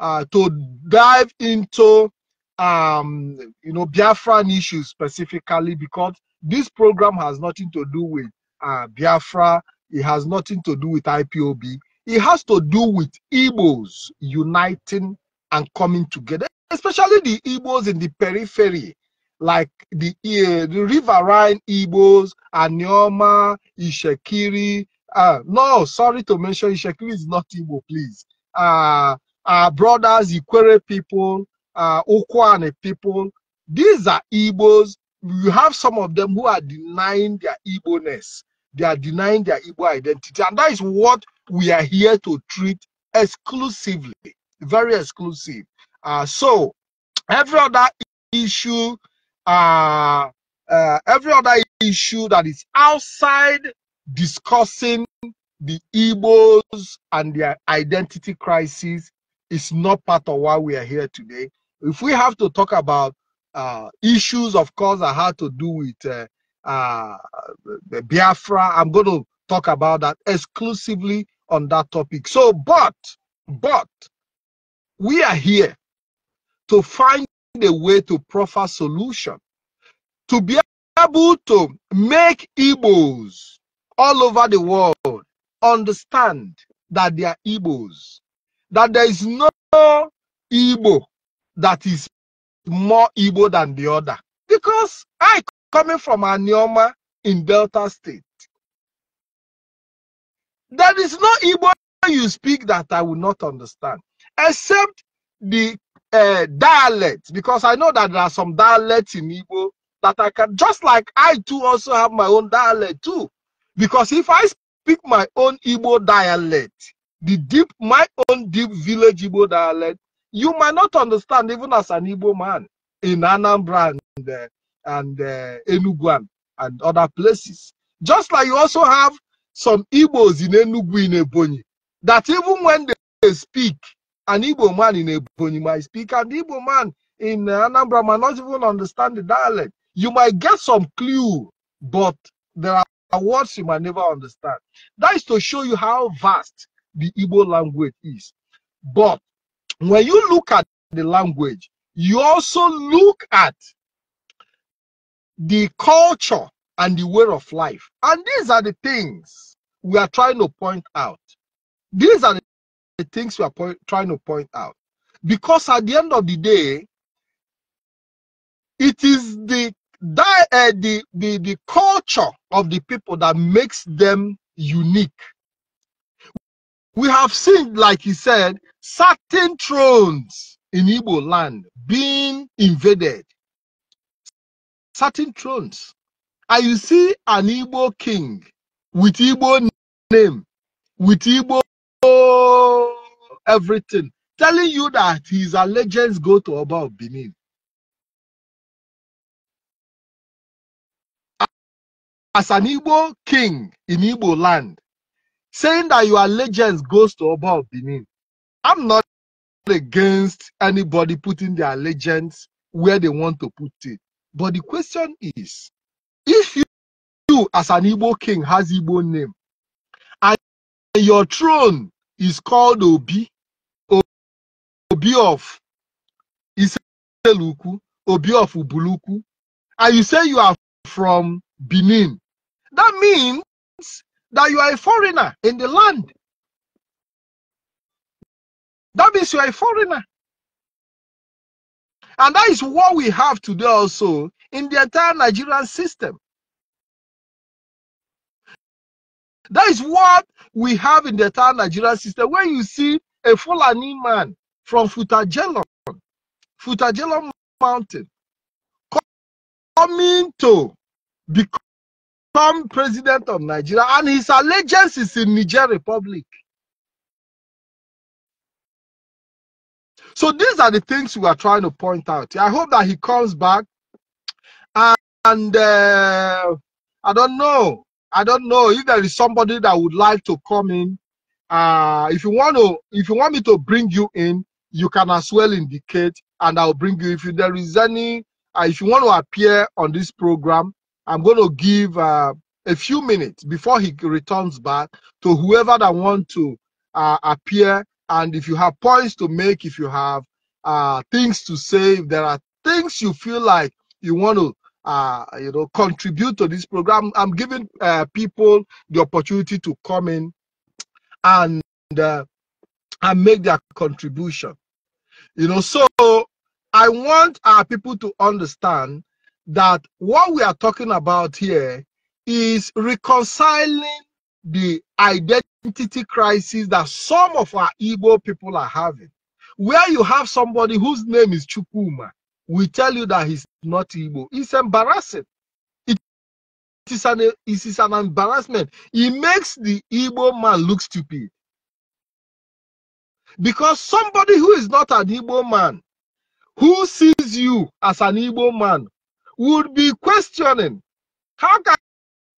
uh, to dive into um, you know Biafran issues specifically because this program has nothing to do with uh, Biafra. It has nothing to do with IPOB. It has to do with Igbos uniting and coming together, especially the Igbos in the periphery, like the uh, the riverine Igbos, Anioma, Ishekiri. Uh, no, sorry to mention Ishekiri is not Igbo, please uh, our uh, brothers, Ikwere people, uh, Okwane people. These are Igbos. You have some of them who are denying their Igbo-ness. They are denying their Igbo identity. And that is what we are here to treat exclusively, very exclusive. Uh, so every other issue, uh, uh, every other issue that is outside discussing the Igbos and their identity crisis is not part of why we are here today. If we have to talk about uh, issues, of course, that had to do with uh, uh, Biafra, I'm going to talk about that exclusively on that topic. So, but, but, we are here to find a way to proffer solution, to be able to make Igbos all over the world understand that they are Igbos, that there is no Igbo that is more Igbo than the other. Because I, coming from Anioma in Delta State, there is no Igbo you speak that I will not understand, except the uh, because I know that there are some dialects in Igbo that I can, just like I too also have my own dialect too. Because if I speak my own Igbo dialect, the deep, my own deep village Igbo dialect, you might not understand even as an Igbo man in Anambra and, uh, and uh, Enugu and other places. Just like you also have some Igbos in Enugu in Ebonyi, that even when they speak, an Igbo man in Ebonyi might speak, and Igbo man in Anambra might not even understand the dialect. You might get some clue, but there are words you might never understand. That is to show you how vast the Igbo language is. But when you look at the language, you also look at the culture and the way of life. And these are the things we are trying to point out. These are the things we are point, trying to point out. Because at the end of the day, it is the that uh, the, the the culture of the people that makes them unique we have seen like he said certain thrones in Igbo land being invaded certain thrones and you see an Igbo king with Igbo name with Igbo everything telling you that his allegiance go to above Benin as an Igbo king in Igbo land, saying that your allegiance goes to Oba of Benin, I'm not against anybody putting their allegiance where they want to put it. But the question is, if you, you as an Igbo king has Igbo name, and your throne is called Obi, Obi of Iseluku, Obi of Ubuluku, and you say you are from Benin, that means that you are a foreigner in the land. That means you are a foreigner. And that is what we have today also in the entire Nigerian system. That is what we have in the entire Nigerian system. When you see a Fulani man from Futajelon, Futajelon Mountain, coming to become some president of Nigeria, and his allegiance is in Niger Republic. So these are the things we are trying to point out. I hope that he comes back, and, and uh, I don't know. I don't know if there is somebody that would like to come in. Uh, if you want to, if you want me to bring you in, you can as well indicate, and I'll bring you. If there is any, uh, if you want to appear on this program, I'm going to give uh, a few minutes before he returns back to whoever that want to uh, appear. And if you have points to make, if you have uh, things to say, if there are things you feel like you want to, uh, you know, contribute to this program, I'm giving uh, people the opportunity to come in and uh, and make their contribution. You know, so I want our uh, people to understand that what we are talking about here is reconciling the identity crisis that some of our Igbo people are having. Where you have somebody whose name is Chukuma, we tell you that he's not Igbo. It's embarrassing. It is an, it is an embarrassment. It makes the Igbo man look stupid. Because somebody who is not an Igbo man, who sees you as an Igbo man, would be questioning how can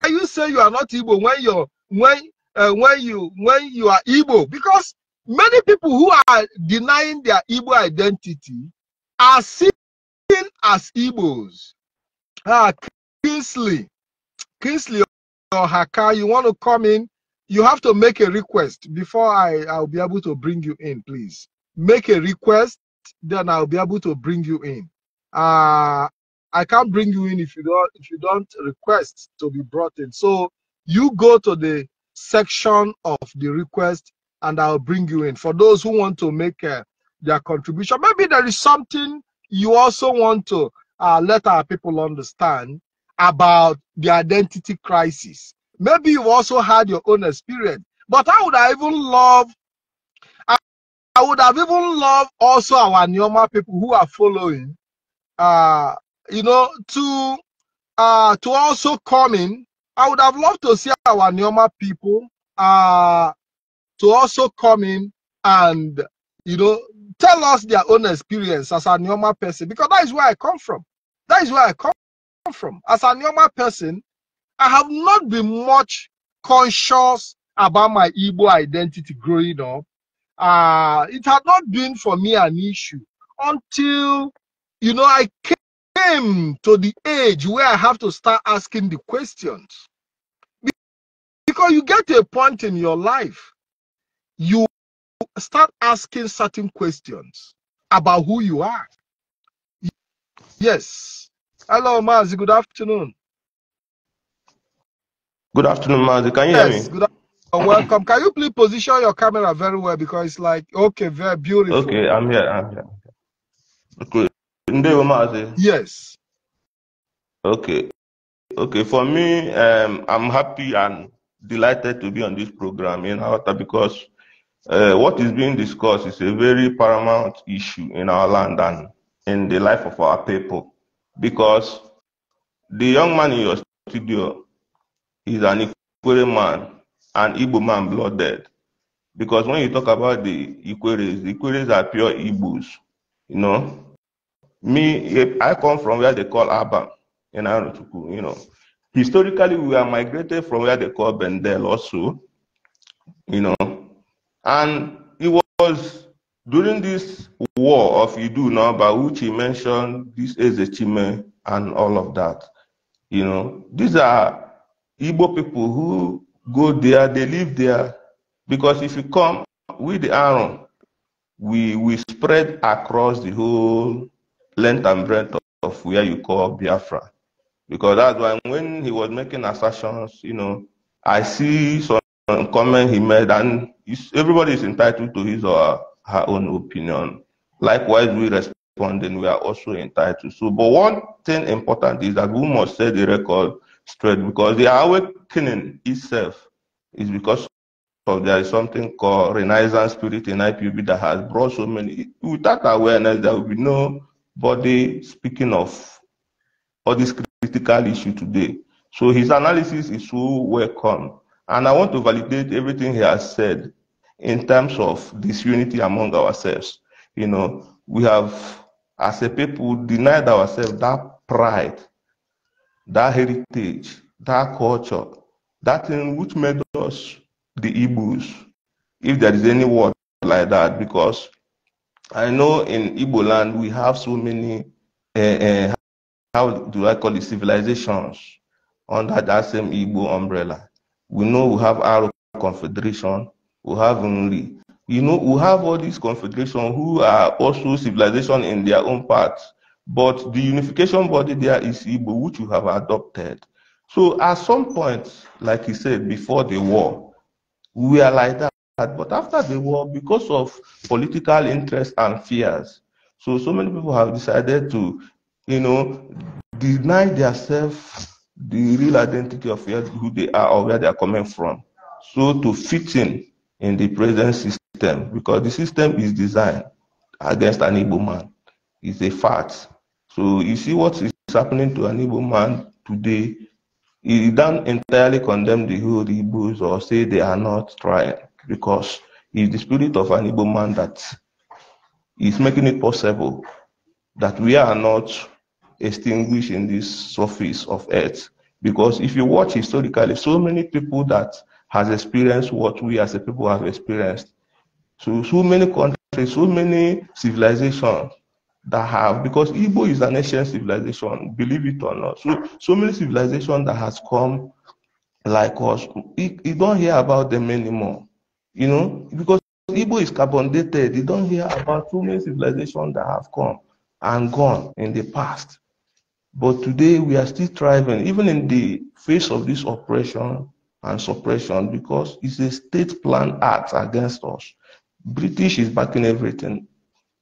you say you are not Igbo when you're when uh, when you when you are Igbo because many people who are denying their Igbo identity are seen as Igbos. Ah, Kingsley, Kingsley or Haka, you want to come in? You have to make a request before I I'll be able to bring you in. Please make a request, then I'll be able to bring you in. Uh, I can't bring you in if you don't if you don't request to be brought in. So you go to the section of the request and I'll bring you in. For those who want to make uh, their contribution, maybe there is something you also want to uh, let our people understand about the identity crisis. Maybe you also had your own experience, but I would have even love, I, I would have even loved also our Nyoma people who are following uh, you know, to uh, to also come in. I would have loved to see our Neoma people uh, to also come in and, you know, tell us their own experience as a Neoma person, because that is where I come from. That is where I come from. As a Neoma person, I have not been much conscious about my Igbo identity growing up. Uh, it had not been for me an issue until, you know, I came came to the age where I have to start asking the questions. Because you get to a point in your life, you start asking certain questions about who you are. Yes. Hello, Mazi. Good afternoon. Good afternoon, Mazi. Can you yes, hear me? Good afternoon. Welcome. Can you please position your camera very well because it's like okay, very beautiful. Okay, I'm here. I'm here. Okay. Yes. Okay. Okay, for me, um, I'm happy and delighted to be on this program in Awata because uh, what is being discussed is a very paramount issue in our land and in the life of our people. Because the young man in your studio is an Ikwere man, an Igbo man blooded. Because when you talk about the Ikweres, the Ikweres are pure Igbos, you know. Me, eh, I come from where they call Abba in you know. Historically, we are migrated from where they call Bendel also, you know. And it was during this war of Idu by which he mentioned, this is a Chime and all of that. You know, these are Igbo people who go there, they live there. Because if you come with the iron we, we spread across the whole length and breadth of, of where you call Biafra. Because that's why when he was making assertions, you know, I see some comment he made, and everybody is entitled to his or her own opinion. Likewise, we respond, and we are also entitled. So, but one thing important is that we must set the record straight because the awakening itself is because of there is something called Renaissance spirit in IPB that has brought so many. Without awareness, there will be no body speaking of all these critical issue today. So his analysis is so welcome. And I want to validate everything he has said in terms of disunity among ourselves. You know, we have, as a people, denied ourselves that pride, that heritage, that culture, that thing which made us the Igbos, if there is any word like that, because I know in Igbo land we have so many, uh, uh, how do I call it, civilizations under that same Igbo umbrella. We know we have our Confederation, we have only, You know, we have all these confederations who are also civilization in their own parts. But the unification body there is Igbo, which you have adopted. So at some point, like you said, before the war, we are like that that but after the war, because of political interests and fears, so so many people have decided to, you know, deny themselves the real identity of who they are or where they are coming from. So to fit in in the present system, because the system is designed against an able man. It's a fact. So you see what is happening to an able man today, He don't entirely condemn the whole Igbos or say they are not trying because it's the spirit of an Igbo man that is making it possible that we are not extinguished in this surface of earth. Because if you watch historically, so many people that has experienced what we as a people have experienced. So, so many countries, so many civilizations that have, because Igbo is an ancient civilization, believe it or not. So, so many civilizations that has come like us, you don't hear about them anymore. You know, because Igbo is carbon dated, you don't hear about too many civilizations that have come and gone in the past. But today we are still thriving, even in the face of this oppression and suppression, because it's a state plan act against us. British is backing everything.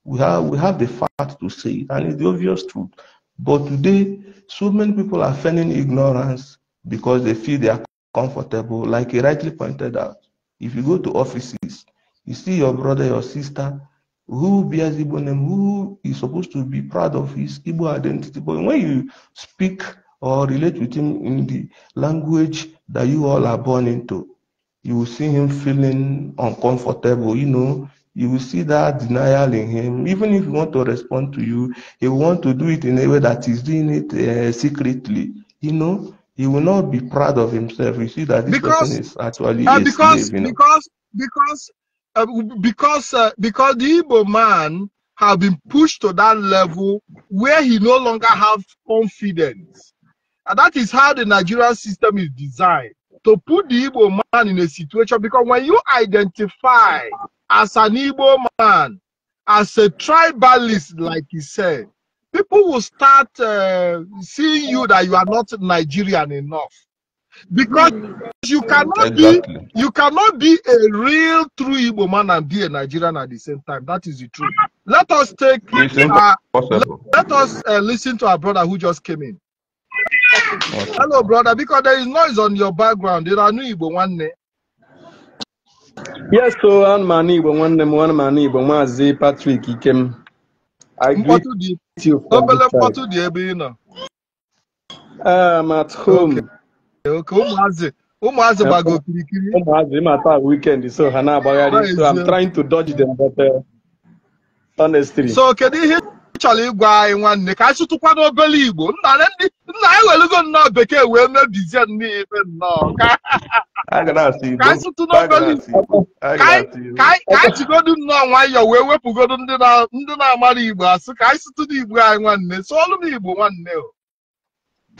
We have we have the fact to say it, and it's the obvious truth. But today, so many people are feigning ignorance because they feel they are comfortable, like he rightly pointed out. If you go to offices, you see your brother, your sister, who bears Igbo name, who is supposed to be proud of his Igbo identity. But when you speak or relate with him in the language that you all are born into, you will see him feeling uncomfortable, you know. You will see that denial in him. Even if he want to respond to you, he want to do it in a way that he's doing it uh, secretly, you know he will not be proud of himself. You see that this because, person is actually uh, because, slave, you know? because because uh, because uh, because the Igbo man have been pushed to that level where he no longer have confidence, and that is how the Nigerian system is designed to put the Igbo man in a situation. Because when you identify as an Igbo man, as a tribalist, like he said, people will start uh, seeing you that you are not Nigerian enough because hmm. you cannot exactly. be you cannot be a real true Igbo man and be a Nigerian at the same time. That is the truth. Let us take uh, let, let, us uh, listen to our brother who just came in. Okay. Hello, brother, because there is noise on your background. There are new Igbo one day. Yes, so one Mani Igbo one name, one Mani Igbo Mazi Patrick came. I mkpọtụ dị obere mkpọtụ dị ebe ị nọ um, at home. ụmụazị ụmụazị gbago okirikiri ụmụazị ịmata weekend so ha na-agbagharị so I'm trying to dodge them but uh, honestly. so kedu ihe chọrọ ịgwa anyị nwanne ka anyị sụtụkwa n'obere igbo nna anyị welugo nnọọ bekee wee mebizie n'ife nnọọ ka anyị sụtụ n'obere igbo ka anyị jigodu nnọọ nwayọọ wee wepụgodu ndị na-amara igbo asụ ka anyị sụtụ n'igbo anyị nwanne sụọlụ m igbo nwanne o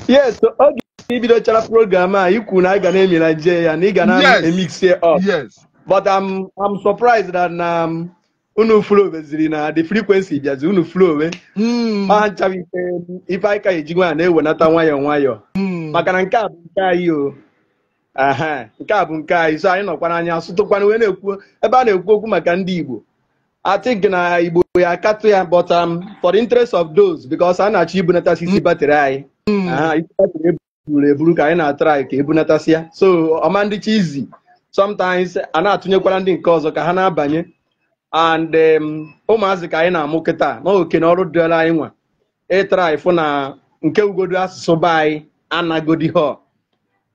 yes oge ibidochara program a ikwu na ị ga na-emi na nje ya na ị ga na emixie up but I'm surprised that um, unu flow ziri na the frequency bịazi unu flow we hmm. ma nchawa ike ife anyị ka eji nwa na-ewenata nwayọọ nwayọọ hmm. maka na nke a bụ nke anyị o nke a bụ nke anyị so anyị nọkwana anya sụtụkwana wee na-ekwu ebe a na-ekwu okwu maka ndị Igbo atik na Igbo ya katụ ya but um, for the interest of those because a na-achọ ibunatasi isi hmm. batrị anyị aha batịrị eburu eburu ka anyị na-atrai ka ya e so ọma ndị chizi sometimes a na-atụnyekwara ndị nke ọzọ ka ha na-abanye and um, ụmụazị ka anyị na-amụ kịta na na ọrụ dịla anyị nwa ịtara ịfụ na nke ugodu asụsụ be anyị anagodi ha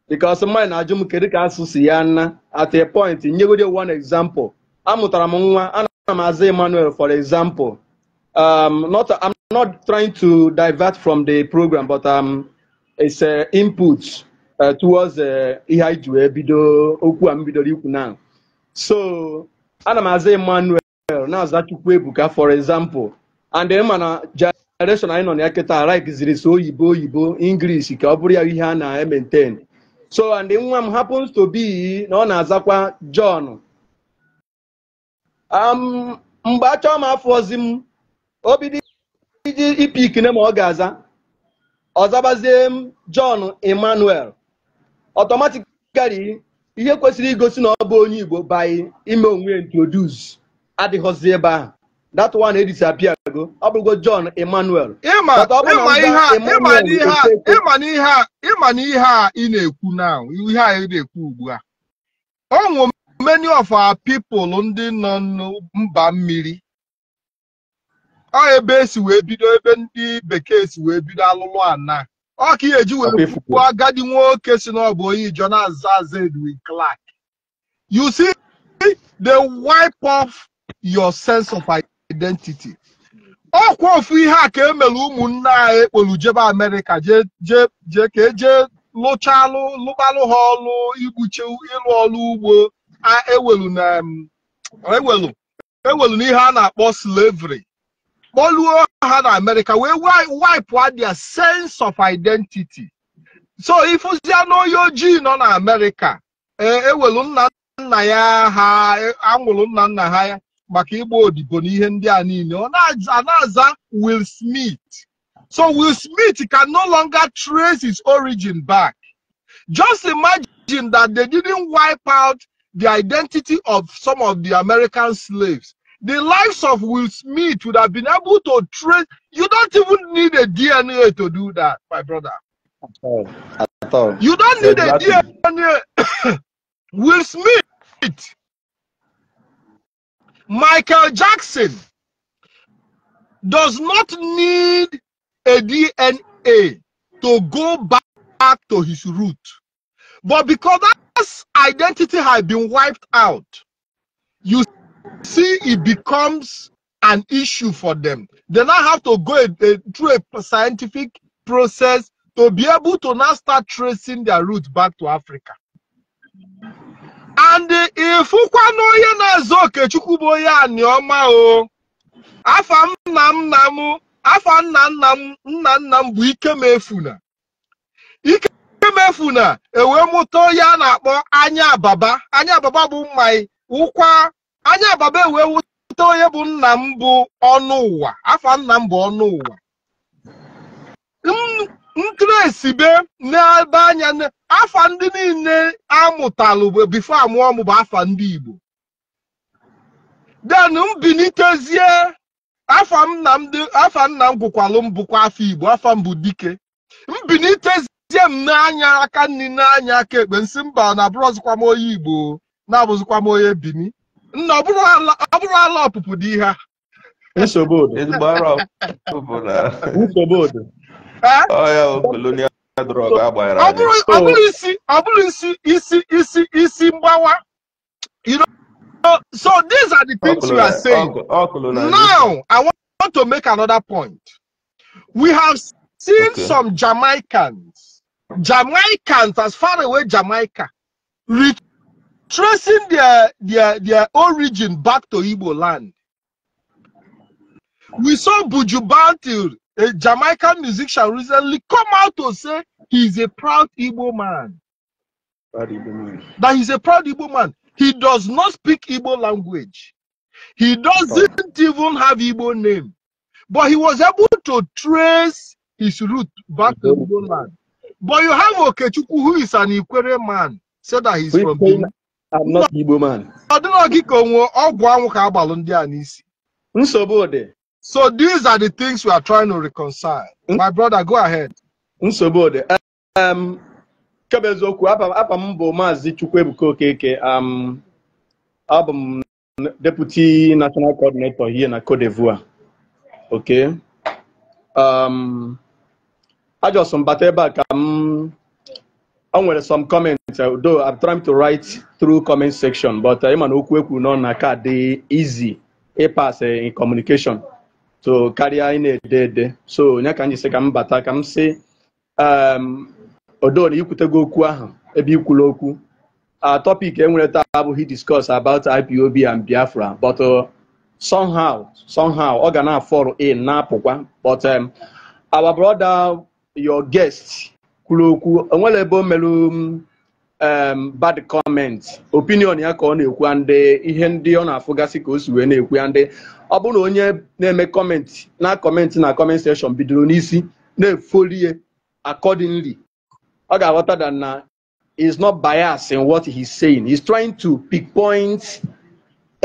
bikos mmanya na-ajụ m kedu ka asụsụ si ya nna at a point nyegodi one example amụtara m nwa ana m aza Emmanuel for example um, not, I'm not trying to divert from the program but um, it's uh, input uh, towards uh, ihe anyị ji wee bido okwu a m bidoro ikwu na so ana m aza Emmanuel Daniel na-aza ebuka for example and ma mana generation anyị nọ na ya kịta so oyibo oyibo English ka ọ bụrụ ya ihe a na-maintain so and nwa m happens to be na ọ na-azakwa John um, mgbe achọọ m afọ ozi m obido iji ipikine ma ọ ga-aza ọzabazie m John Emmanuel automatically ihe kwesịrị igosi na ọ bụ onye Igbo by ime onwe introduce adịghọzi ebe ahụ that one edisapia go ọ bụrụgo John Emmanuel ịma na ihe a ị na-ekwu na ihe a ị na-ekwu ugbu a onwe many of our people ndị nọ mba mmiri ọ ebe esi wee bido ebe ndị bekee si wee bido alụlụ ana ọ ka eji wee kwuo agadi nwoke si n'ọbụ oyi Jonas Edwin Clark you see the wipe off your sense of identity ọkwa ofu ihe a ka emere ụmụnne anyị ekpolu jebe amerịka jee ka eje lụchalụ lụbalụ ha ọlụ igbuche ịlụ ọlụ ugbo ewelu e e n'ihe a na-akpọ slavery kpọluo ha na amerịka wee wipụ their sense of identity so ifụzia na ojii nọ na amerịka ewelu e nna nna ya ha anwụrụ nna nna ha ya maka ịgba odibo na ihe ndị a niile ọ na-aza Will Smith so Will Smith can no longer trace his origin back just imagine that they didn't wipe out the identity of some of the American slaves the lives of Will Smith would have been able to trace you don't even need a DNA to do that my brother at all. At all. you don't need a DNA Will Smith Michael Jackson does not need a DNA to go back to his root. But because that identity has been wiped out, you see it becomes an issue for them. They now have to go a, a, through a scientific process to be able to now start tracing their roots back to Africa. ndị ịfụkwana onye na-azụ okechukwu bụ onye aniọma o afa nna nna m afa nna nna m nna nna m bụ ikemefuna ikemefuna e mụta onye a na-akpọ anya ababa anya ababa bụ mmanyi ụkwa anya ababa ewee mụta onye bụ nna m bụ ọnụ ụwa afa nna m bụ ọnụ ụwa ntresibe n'ebe anya afa ndị niile amụtalụ bifo amụọ m bụ afa ndị Igbo den mbilitezie afa nna m gwụkwalụ m bụkwa afọ Igbo afa mbụ dike mbilitezie m n'anya aka nri n'anya aka ekpe nsị mba na abụrụzikwa m onye Igbo na-abụzikwa m onye Bini nna ọ bụrụ ala ọpụpụ dị ihe ha nsogbu nsogbu Oh, you know so these are the things we are saying now i want to make another point we have seen okay. some jamaicans jamaicans as far away jamaica tracing their their their origin back to Igbo land we saw buju a Jamaican musician recently come out to say he's a proud Igbo man. Proud Igbo man. That he's a proud Igbo man. He does not speak Igbo language. He doesn't even have Igbo name. But he was able to trace his root back to Igbo land. But you have Okechukwu, who is an Ikwere man, said so that he's is from Benin. I'm not Igbo man. I don't know. Nsogbu dị. So these are the things we are trying to reconcile. Mm My brother, go ahead. Nsogbu um, ọ dị. Kebe eziokwu, apa m bụ Maazị Chukwuebuka Okeke. Abụ m um, Deputy National Coordinator here na Cote d'Ivoire. Okay. Um, ajọsọ m bata ebe a ka m o nwere some comments uh, though I'm trying to write through comment section but ịma uh, na okwu ekwu nọ na ka dị easy ịpas e uh, in communication. so karịa ị na-ede ede so onye ka m ji sị ka m bata ka m si um, odona ikwutego okwu ahụ ebe ikwula okwu topic enwere taa abụghị discuss about IPOB and Biafra but uh, somehow somehow ọ ga na-afọrọ in na-apụkwa but um, our brother your guest kwuru okwu onwere ebe o merụ Um, bad comment opinion ya ka ọ na-ekwu ndị ihe ndị ọ na-afụgasị ka o si wee na-ekwu ndị ọ bụrụ na onye na-eme comment na comment na kọment sekshọn bidoro n'isi na-efolie accordingly ọ ga-aghọta that na is not bias in what he's saying he's trying to pick points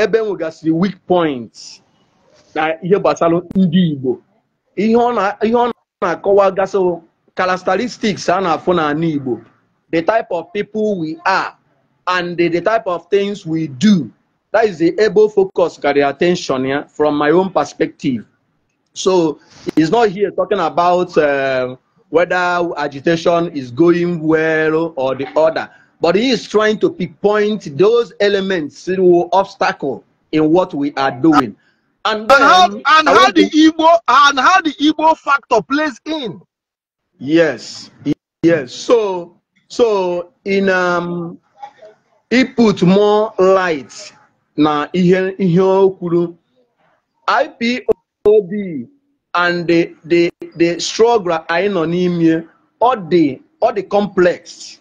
ebe e nwegasịrị weak points na ihe gbasara ndị Igbo ihe ọ na-akọwa gasị characteristics a na-afụ n'ala Igbo the type of people we are and the, the type of things we do. That is the able focus, got the attention yeah, from my own perspective. So he's not here talking about uh, whether agitation is going well or the other, but he is trying to pinpoint those elements, through obstacle in what we are doing. And, then, how, and how the Igbo and how the Igbo factor plays in. Yes, yes. So so in um, put more light na ihe ihe o ipob and the the the struggle anyị nọ n'ime All the all the complex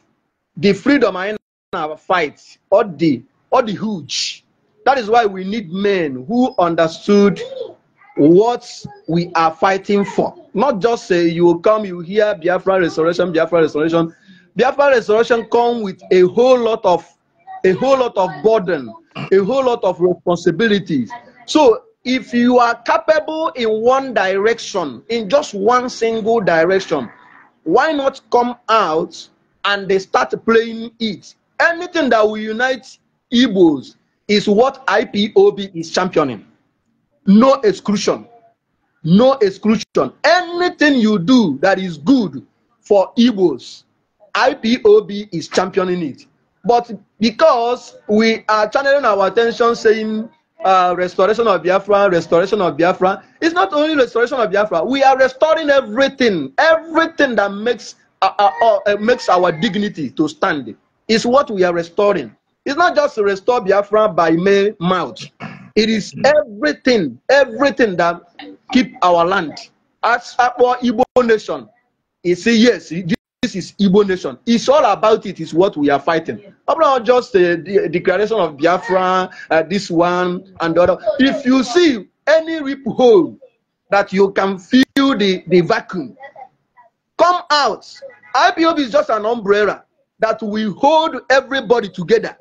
the freedom anyị na fight All the all the huge that is why we need men who understood what we are fighting for not just say you will come you hear biafra restoration biafra restoration Biafra resolution come with a whole lot of a whole lot of burden, a whole lot of responsibilities. So if you are capable in one direction, in just one single direction, why not come out and they start playing it? Anything that will unite Igbos is what IPOB is championing. No exclusion. No exclusion. Anything you do that is good for Igbos IPOB is championing it. But because we are channeling our attention saying uh, restoration of Biafra, restoration of Biafra, it's not only restoration of Biafra. We are restoring everything, everything that makes uh, uh, uh, uh makes our dignity to stand. It is what we are restoring. It's not just to restore Biafra by mere mouth. It is everything, everything that keep our land. As our Igbo nation, you see, yes, this is Igbo nation. It's all about it, is what we are fighting. Yeah. Not just uh, the uh, declaration of Biafra, uh, this one and the other. If you see any rip hole that you can feel the, the vacuum, come out. IPOB is just an umbrella that will hold everybody together.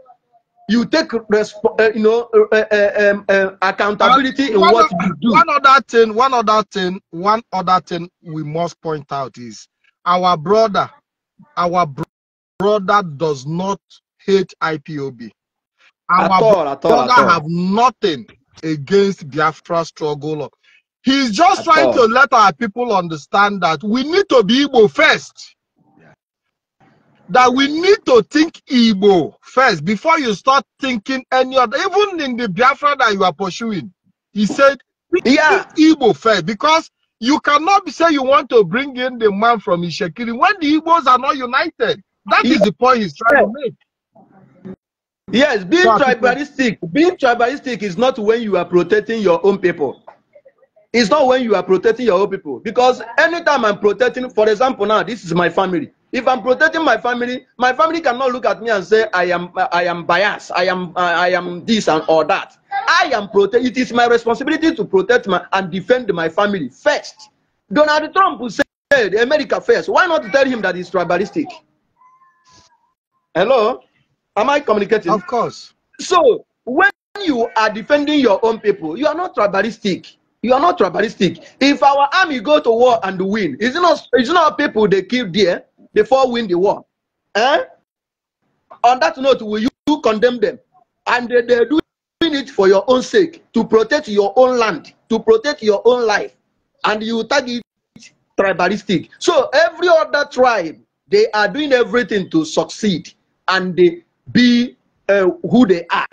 You take resp- uh, you know uh, uh, um, uh accountability in what you do. One other thing, one other thing, one other thing we must point out is our brother our brother does not hate IPOB. Our at all, at all, brother at all. have nothing against Biafra struggle. He's just at trying all. to let our people understand that we need to be Igbo first. That we need to think Igbo first before you start thinking any other. Even in the Biafra that you are pursuing, he said, yeah. Igbo first because you cannot say you want to bring in the man from Ishekiri when the Igbos are not united. That is the point he's trying to make. Yes, being so tribalistic, being tribalistic is not when you are protecting your own people. It's not when you are protecting your own people. Because anytime I'm protecting, for example, now this is my family. If I'm protecting my family, my family cannot look at me and say I am I am biased, I am I am this and all that. I am protect. It is my responsibility to protect my and defend my family first. Donald Trump will the America first. Why not tell him that he's tribalistic? Hello, am I communicating? Of course. So when you are defending your own people, you are not tribalistic. You are not tribalistic. If our army go to war and win, it's not it not people they kill there before win the war. Eh? On that note, will you condemn them? And they, they do it for your own sake, to protect your own land, to protect your own life, and you target tribalistic. So every other tribe, they are doing everything to succeed and they be uh, who they are.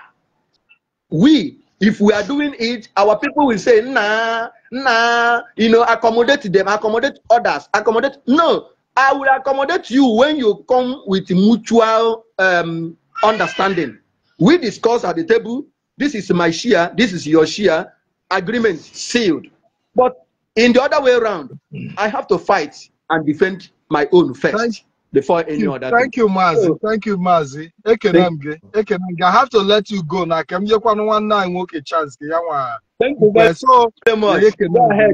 We, if we are doing it, our people will say, nah, nah, you know, accommodate them, accommodate others, accommodate. No, I will accommodate you when you come with mutual um, understanding. We discuss at the table, this is my share. This is your share. Agreement sealed. But in the other way around, I have to fight and defend my own first thank before any you, other. Thank thing. you, Mazi. Oh. Thank you, Mazi. Ekenamge. I have to let you go now. Come here, Thank you guys eh, so much. Go ahead.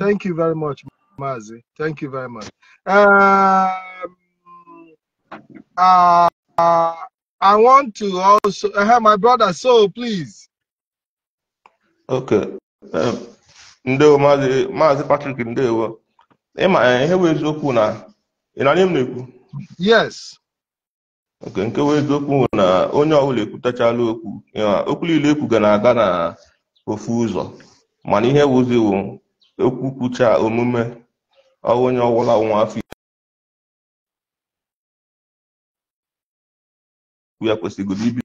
Thank you very much, Mazi. Thank you very much. Um, uh, uh, I want to also have uh, my brother, so please. Okay. Um, ndewo maazị maazị Patrick ndewo. ma, eh, ihe bụ eziokwu na ị na-anya m na-ekwu? Yes. Okay, nke bụ eziokwu na onye ọbụla ekwutachala okwu okwu niile e ga na-aga na ofu ụzọ mana ihe wụziwo okwu kwucha omume onye ọbụla nwa afọ ya kwesịgoro ibi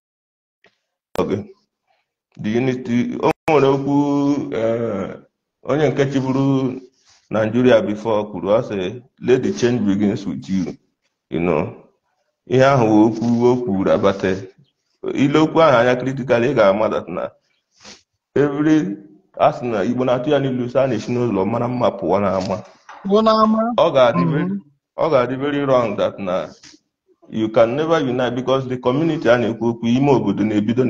o nwere okwu e, onye nke chịbụrụ Nigeria before kwuru ase let the change begins with you you know ihe ahụ okwu okwu kwuru abata ile okwu ahụ anya critical ị ga-ama that na every arsenal sị Igbo na-atụ ya n'ilu sa na-esi n'ụlọ mara mma pụọ n'ama mm-hmm. ọ ga-adị very wrong that na you can never unite because the community and na-ekwu okwu ime obodo na-ebido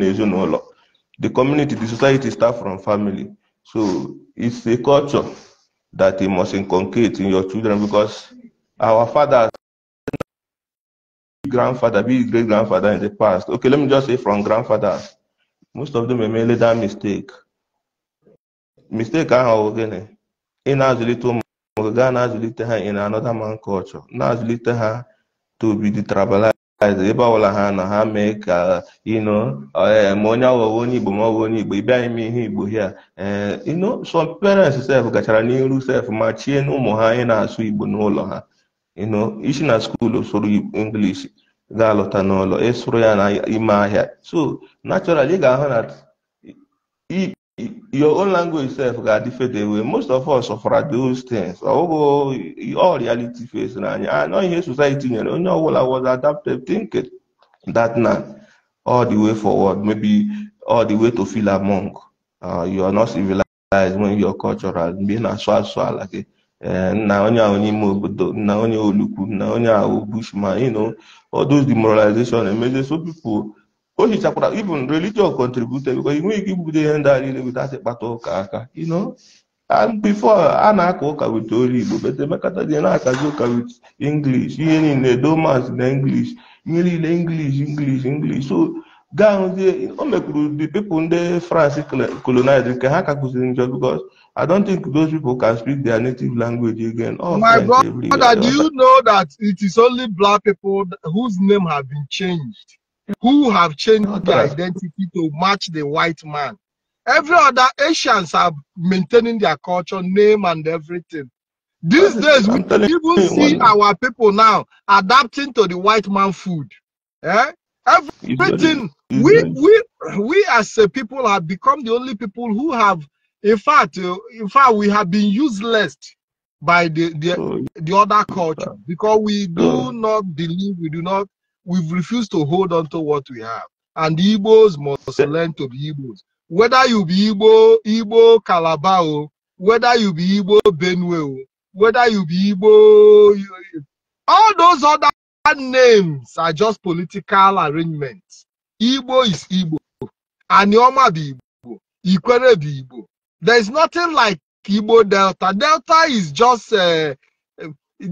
the community the society start from family so it's a culture that you must inculcate in your children because our fathers grandfather be great grandfather in the past okay let me just say from grandfathers most of them made that mistake mistake gịnị ị na-azụlite ụmụ gaa na in another man culture na little. Her. tobidi trabalaiz ebe ọbụla ha na ha mee ka ịnụ e, ma onye ọwụwa onye igbo ma ọ bụ onye igbo ị bịaghị ihe igbo hia ịnụ e, some parents sef gachara n'iru sef ma chie n'ụmụ ha anyị na-asụ igbo n'ụlọ ha ịnụ isi na skuulu soro english ga-alọta n'ụlọ ịsụrụ ya na ahịa so naturally ị ga-ahụ na your own language self ga different way most of us suffer those things ọwụgo all reality face na anya anọ ah, ihe society nyere onye ọbụla was adaptive thinking that now, all the way forward maybe all the way to feel among uh, you are not civilized when you are cultural mgbe ị na-asụ asụ ala gị eh, nna onye ahụ n'ime obodo nna onye olukwu nna onye ahụ bushman you know all those demoralization emezie so people o hichakwara even religion contributed because you give ike ibugodo ihe ndị a niile without ịkpata you know and before Anna na-aka ụka wit olu igbo but emekata dị na-akazi ụka wit english in the domans in english ihe in english english english so gahụzie o mekwuru the people the france colonized nke ha ka kụziri because I don't think those people can speak their native language again. Oh, My brother, do you know that it is only black people whose name have been changed who have changed their identity to match the white man. Every other Asians are maintaining their culture, name, and everything. These days, we even see our people now adapting to the white man food. Eh? Everything we we we as a people have become the only people who have, in fact, uh, in fact, we have been useless by the the, oh, the other culture because we do oh. not believe, we do not We've refused to hold on to what we have. And the Igbos must learn to be Igbos. Whether you be Igbo, Igbo Calabao, whether you be Igbo Benue, whether you be Igbo, all those other names are just political arrangements. Igbo is Igbo. Anioma be Igbo. Ikwere be Igbo. There is nothing like Igbo Delta. Delta is just, uh,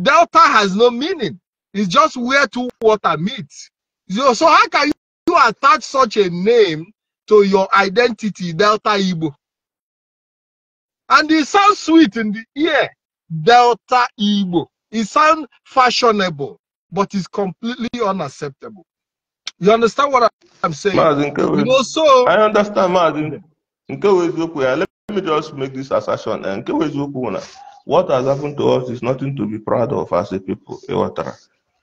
Delta has no meaning. It's just where two water meet. So, so how can you, attach such a name to your identity, Delta Igbo? And it sounds sweet in the ear, Delta Igbo. It sounds fashionable, but it's completely unacceptable. You understand what I'm saying? No, you know, so I understand, Maazin. Let me just make this assertion. Eh, what has happened to us is nothing to be proud of as a people.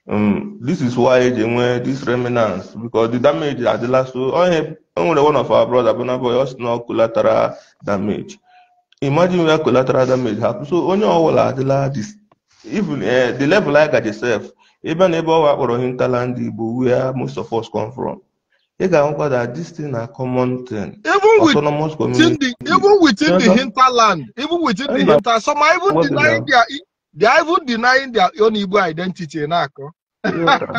um, this is why eji enwe this remnants because the damage adịla so onye oh, enwere one of our brother Burna Boy ọ sị collateral damage imagine where collateral damage happen so onye ọbụla adịla even uh, the level I di sef ebe na ebe owa akpọrọ hinterland Igbo where most of us come from e ga-ahụkwa that this thing na common thing even autonomous community even within the hinterland even within the hinterland some are even denying their they are even denying their own Igbo identity na-akọ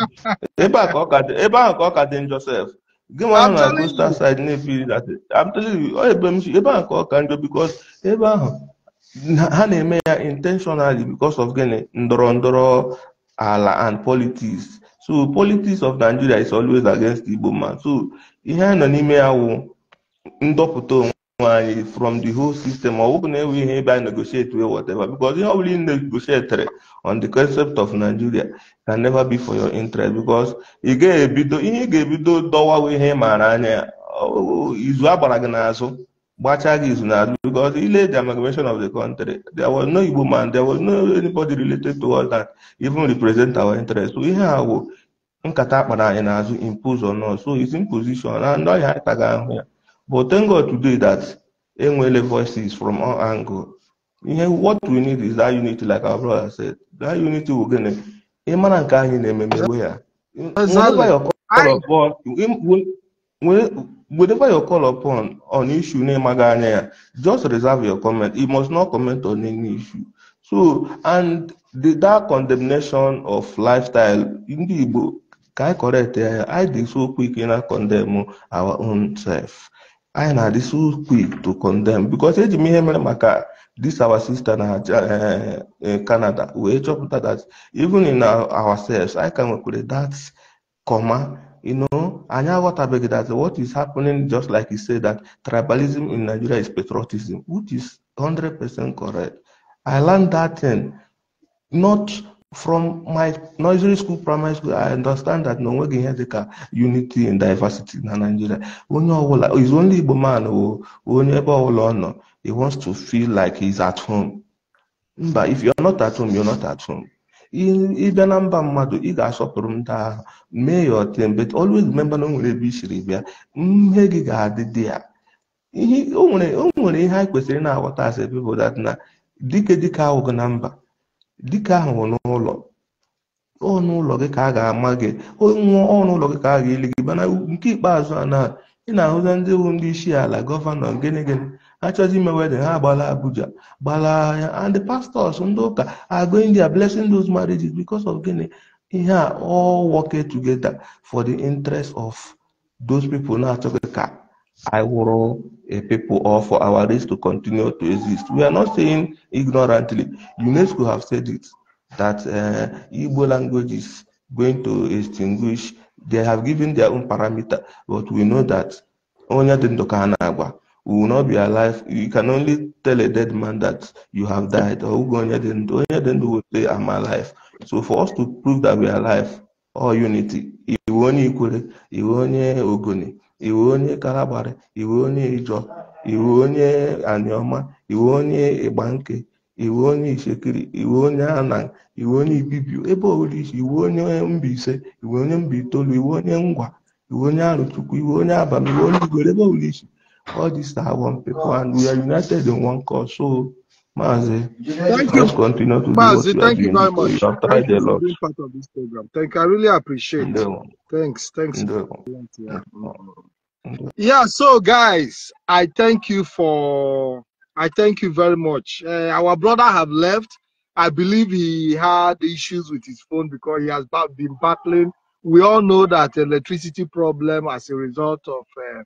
ebe ahụ ka ọ ka dị Joseph gị nwa ahụ na coastal side na-ebiri I'm telling you ebe m ebe ahụ ka ọ ka njọ because ebe ahụ ha na-eme ya intentionally because of gịnị ndọrọ ndọrọ ala and politics so politics of Nigeria is always against Igbo man so ihe a nọ n'ime ya wụ ndọpụta onwe nwanyị from the whole system or bụrụ we enweghị negotiate wey whatever because are only negotiate on the concept of Nigeria can never be for your interest because you get ga-ebido ihe ị ga-ebido dọwawa ihe maara anya ya izu a gbara gị n'azụ gbachaa gị the amalgamation of the country there was no Igbo man there was no anybody related to us that even represent our interest so ihe a bụ nkata akpara impose on us so it's imposition and I ọhịa anyị taga ahụ but thank God today that Enwele voices from all angles. what we need is that unity, like our brother said. That unity will gain it. Ịmara nke anyị na-ememe we ya. Whenever you call upon on issue na just reserve your comment. You must not comment on any issue. So, and the, that condemnation of lifestyle, in the book, I correct I did so quick a condemn our own self anyị so quick to condemn because eji m ihe mere maka this our sister na eh, eh, Canada wee chọpụta that even in ourselves i ka nwekwara that comma you know anyị aghọtabeghị that what is happening just like you say that tribalism in Nigeria is patriotism which is 100% correct I learned that thing not from my nursery school primary school i understand that na onweghị ihe dịka unity and diversity na Nigeria onye ọbụla is only Igbo man o onye ebe ọbụla ọ nọ he wants to feel like he's at home mba if you're not at home you're not at home ịbịa na mba mmadụ ị ga-asọpụrụ ndị ahụ mee ya ọtem but always remember na o nwere ebe i siri bịa mmehie gị ga-adị dị ya o nwere ihe anyị kwesịrị na-aghọta as a people that na dike dike ahụghị na mba dike ahụ ọnụ ụlọ gị ka a ga-ama gị nwụọ ọnụ ụlọ gị ka a ga-eli gị mana nke ikpeazụ a na ị na-ahụza ndị bụ ndị isi ala gọvanọ gịnị gịnị achọzi ime wedin ha gbala Abuja gbala ya and the pastors ndị ụka are india there blessing those marriages because of gịnị ihe a all working together for the interest of those people na-achọghị ka I wụrụ a people or for our race to continue to exist. We are not saying ignorantly. UNESCO have said it. that uh, Igbo language is going to extinguish. They have given their own parameter, but we know that only the Ndokanagwa will not be alive. You can only tell a dead man that you have died, or onye then will say, I'm alive. So for us to prove that we are alive, all unity, iwe onye Ikwere, iwe onye Ogoni, iwe onye Kalabari, iwe onye Ijo, iwe onye Anioma, iwe onye Igbanke, iwu onye ichekiri iwu onye ana iwu onye ibibio ebe ọbụla iwu onye Mbaise iwu onye mba itoolu iwu onye ngwa iwu onye arụchukwu iwu onye abalị iwu onye igwere ebe ọbụla iche all these are one people and we are united in one cause so Mazi, thank you. continue thank you very much. You part of this program. Thank I yeah, so guys, I thank you for I thank you very much. Uh, our brother have left. I believe he had issues with his phone because he has been battling. We all know that electricity problem as a result of uh,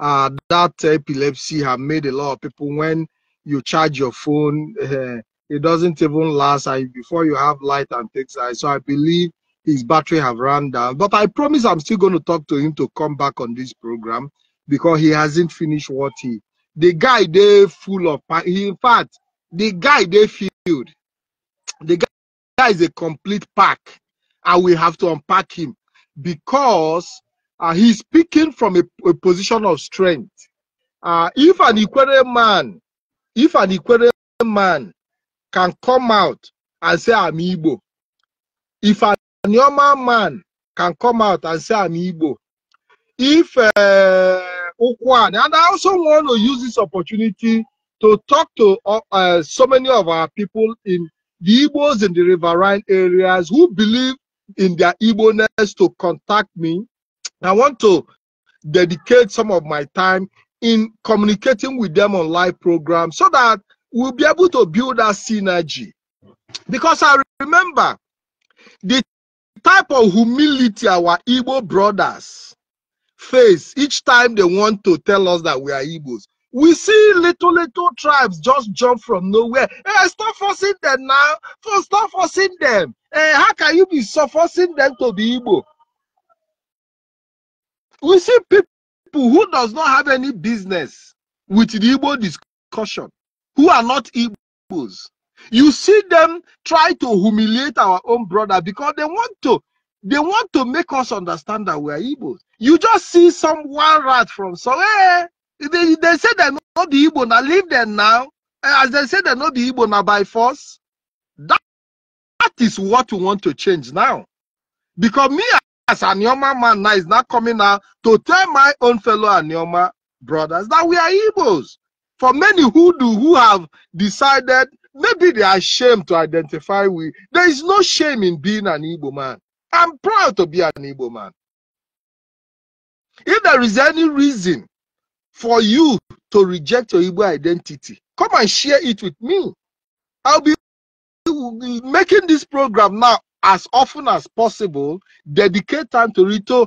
uh, that epilepsy have made a lot of people when you charge your phone, uh, it doesn't even last I, before you have light and things like So I believe his battery have run down. But I promise I'm still going to talk to him to come back on this program because he hasn't finished what he the guy they full of in fact the guy they filled the guy, the guy is a complete pack and we have to unpack him because uh, he's speaking from a, a position of strength uh, if an equerry man if an equerry man can come out and say i'm igbo if a normal man can come out and say i'm igbo if uh, and I also want to use this opportunity to talk to uh, uh so many of our people in the Igbos in the riverine areas who believe in their Igbo-ness to contact me. I want to dedicate some of my time in communicating with them on live programs so that we'll be able to build that synergy. Because I remember the type of humility our Igbo brothers face each time they want to tell us that we are Igbos. We see little, little tribes just jump from nowhere. Hey, eh, stop forcing them now. Stop forcing them. Hey, eh, how can you be so forcing them to be Igbo? We see people who does not have any business with the Igbo discussion, who are not Igbos. You see them try to humiliate our own brother because they want to. They want to make us understand that we are Igbos. You just see some one rat from somewhere. Eh, they, they say they're not the Igbo. Now leave them now. Eh, as they say they're not the Igbo now by force. That, that is what we want to change now. Because me as an Yoma man now is not coming out to tell my own fellow Anioma brothers that we are Igbos. For many who do who have decided maybe they are ashamed to identify with. There is no shame in being an Igbo man. I'm proud to be an Igbo man. If there is any reason for you to reject your Igbo identity, come and share it with me. I'll be making this program now as often as possible, dedicate time to it, to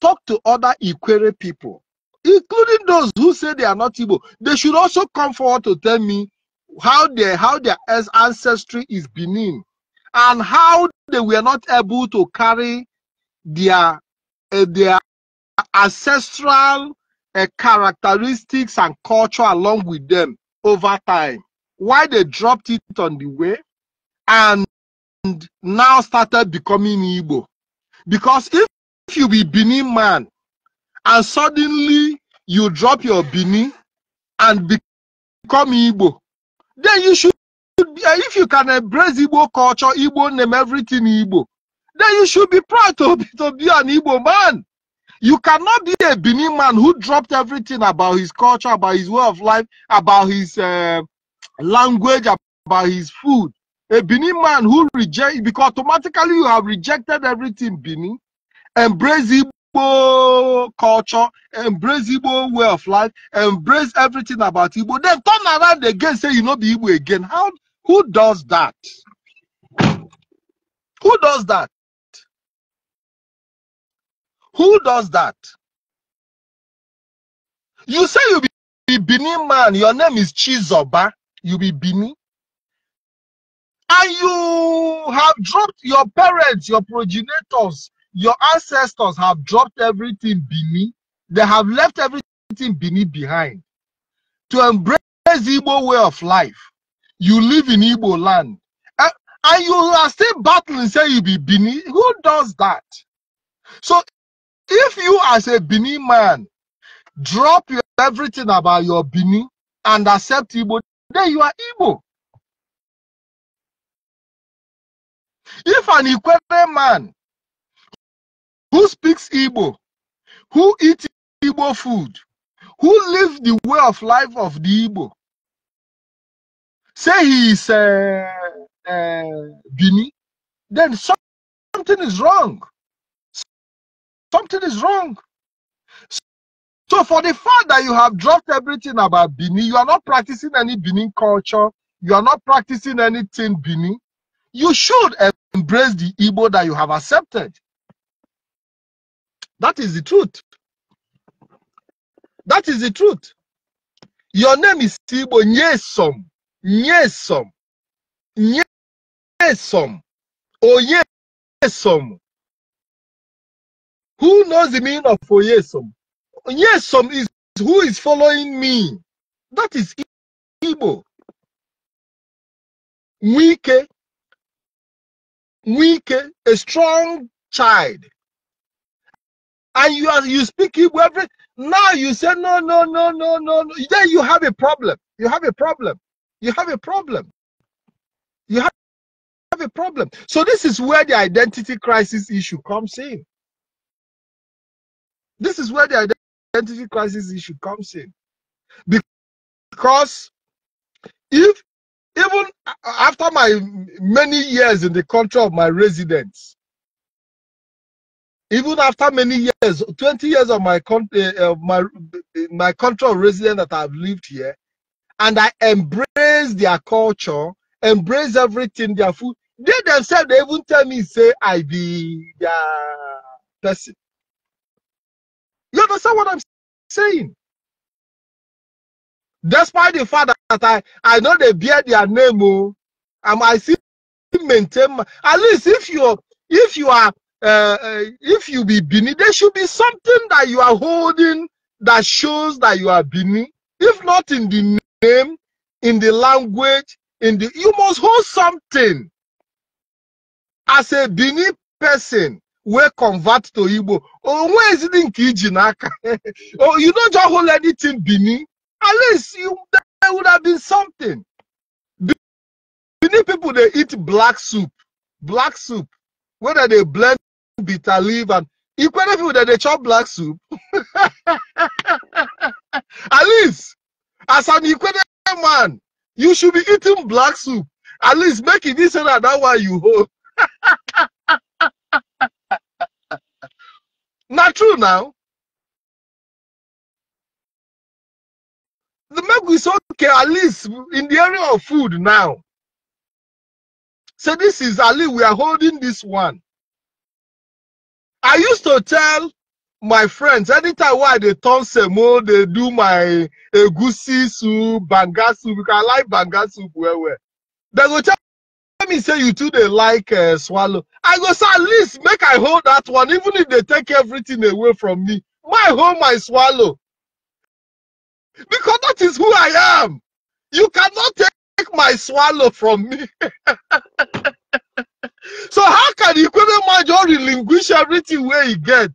talk to other Ikwere people, including those who say they are not Igbo. They should also come forward to tell me how their how their ancestry is Benin and how they were not able to carry their uh, their ancestral uh, characteristics and culture along with them over time why they dropped it on the way and now started becoming Igbo. Because if, if you be Benin man and suddenly you drop your Benin and become Igbo, then you should if you can embrace Igbo culture, Igbo name, everything Igbo, then you should be proud to be, to be an Igbo man. You cannot be a Benin man who dropped everything about his culture, about his way of life, about his uh, language, about his food. A Benin man who reject because automatically you have rejected everything Benin, embrace Igbo culture, embrace Igbo way of life, embrace everything about Igbo, then turn around again, say you know the Igbo again. How who does that? Who does that? Who does that? You say you be Bini man, your name is Chizoba, you be Bini. And you have dropped your parents, your progenitors, your ancestors have dropped everything Bini. They have left everything Bini behind to embrace the Igbo way of life you live in Igbo land, and, and you are still battling, say you be Bini. Who does that? So if you as a Bini man drop your, everything about your Bini and accept Igbo, then you are Igbo. If an Ikwere man who speaks Igbo, who eats Igbo food, who lives the way of life of the Igbo, say he's uh, uh, Bini, then something is wrong. Something is wrong. So for the fact that you have dropped everything about Bini, you are not practicing any Bini culture, you are not practicing anything Bini, you should embrace the Igbo that you have accepted. That is the truth. That is the truth. Your name is Tibo Nyesom nyesom nyesom oyesom who knows the meaning of oyesom oyesom is who is following me that is igbo Weak, weak, a strong child and you are you speak Hebrew every now you say no no no no no then you have a problem you have a problem you have a problem. You have a problem. So this is where the identity crisis issue comes in. This is where the identity crisis issue comes in. Because if even after my many years in the country of my residence, even after many years, 20 years of my country, eh, of my eh, my country of residence that I've lived here, and I embrace their culture, embrace everything, their food. They themselves, they even tell me, say, I be their person. You understand what I'm saying? Despite the fact that I, I know they bear their name, oh, and I still maintain, my, at least if you're, if you are, uh, uh, if you be Bini, there should be something that you are holding that shows that you are Bini. If not in the name, in the language, in the you must hold something. As a Bini person, we convert to Igbo. Oh, where is it in Kijinaka? oh, you don't just hold anything Bini. At least you there would have been something. Bini people they eat black soup. Black soup. Whether they blend bitter leaf and equally people that they chop black soup. At least as an Ikwede man, you should be eating black soup. At least make it this and that why you hold. Not true now. The milk is okay, at least in the area of food now. So this is Ali, we are holding this one. I used to tell my friends anytime why they turn semo they do my egusi soup banga soup because i like banga soup well well they go tell me say you too they like uh, swallow i go say at least make i hold that one even if they take everything away from me my hold my swallow because that is who i am you cannot take my swallow from me so how can ikweme manjo relinquish everything where you get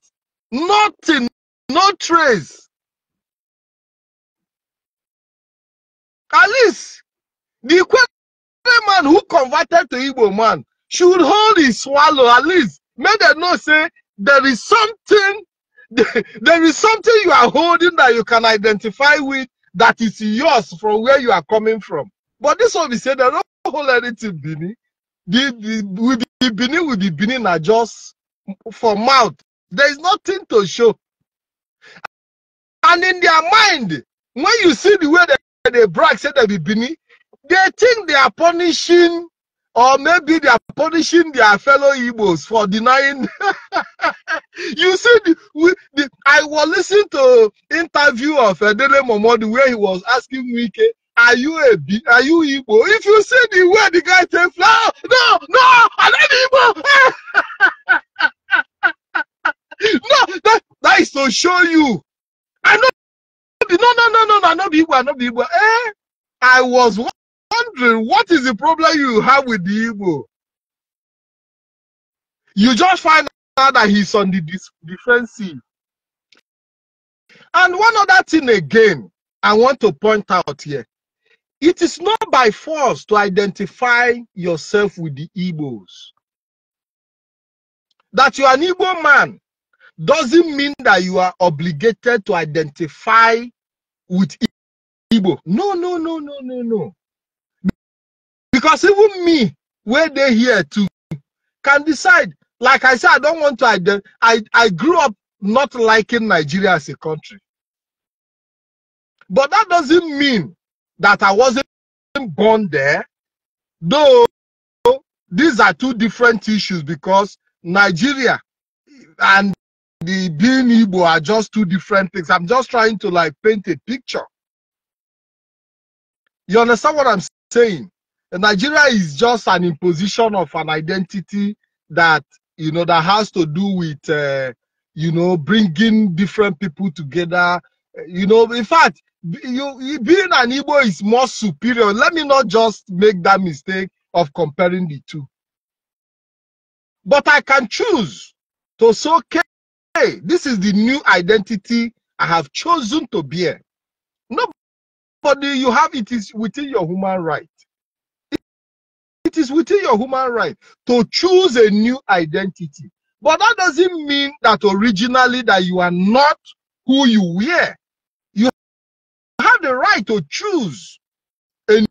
Nothing, no trace. At least the Kwere man who converted to Igbo man should hold his swallow at least. May they not say there is something, there is something you are holding that you can identify with that is yours from where you are coming from. But this one be said they don't hold anything Bini. The, the, with the Bini with the Bini are just for mouth there is nothing to show. And in their mind, when you see the way they, they brag, said that Bibini, they think they are punishing or maybe they are punishing their fellow Igbos for denying. you see, the, we, the, I was listening to interview of Edele Momodi where he was asking Wike, are you a B, are you Igbo? If you see the way the guy said, no, no, no, I'm not Igbo. no, that, that is to show you. I know. No, no, no, no, no, No, the Igbo, I not the Igbo. Eh? I was wondering, what is the problem you have with the Igbo? You just find out that he's on the defensive. And one other thing again, I want to point out here. It is not by force to identify yourself with the Igbos. That you are an Igbo man doesn't mean that you are obligated to identify with Igbo. No, no, no, no, no, no. Because even me, where they here too, can decide. Like I said, I don't want to identify. I, I grew up not liking Nigeria as a country. But that doesn't mean that I wasn't born there, though these are two different issues because Nigeria and the being Igbo are just two different things. I'm just trying to like paint a picture. You understand what I'm saying? Nigeria is just an imposition of an identity that you know that has to do with uh, you know bringing different people together. You know, in fact, you being an Igbo is more superior. Let me not just make that mistake of comparing the two. But I can choose to so care this is the new identity I have chosen to bear. Nobody you have it is within your human right. It is within your human right to choose a new identity. But that doesn't mean that originally that you are not who you were. You have the right to choose a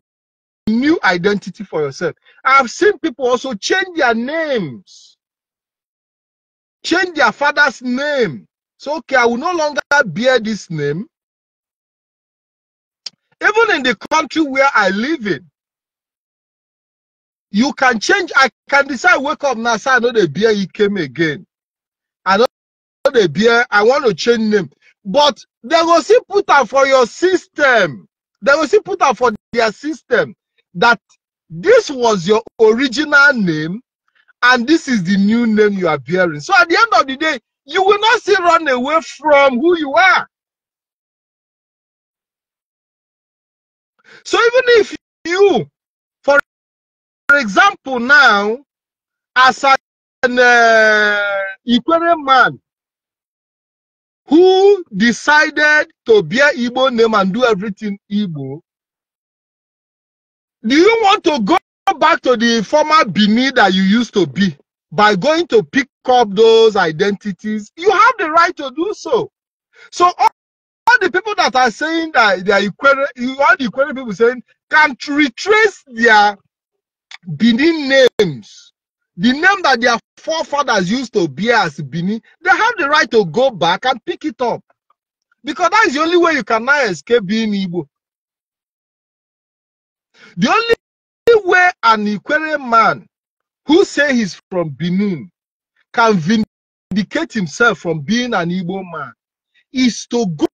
new identity for yourself. I've seen people also change their names change their father's name. So, okay, I will no longer bear this name. Even in the country where I live in, you can change. I can decide, wake up now, say I know the beer he came again. I know the beer, I want to change name. But they will see put up for your system. They will see put up for their system that this was your original name and this is the new name you are bearing. So at the end of the day, you will not still run away from who you are. So even if you, for example, now, as an uh, Ikwere man who decided to bear Igbo name and do everything Igbo, do you want to go back to the former Bini that you used to be by going to pick up those identities. You have the right to do so. So all, all the people that are saying that they are Ikwere, all the Ikwere people saying can retrace their Bini names. The name that their forefathers used to bear as Bini, they have the right to go back and pick it up. Because that is the only way you can now escape being Igbo. The only where an Ikwere man who say he's from Benin can vindicate himself from being an Igbo man is to go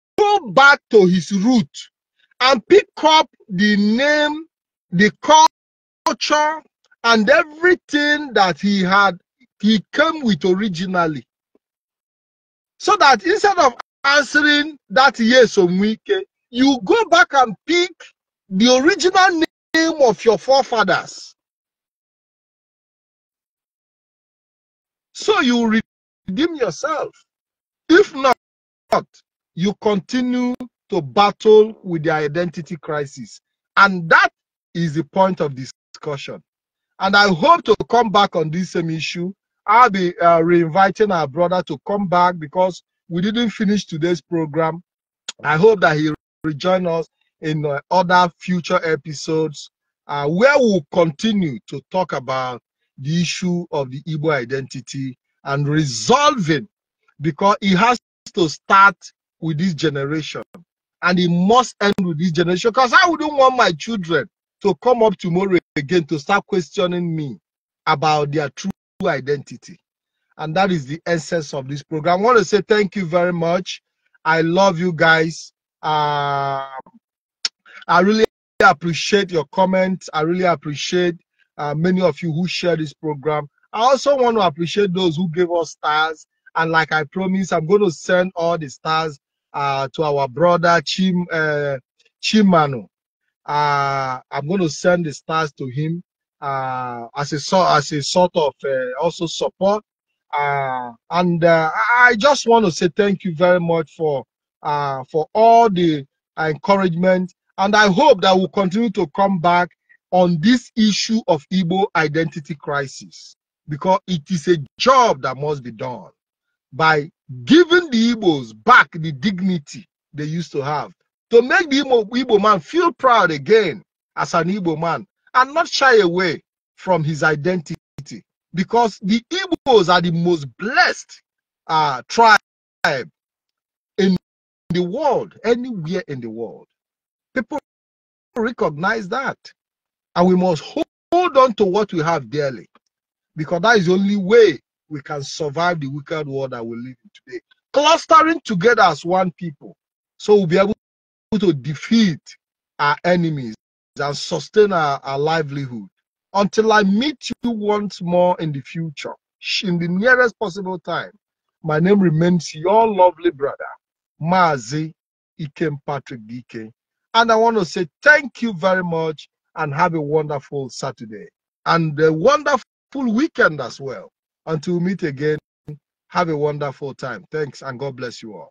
back to his root and pick up the name, the culture, and everything that he had, he came with originally. So that instead of answering that yes or no, you go back and pick the original name name of your forefathers. So you redeem yourself. If not, you continue to battle with the identity crisis. And that is the point of discussion. And I hope to come back on this same issue. I'll be uh, reinviting our brother to come back because we didn't finish today's program. I hope that he rejoin us in uh, other future episodes uh, where we'll continue to talk about the issue of the Igbo identity and resolving because it has to start with this generation and it must end with this generation because I wouldn't want my children to come up tomorrow again to start questioning me about their true identity. And that is the essence of this program. I want to say thank you very much. I love you guys. Uh, I really appreciate your comments. I really appreciate uh, many of you who share this program. I also want to appreciate those who gave us stars. And like I promised, I'm going to send all the stars uh, to our brother Chim uh, Chimano. Uh, I'm going to send the stars to him uh, as a as a sort of uh, also support. Uh, and uh, I just want to say thank you very much for for all the encouragement and I hope that we'll continue to come back on this issue of Igbo identity crisis because it is a job that must be done by giving the Igbos back the dignity they used to have to make the Igbo, Igbo man feel proud again as an Igbo man and not shy away from his identity because the Igbos are the most blessed uh, tribe in the world, anywhere in the world. People recognize that. And we must hold on to what we have dearly because that is the only way we can survive the wicked world that we live in today. Clustering together as one people so we'll be able to defeat our enemies and sustain our, our livelihood. Until I meet you once more in the future, in the nearest possible time, my name remains your lovely brother, Mazi Ikem Patrick Dike. And I want to say thank you very much and have a wonderful Saturday and a wonderful weekend as well. Until we meet again, have a wonderful time. Thanks and God bless you all.